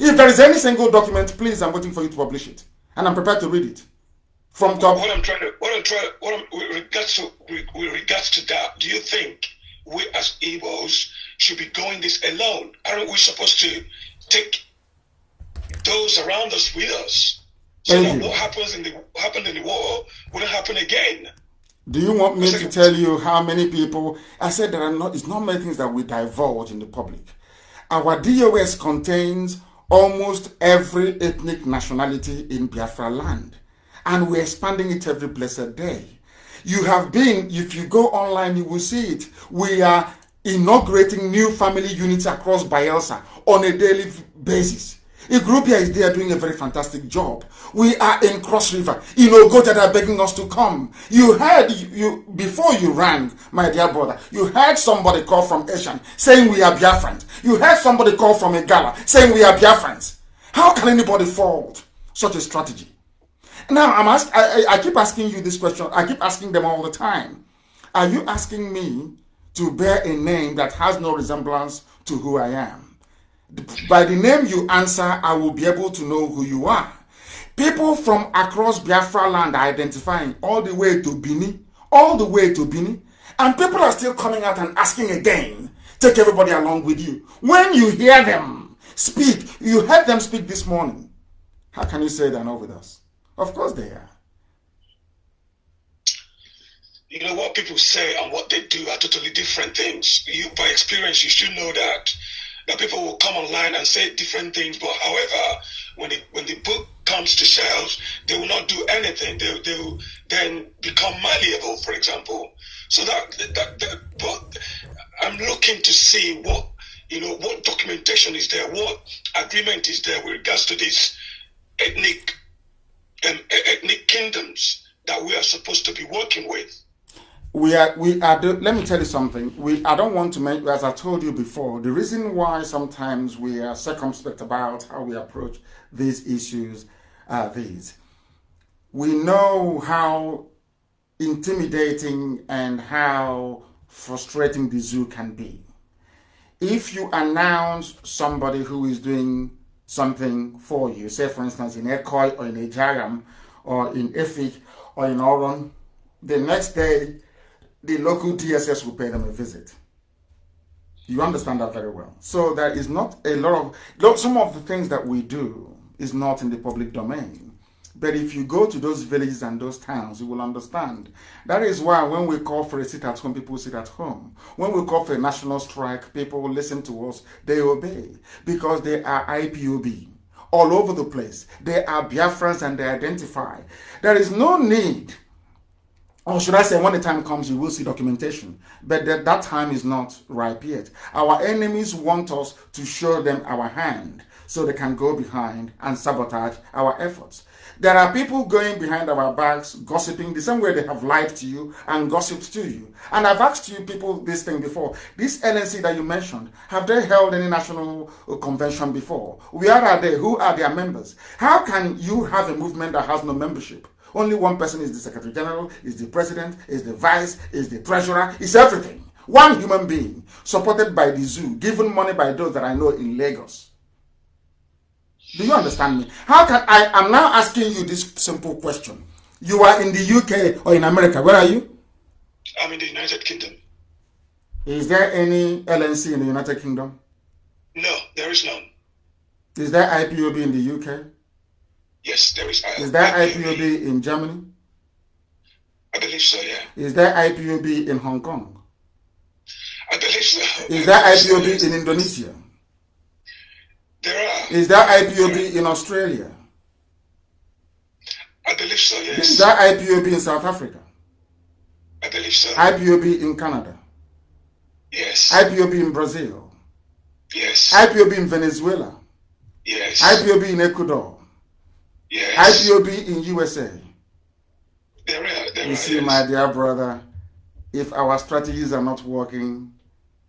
S1: If there is any single document, please, I'm waiting for you to publish it. And I'm prepared to read it. From top. What I'm trying to, what I'm trying, what I'm, with regards to, with
S12: regards to that, do you think we as Igbos should be going this alone? Aren't we supposed to take those around us with us? So Thank that you. what happens in the, happened in the war wouldn't happen again.
S1: Do you want me to tell you how many people? I said there are not. It's not many things that we divulge in the public. Our DOS contains almost every ethnic nationality in Biafra land, and we're expanding it every blessed day. You have been. If you go online, you will see it. We are inaugurating new family units across Bielsa on a daily basis. Igrupia is there doing a very fantastic job. We are in Cross River. You know, God that are begging us to come. You heard, you, you before you rang, my dear brother, you heard somebody call from Asian saying we are Biafrans. You heard somebody call from Igala saying we are Biafrans. How can anybody fault such a strategy? Now, I'm ask, I, I keep asking you this question. I keep asking them all the time. Are you asking me to bear a name that has no resemblance to who I am? by the name you answer, I will be able to know who you are. People from across Biafra land are identifying all the way to Bini, all the way to Bini, and people are still coming out and asking again. Take everybody along with you. When you hear them speak, you heard them speak this morning. How can you say they're not with us?
S12: Of course they are. You know, what people say and what they do are totally different things. You, by experience, you should know that but people will come online and say different things. But however, when the when the book comes to shelves, they will not do anything. They they will then become malleable. For example, so that that, that but I'm looking to see what you know what documentation is there, what agreement is there with regards to these ethnic
S15: um, ethnic kingdoms that we are supposed to be working with
S1: we are we are do, let me tell you something we i don't want to make as i told you before the reason why sometimes we are circumspect about how we approach these issues are these we know how intimidating and how frustrating the zoo can be if you announce somebody who is doing something for you say for instance in Ekoi or in Ejaram or in Efik or in Oron the next day the local DSS will pay them a visit. You understand that very well. So there is not a lot of some of the things that we do is not in the public domain. But if you go to those villages and those towns, you will understand. That is why when we call for a sit at home, people sit at home. When we call for a national strike, people listen to us, they obey because they are IPOB all over the place. They are Biafrans and they identify. There is no need or should I say, when the time comes, you will see documentation. But that, that time is not ripe yet. Our enemies want us to show them our hand so they can go behind and sabotage our efforts. There are people going behind our backs, gossiping the same way they have lied to you and gossiped to you. And I've asked you people this thing before. This LNC that you mentioned, have they held any national convention before? Where are they? Who are their members? How can you have a movement that has no membership? Only one person is the Secretary General, is the President, is the Vice, is the Treasurer, is everything. One human being supported by the zoo, given money by those that I know in Lagos. Do you understand me? How can I? I'm now asking you this simple question. You are in the UK or in America. Where are you? I'm in the United Kingdom. Is there any LNC in the United Kingdom? No, there is none. Is there IPOB in the UK? Yes, there is. Uh, is that IPOB, IPOB in Germany? I believe so, yeah. Is there IPOB in Hong Kong?
S8: I believe so.
S1: Is there IPOB in Indonesia? There are. Is there IPOB in Australia? I believe so, yes. Is there IPOB in South Africa? I believe so. IPOB in Canada? Yes. IPOB in Brazil? Yes. IPOB in Venezuela? Yes. IPOB in Ecuador? Yes. IPOB in USA. There are, there you are, see, yes. my dear brother, if our strategies are not working,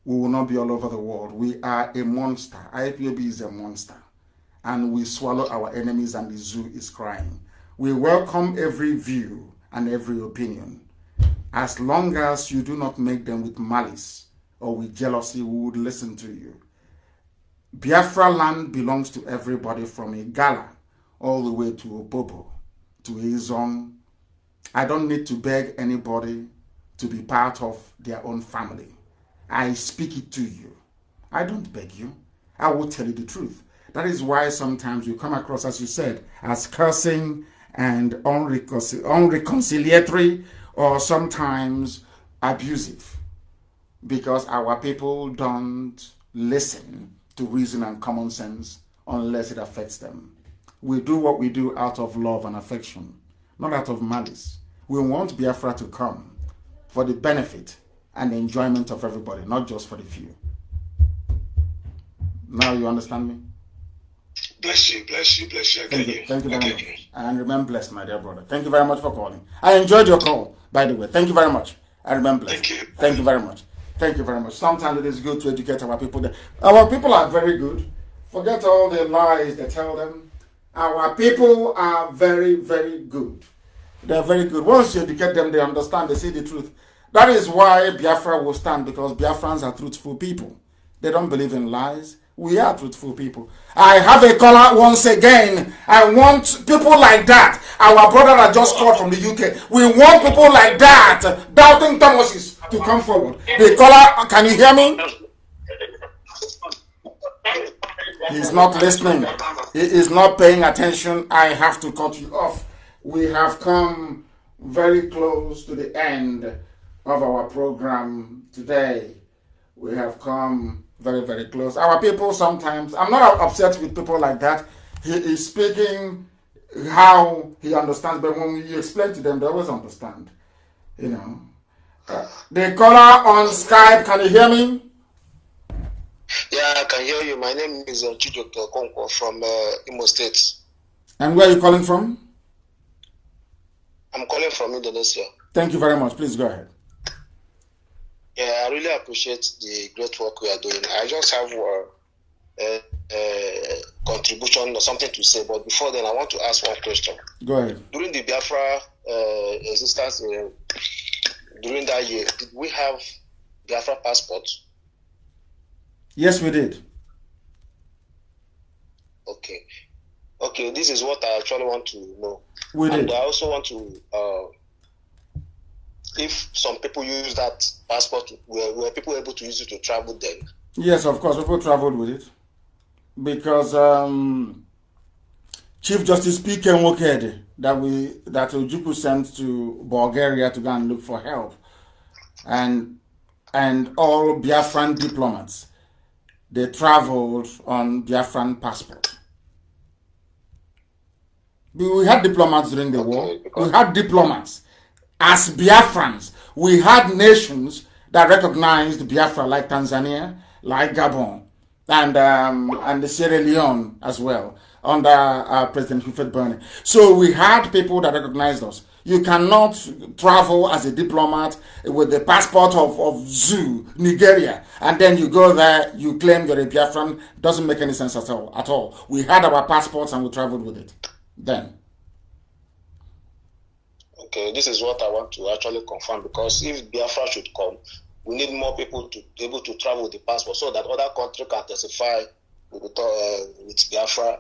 S1: we will not be all over the world. We are a monster. IPOB is a monster. And we swallow our enemies, and the zoo is crying. We welcome every view and every opinion. As long as you do not make them with malice or with jealousy, we would listen to you. Biafra land belongs to everybody from Igala all the way to Opobo, to Izon. I don't need to beg anybody to be part of their own family. I speak it to you. I don't beg you. I will tell you the truth. That is why sometimes you come across, as you said, as cursing and unreconciliatory or sometimes abusive because our people don't listen to reason and common sense unless it affects them we do what we do out of love and affection, not out of malice. We want Biafra to come for the benefit and the enjoyment of everybody, not just for the few. Now you understand me? Bless you, bless you, bless you. thank you, you. thank you very much. You. And remain blessed, my dear brother. Thank you very much for calling. I enjoyed your call, by the way. Thank you very much. I remember, blessed. Thank you. Thank you very much. Thank you very much. Sometimes it is good to educate our people. Our people are very good. Forget all the lies they tell them Our people are very, very good. They're very good. Once you educate them, they understand, they see the truth. That is why Biafra will stand because Biafrans are truthful people. They don't believe in lies. We are truthful people. I have a caller once again. I want people like that. Our brother that just called from the UK. We want people like that, doubting Thomases, to come forward. The caller, can you hear me? He's not listening. He is not paying attention. I have to cut you off. We have come very close to the end of our program today. We have come very, very close. Our people sometimes, I'm not upset with people like that. He is speaking how he understands, but when you explain to them, they always understand. You know. Uh, the caller on Skype, can you hear me? Yeah, I can hear you. My
S3: name is uh, Konko from uh, Imo State.
S1: And where are you calling from? I'm calling from Indonesia. Thank you very much. Please go ahead.
S14: Yeah, I really appreciate the great work we are doing. I just have uh,
S3: a, contribution or something to say, but before then, I want to ask one question. Go ahead. During the Biafra uh, existence, uh, during that year, did we have Biafra passports?
S1: Yes, we did.
S3: Okay. Okay, this is what I actually want to know. We did. And I also want to, uh, if some people use that passport, were, were people able to use it to travel then?
S1: Yes, of course, people traveled with it. Because um, Chief Justice P. Ken Woked, that, we, that Ojuku sent to Bulgaria to go and look for help, and, and all Biafran diplomats they traveled on Biafran passport. We had diplomats during the okay, war. We had diplomats as Biafrans. We had nations that recognized Biafra, like Tanzania, like Gabon, and um, and Sierra Leone as well under uh, President Humphrey Burney. So we had people that recognized us. You cannot travel as a diplomat with the passport of, of Zoo, Nigeria, and then you go there, you claim you're a Biafran. Doesn't make any sense at all. At all. We had our passports and we traveled with it then.
S3: Okay, this is what I want to actually confirm because if Biafra should come, we need more people to be able to travel with the passport so that other country can testify with, uh, with Biafra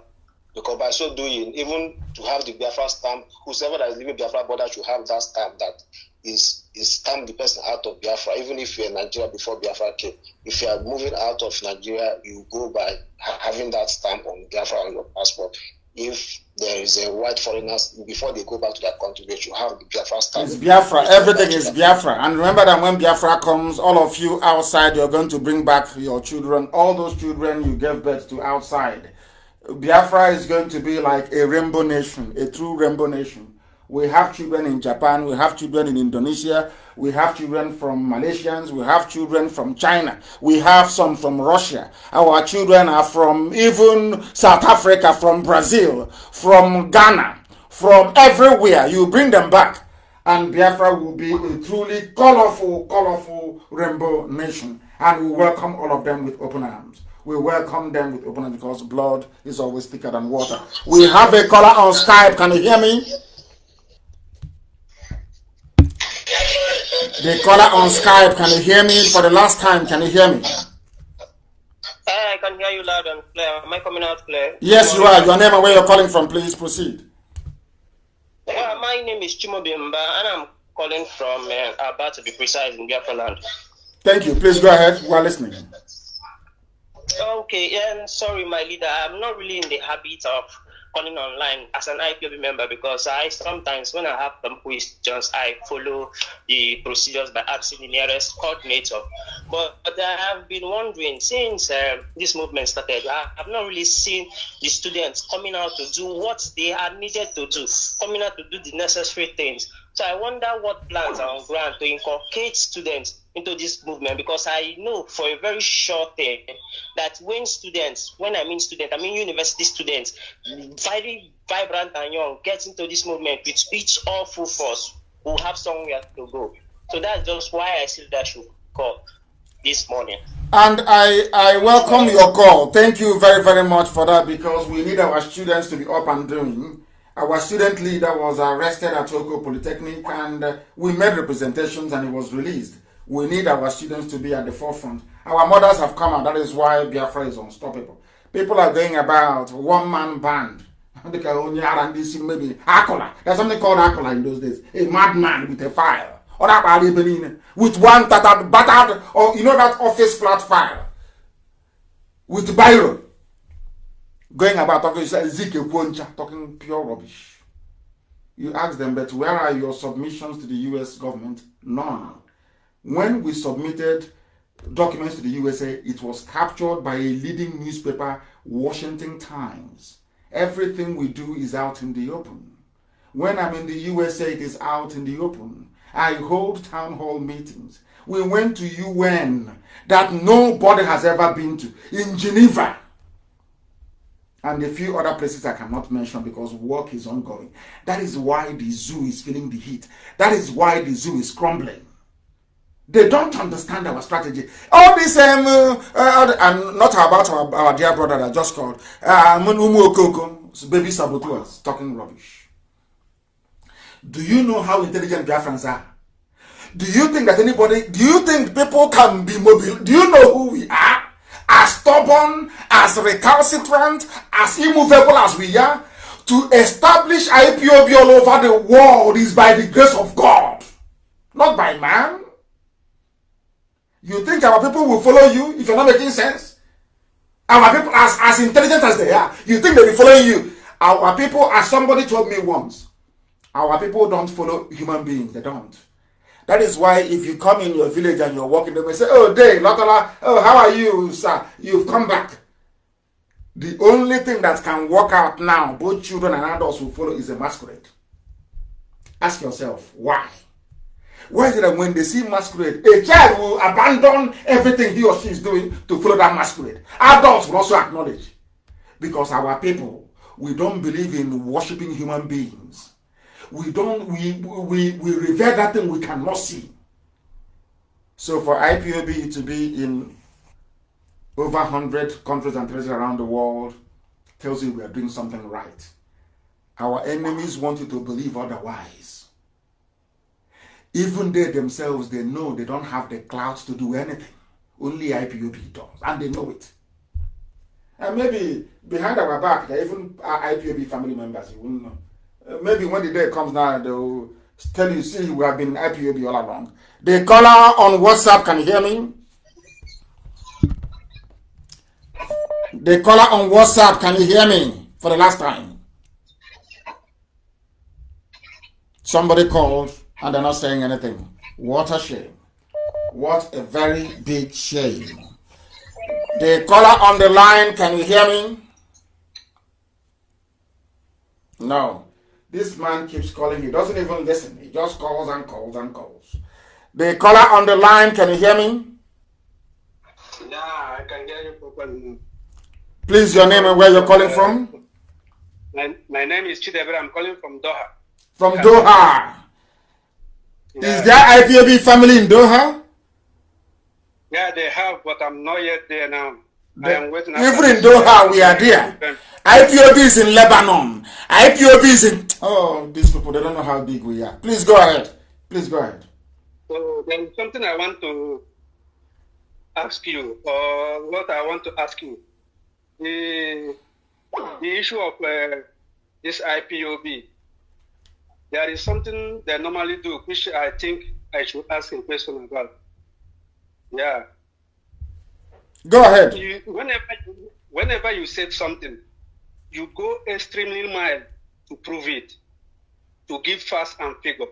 S3: because by so doing, even to have the Biafra stamp, whoever that is living Biafra border should have that stamp that is is stamp the person out of Biafra. Even if you're in Nigeria before Biafra came, if you are moving out of Nigeria, you go by having that stamp on Biafra on your passport. If there is a white foreigner before they go back to their country, they should have the Biafra stamp. It's Biafra. Everything is
S1: Biafra. And remember that when Biafra comes, all of you outside, you're going to bring back your children, all those children you gave birth to outside. Biafra is going to be like a rainbow nation, a true rainbow nation. We have children in Japan, we have children in Indonesia, we have children from Malaysians, we have children from China, we have some from Russia. Our children are from even South Africa, from Brazil, from Ghana, from everywhere. You bring them back, and Biafra will be a truly colorful, colorful rainbow nation. And we welcome all of them with open arms. We welcome them with open hands because blood is always thicker than water. We have a caller on Skype. Can you hear me?
S8: The caller on Skype,
S1: can you hear me? For the last time, can you hear me? I can hear you loud and clear. Am I coming out clear? Yes, you are. Your name and where you're calling from, please proceed. Well, uh, my name is Chimo Bimba,
S2: and I'm calling from uh, about to be precise, in Biafra
S1: land. Thank you. Please go ahead. We are listening. Okay, and sorry, my leader, I'm not
S9: really in the habit of calling online as an IPOB member because I sometimes, when I have some questions, I follow the procedures by asking the nearest coordinator. But, but I have been wondering since uh, this movement started, I have not really seen the students coming out to do what they are needed to do, coming out to do the necessary things. So I wonder what plans are on ground to inculcate students into this movement because I know for a very short time that when students, when I mean students, I mean university students, very vibrant and young, get into this movement with each all full force, will have somewhere to go. So that's just why I see that
S8: should call this morning.
S1: And I, I welcome your call. Thank you very, very much for that because we need our students to be up and doing. Our student leader was arrested at Tokyo Polytechnic and we made representations and he was released. We need our students to be at the forefront. Our mothers have come out. That is why Biafra is unstoppable. People are going about one man band. *laughs* maybe Akola. There's something called Akola in those days. A madman with a file. Or with one tattered, battered, or you know that office flat file. With Byron. Going about talking, Ezekiel Kwoncha, talking pure rubbish. You ask them, but where are your submissions to the US government? None. when we submitted documents to the USA, it was captured by a leading newspaper, Washington Times. Everything we do is out in the open. When I'm in the USA, it is out in the open. I hold town hall meetings. We went to UN that nobody has ever been to in Geneva and a few other places I cannot mention because work is ongoing. That is why the zoo is feeling the heat. That is why the zoo is crumbling. they don't understand our strategy. All this, um, uh, uh, uh, and not about our, our dear brother that just called, uh, Munumu Okoko, baby saboteurs, talking rubbish. Do you know how intelligent Biafrans are? Do you think that anybody, do you think people can be mobile? Do you know who we are? As stubborn, as recalcitrant, as immovable as we are, to establish IPOB all over the world is by the grace of God, not by man. You think our people will follow you if you're not making sense? Our people, as, as intelligent as they are, you think they will follow you? Our people, as somebody told me once, our people don't follow human beings. They don't. That is why if you come in your village and you're walking, they may say, Oh, day, Lotola, oh, how are you, sir? You've come back. The only thing that can work out now, both children and adults will follow, is a masquerade. Ask yourself, why? Why is it that when they see masquerade, a child will abandon everything he or she is doing to follow that masquerade? Adults will also acknowledge. Because our people, we don't believe in worshipping human beings. We don't, we, we, we revere that thing we cannot see. So for IPOB to be in over 100 countries and territories around the world tells you we are doing something right. Our enemies want you to believe otherwise. Even they themselves, they know they don't have the clout to do anything. Only IPOB does, and they know it. And maybe behind our back, they even our uh, IPOB family members, you wouldn't know. Uh, maybe when the day comes now, they'll tell you, see, we have been IPOB all along. The caller on WhatsApp can you hear me. The caller on WhatsApp can you hear me for the last time? Somebody called and they're not saying anything. What a shame. What a very big shame. The caller on the line, can you hear me? No. This man keeps calling. He doesn't even listen. He just calls and calls and calls. The caller on the line, can you hear me?
S17: Yeah, I can hear you properly.
S1: Please, your name and where you're calling uh, from?
S17: My, my name is Chidebere. I'm calling from Doha.
S1: From Doha. Is there IPOB family in Doha? Yeah, they
S17: have, but I'm not yet there now. The, I am waiting. Even in Doha, uh, we are there. IPOB
S1: is in Lebanon. IPOB is in.
S17: Oh, these
S1: people, they don't know how big we are. Please go ahead. Please go ahead.
S17: So, there is something I want to ask you, or what I want to ask you. The, the issue of uh, this IPOB there is something they normally do, which I think I should ask a question about. Yeah.
S8: Go ahead. You, whenever, whenever you said something, you
S17: go extremely mild to prove it, to give facts and figure.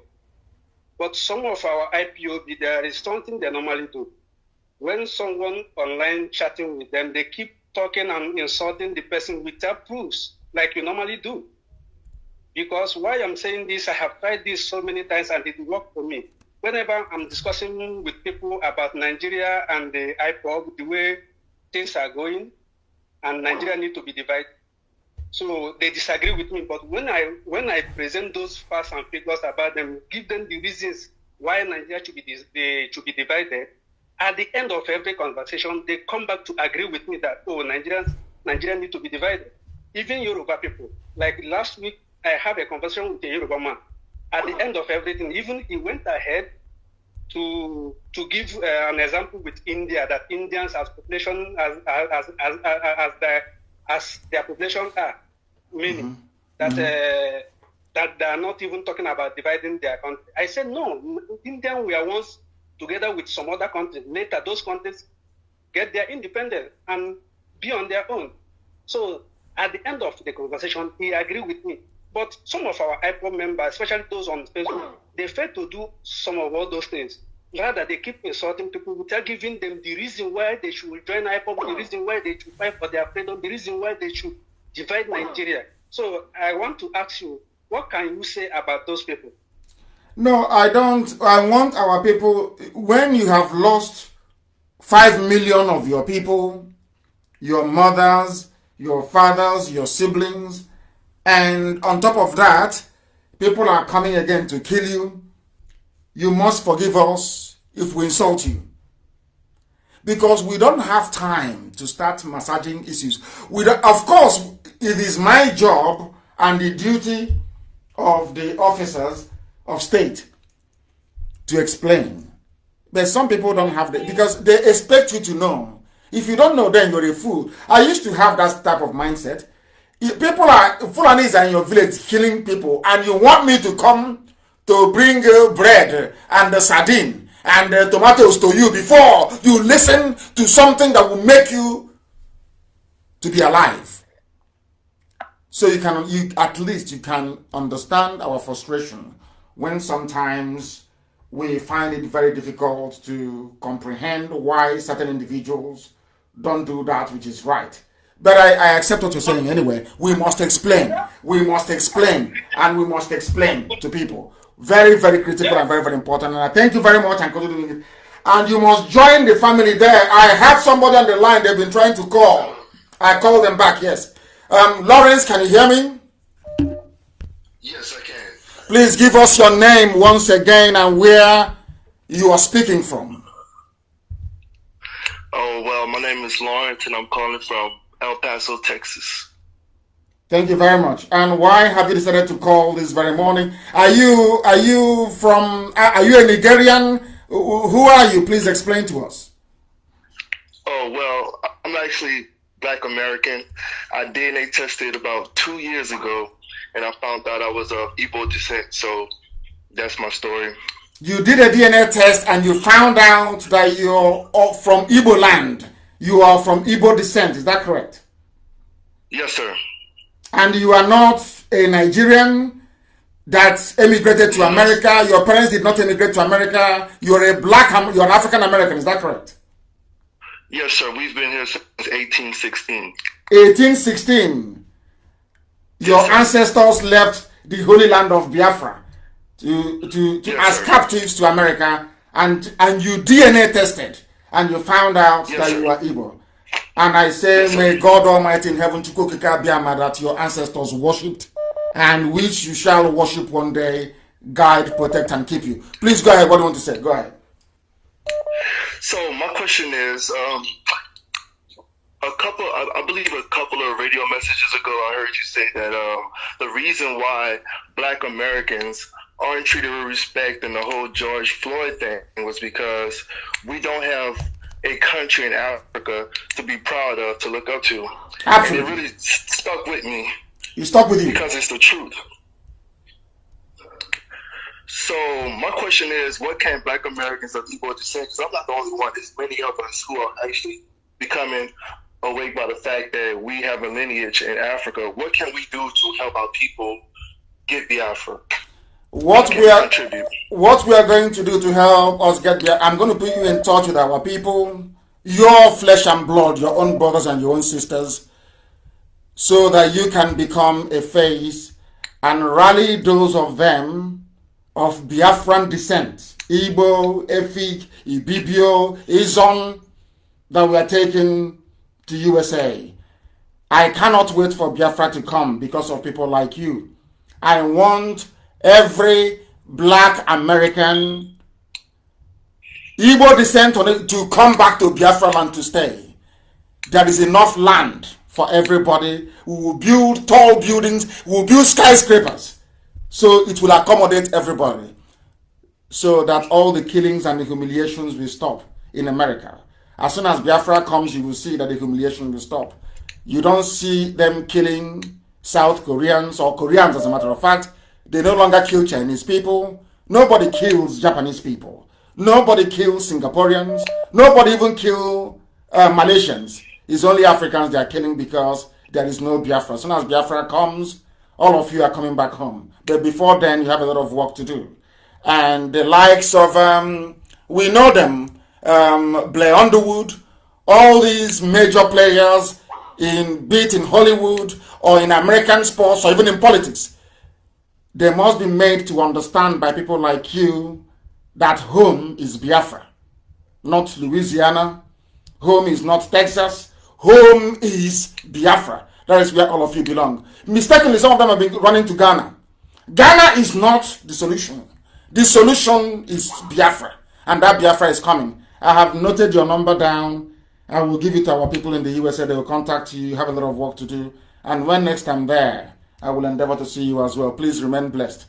S17: But some of our IPOB, there is something they normally do. When someone online chatting with them, they keep talking and insulting the person without proofs, like you normally do. Because why I'm saying this, I have tried this so many times and it worked for me. Whenever I'm discussing with people about Nigeria and the IPOB, the way things are going, and Nigeria need to be divided. So they disagree with me. But when I when I present those facts and figures about them, give them the reasons why Nigeria should be dis- should be divided. At the end of every conversation, they come back to agree with me that oh, Nigerians Nigeria need to be divided. Even Yoruba people, like last week, I have a conversation with the Yoruba man. At the end of everything, even he went ahead to to give uh, an example with India that Indians as population as as as as, as their as their population are meaning mm-hmm. that mm-hmm. Uh, that they are not even talking about dividing their country. I said no, India we are once together with some other countries. Later those countries get their independence and be on their own. So at the end of the conversation, he agreed with me. But some of our IPO members, especially those on Facebook, they fail to do some of all those things. Rather, they keep insulting people without giving them the reason why they should join IPO, the reason why they should fight for their freedom, the reason why they should divide Nigeria. So I want to ask you, what can you say about those people?
S1: No, I don't. I want our people, when you have lost 5 million of your people, your mothers, your fathers, your siblings, and on top of that, people are coming again to kill you. You must forgive us if we insult you. Because we don't have time to start massaging issues. We of course, it is my job and the duty of the officers of state to explain. But some people don't have that because they expect you to know. If you don't know, then you're a fool. I used to have that type of mindset. If people are Fulanis are in your village killing people, and you want me to come to bring uh, bread and uh, sardine and uh, tomatoes to you before you listen to something that will make you to be alive. So you can, you at least you can understand our frustration when sometimes we find it very difficult to comprehend why certain individuals don't do that which is right. But I, I accept what you're saying anyway. We must explain. We must explain. And we must explain to people. Very, very critical and very, very important. And I thank you very much and continue And you must join the family there. I have somebody on the line they've been trying to call. I call them back, yes. Um, Lawrence, can you hear me? Yes, I can. Please give us your name once again and where you are speaking from.
S14: Oh, well, my name is Lawrence, and I'm calling from El Paso, Texas.
S1: Thank you very much. And why have you decided to call this very morning? Are you are you from uh, are you a Nigerian? Who are you? Please explain to us.
S14: Oh well, I'm actually Black American. I DNA tested about two years ago, and I found out I was of Igbo descent. So that's my story.
S1: You did a DNA test, and you found out that you're from Igbo land you are from Igbo descent, is that correct? Yes, sir. And you are not a Nigerian that emigrated to America. Your parents did not emigrate to America. You're a black, you're an African American, is that correct?
S14: Yes, sir. We've been here since 1816.
S1: 1816. Your ancestors left the holy land of Biafra to, to, to yes, as sir. captives to America and, and you DNA tested and you found out yes, that sir. you were evil, And I say, yes, may God Almighty in heaven, Chukokika Biama, that your ancestors worshipped and which you shall worship one day, guide, protect, and keep you. Please go ahead. What do you want to say? Go ahead.
S14: So, my question is um, a couple, I, I, believe a couple of radio messages ago, I heard you say that um, the reason why black Americans aren't treated with respect and the whole George Floyd thing was because we don't have a country in Africa to be proud of, to look up to.
S8: Absolutely.
S1: And it really stuck with me. You stuck with you. Because it's the truth. So
S14: my question is, what can Black Americans or people with Because I'm not the only one. There's many of us who are actually becoming awake by the fact that we have
S4: a lineage in Africa. What can we do to help our people get the Africa?
S1: what we are contribute. what we are going to do to help us get there i'm going to put you in touch with our people your flesh and blood your own brothers and your own sisters so that you can become a face and rally those of them of biafran descent Ibo, efik ibibio izon that we are taking to usa i cannot wait for biafra to come because of people like you i want every black American, Igbo descent on it to come back to Biafra land to stay. There is enough land for everybody. We will build tall buildings, we will build skyscrapers. So it will accommodate everybody. So that all the killings and the humiliations will stop in America. As soon as Biafra comes, you will see that the humiliation will stop. You don't see them killing South Koreans or Koreans, as a matter of fact. They no longer kill Chinese people. Nobody kills Japanese people. Nobody kills Singaporeans. Nobody even kill uh, Malaysians. It's only Africans they are killing because there is no Biafra. As soon as Biafra comes, all of you are coming back home. But before then, you have a lot of work to do. And the likes of, um, we know them, um, Blair Underwood, all these major players in be it in Hollywood or in American sports or even in politics They must be made to understand by people like you that home is Biafra, not Louisiana. Home is not Texas. Home is Biafra. That is where all of you belong. Mistakenly, some of them have been running to Ghana. Ghana is not the solution. The solution is Biafra, and that Biafra is coming. I have noted your number down. I will give it to our people in the USA. They will contact you. You have a lot of work to do. And when next I'm there, I will endeavor to see you as well. Please remain blessed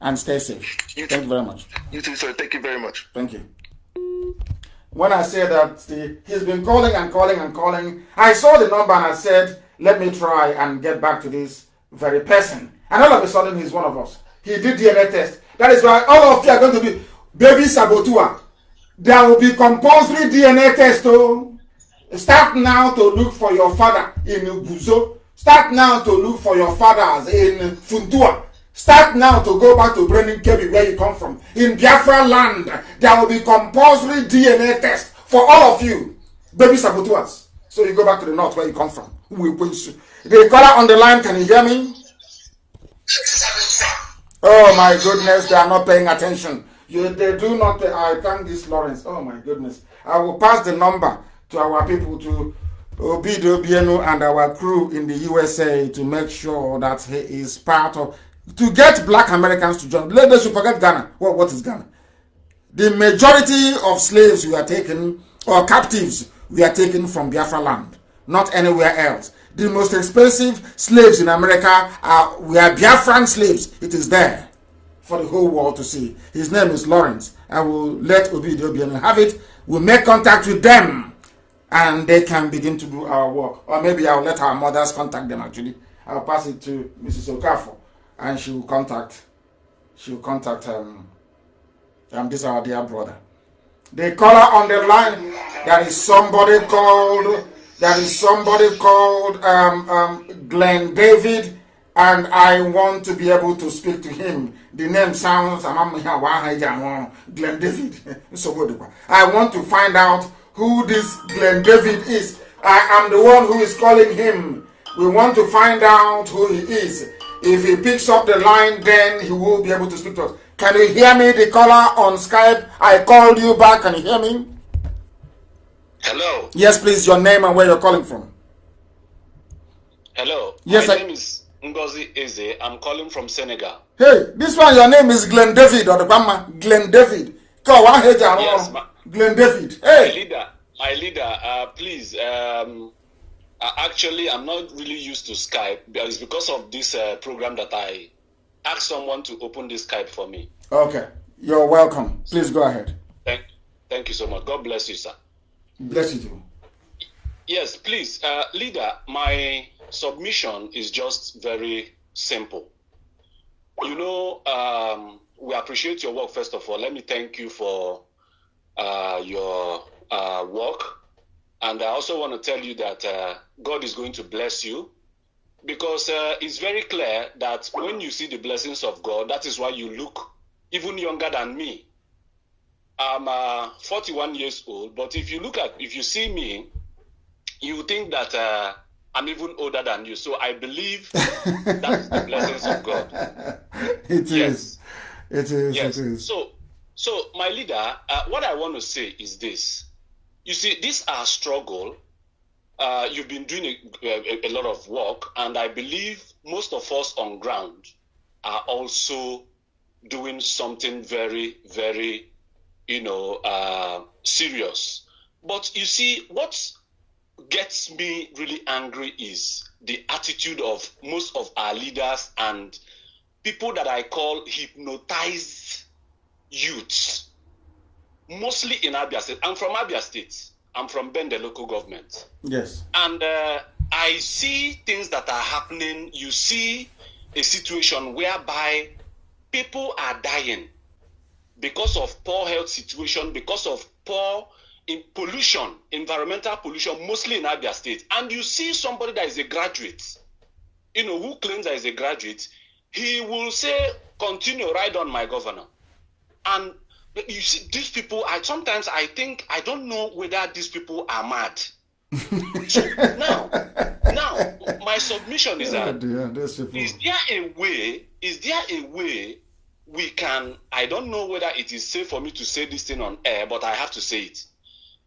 S1: and stay safe. You Thank you very much.
S14: You too, sir. Thank you very much. Thank you. When
S1: I say that the, he's been calling and calling and calling, I saw the number and I said, let me try and get back to this very person. And all of a sudden, he's one of us. He did DNA test. That is why all of you are going to be baby sabotua. There will be compulsory DNA test. Oh. Start now to look for your father in Ubuzo Start now to look for your fathers in Funtua. Start now to go back to Brenin Kebi where you come from. In Biafra land, there will be compulsory DNA test for all of you. Baby saboteurs. So you go back to the north where you come from. We will you. The color on the line, can you hear me? Oh my goodness, they are not paying attention. You, they do not. I thank this Lawrence. Oh my goodness. I will pass the number to our people to Obidobienu and our crew in the USA to make sure that he is part of to get black Americans to join. Let us forget Ghana. what is Ghana? The majority of slaves we are taken or captives we are taking from Biafra land, not anywhere else. The most expensive slaves in America are we are Biafran slaves. It is there for the whole world to see. His name is Lawrence. I will let Obidobienu have it. We'll make contact with them and they can begin to do our work. Or maybe I'll let our mothers contact them actually. I'll pass it to Mrs. Okafo and she will contact she will contact um, um this our dear brother. The caller on the line there is somebody called there is somebody called um, um, Glenn David and I want to be able to speak to him. The name sounds Glenn David. *laughs* I want to find out who this Glen David is. I am the one who is calling him. We want to find out who he is. If he picks up the line, then he will be able to speak to us. Can you hear me, the caller on Skype? I called you back. Can you hear me? Hello. Yes, please, your name and where you're calling from.
S7: Hello. Yes, My I... name is Ngozi Eze. I'm calling from Senegal.
S1: Hey, this one, your name is Glen David or the grandma. Glen David. Yes, ma- Glenn David. Hey.
S7: My leader, my leader, uh, please. Um, uh, actually, I'm not really used to Skype. It's because of this uh, program that I
S1: asked someone to open this Skype for me. Okay. You're welcome. Please go ahead. Thank,
S7: thank you so much. God bless you, sir.
S1: Bless you too.
S7: Yes, please. Uh, leader, my submission is just very simple. You know, um, we appreciate your work, first of all. Let me thank you for uh, your uh, work. And I also want to tell you that uh, God is going to bless you because uh, it's very clear that when you see the blessings of God, that is why you look even younger than me. I'm uh, 41 years old, but if you look at, if you see me, you think that uh, I'm even older than you. So I believe *laughs* that's the blessings
S4: of God. It yes. is.
S7: It is. Yes. It is. So so, my leader, uh, what I want to say is this. You see, this our struggle. Uh, you've been doing a, a, a lot of work, and I believe most of us on ground are also doing something very, very, you know, uh, serious. But you see, what gets me really angry is the attitude of most of our leaders and people that I call hypnotized youths, mostly in Abia State. I'm from Abia State. I'm from Ben, the local government. Yes. And uh, I see things that are happening. You see a situation whereby people are dying because of poor health situation, because of poor in pollution, environmental pollution, mostly in Abia State. And you see somebody that is a graduate, you know, who claims that is a graduate, he will say, continue right on, my governor. And you see, these people, I sometimes I think I don't know whether these people are mad. *laughs* so now, now my submission is yeah, that is there a way? Is there a way we can? I don't know whether it is safe for me to say this thing on air, but I have to say it.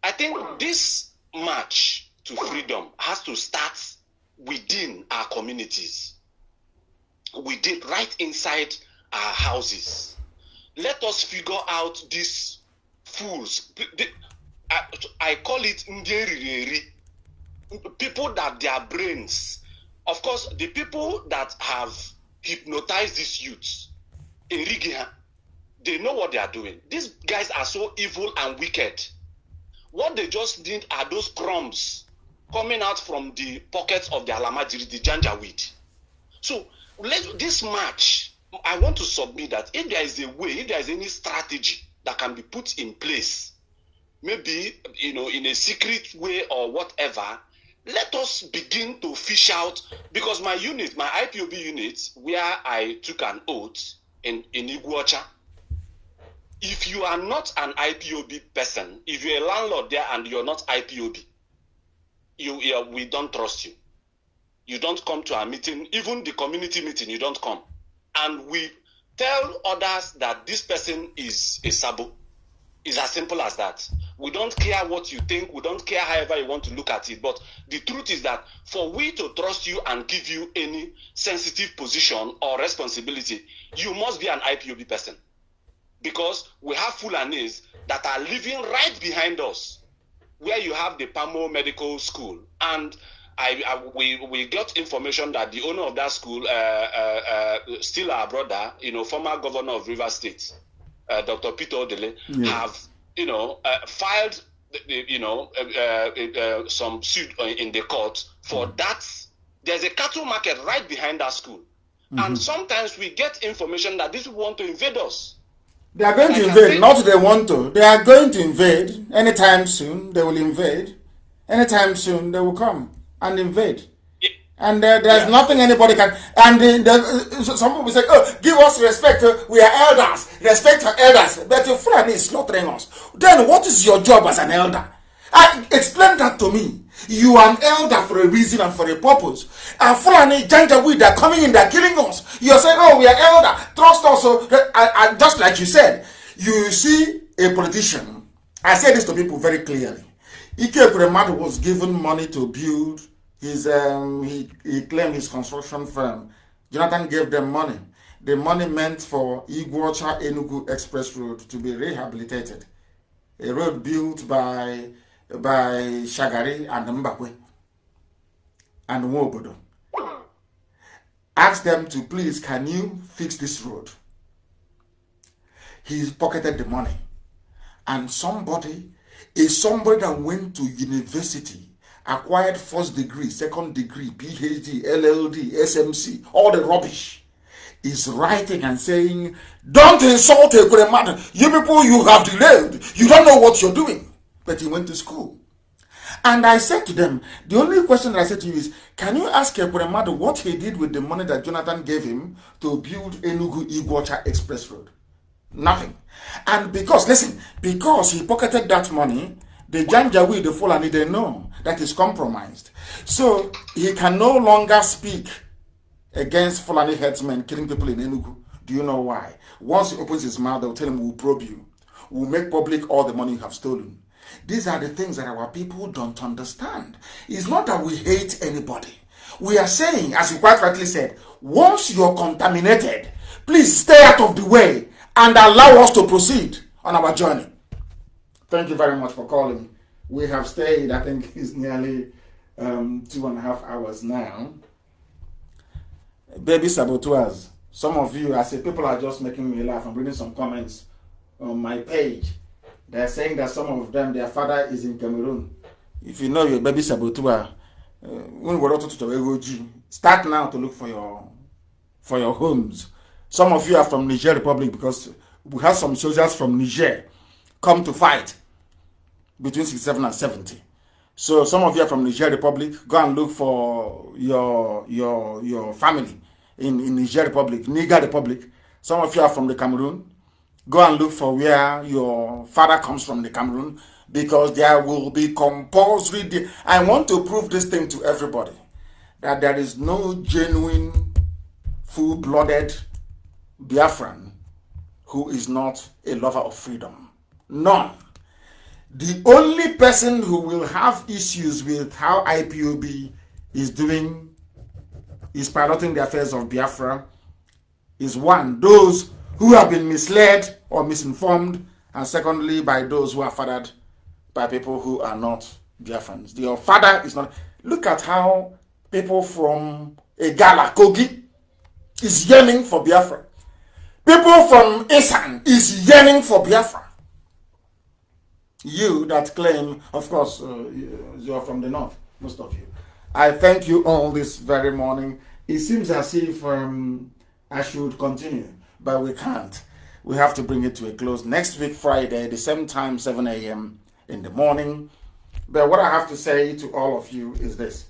S7: I think this march to freedom has to start within our communities, within right inside our houses. let us figure out these fools. I, I call it ndeririri. People that their brains, of course, the people that have hypnotized these youths in Rigiha, they know what they are doing. These guys are so evil and wicked. What they just need are those crumbs coming out from the pockets of the alamajiri, the janja weed. So let this match I want to submit that if there is a way, if there is any strategy that can be put in place, maybe you know, in a secret way or whatever, let us begin to fish out because my unit, my IPOB unit, where I took an oath in, in Iguacha, if you are not an IPOB person, if you're a landlord there and you're not IPOB, you, you we don't trust you. You don't come to our meeting, even the community meeting, you don't come and we tell others that this person is a sabo. It's as simple as that. We don't care what you think. We don't care however you want to look at it. But the truth is that for we to trust you and give you any sensitive position or responsibility, you must be an IPOB person. Because we have Fulanese that are living right behind us, where you have the Pamo Medical School. And I, I, we we got information that the owner of that school, uh, uh, uh, still our brother, you know, former governor of River State, uh, Dr. Peter Odele, yes. have you know uh, filed, you know, uh, some suit in the court for mm-hmm. that. There's a cattle market right behind that school,
S8: mm-hmm. and
S7: sometimes we get information that these people want to invade us.
S1: They are going to invade. not they want to. They are going to invade anytime soon. They will invade anytime soon. They will come and invade. And uh, there's yeah. nothing anybody can. And uh, uh, some people say, "Oh, give us respect. Uh, we are elders. Respect our elders." But your friend is slaughtering us. Then what is your job as an elder? I, explain that to me. You are an elder for a reason and for a purpose. And Fulani, Janjaweed, they're coming in, they're killing us. You're saying, oh, we are elder. Trust us. And uh, uh, just like you said, you see a politician. I say this to people very clearly. Ike Premadu was given money to build his, um, he, he claimed his construction firm. Jonathan gave them money. The money meant for Iguacha Enugu Express Road to be rehabilitated, a road built by, by Shagari and Mbakwe and Wobodo. Asked them to please, can you fix this road? He pocketed the money. And somebody a somebody that went to university acquired first degree, second degree, PhD, LLD, SMC, all the rubbish, is writing and saying, Don't insult a great man. You people, you have delayed. You don't know what you're doing. But he went to school. And I said to them, the only question that I said to you is, can you ask Ekweremadu what he did with the money that Jonathan gave him to build Enugu Iguacha Express Road? Nothing. And because, listen, because he pocketed that money, The Janjaweed, the Fulani, they know that is compromised. So he can no longer speak against Fulani headsmen killing people in Enugu. Do you know why? Once he opens his mouth, they'll tell him, we'll probe you. We'll make public all the money you have stolen. These are the things that our people don't understand. It's not that we hate anybody. We are saying, as you quite rightly said, once you're contaminated, please stay out of the way and allow us to proceed on our journey. Thank you very much for calling. We have stayed, I think it's *laughs* nearly um, two and a half hours now. Baby saboteurs. Some of you, I say, people are just making me laugh. I'm reading some comments on my page. They're saying that some of them, their father is in Cameroon. If you know your baby saboteur, uh, start now to look for your for your homes. Some of you are from Niger Republic because we have some soldiers from Niger come to fight between 67 and 70. So some of you are from Niger Republic, go and look for your your your family in, in Niger Republic, Niger Republic. Some of you are from the Cameroon, go and look for where your father comes from the Cameroon because there will be compulsory. I want to prove this thing to everybody that there is no genuine, full blooded Biafran who is not a lover of freedom. None the only person who will have issues with how IPOB is doing, is piloting the affairs of Biafra, is one, those who have been misled or misinformed, and secondly, by those who are fathered by people who are not Biafrans. Your father is not. Look at how people from Egala, Kogi, is yearning for Biafra. People from Isan is yearning for Biafra you that claim, of course, uh, you are from the north, most of you. I thank you all this very morning. It seems as if um, I should continue, but we can't. We have to bring it to a close next week, Friday, the same time, 7 a.m. in the morning. But what I have to say to all of you is this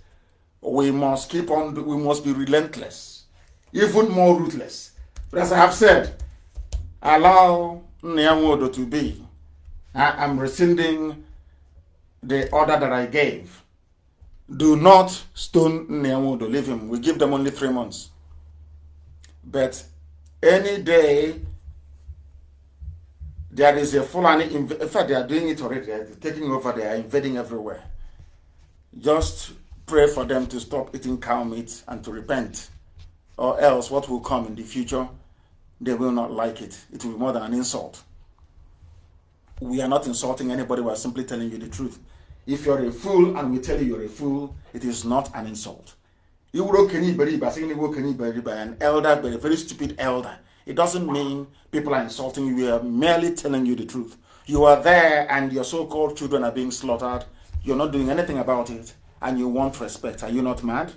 S1: we must keep on, we must be relentless, even more ruthless. But as I have said, allow Nyamodo to be I am rescinding the order that I gave. Do not stone Nyamudo, leave him. We give them only three months. But any day there is a Fulani, in fact, they are doing it already. They are taking over, they are invading everywhere. Just pray for them to stop eating cow meat and to repent, or else what will come in the future, they will not like it. It will be more than an insult we are not insulting anybody, we are simply telling you the truth. If you're a fool and we tell you you're a fool, it is not an insult. You broke anybody by saying you broke anybody by an elder, but a very stupid elder. It doesn't mean people are insulting you. We are merely telling you the truth. You are there and your so-called children are being slaughtered. You're not doing anything about it and you want respect. Are you not mad?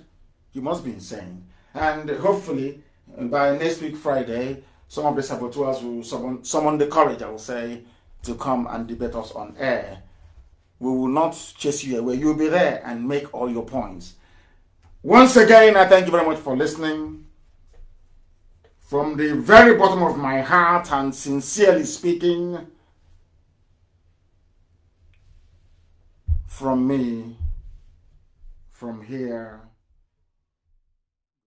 S1: You must be insane. And hopefully by next week Friday, some of the saboteurs will summon, summon the courage, I will say, to come and debate us on air. We will not chase you away. You'll be there and make all your points. Once again, I thank you very much for listening. From the very bottom of my heart and sincerely speaking,
S8: from me, from here,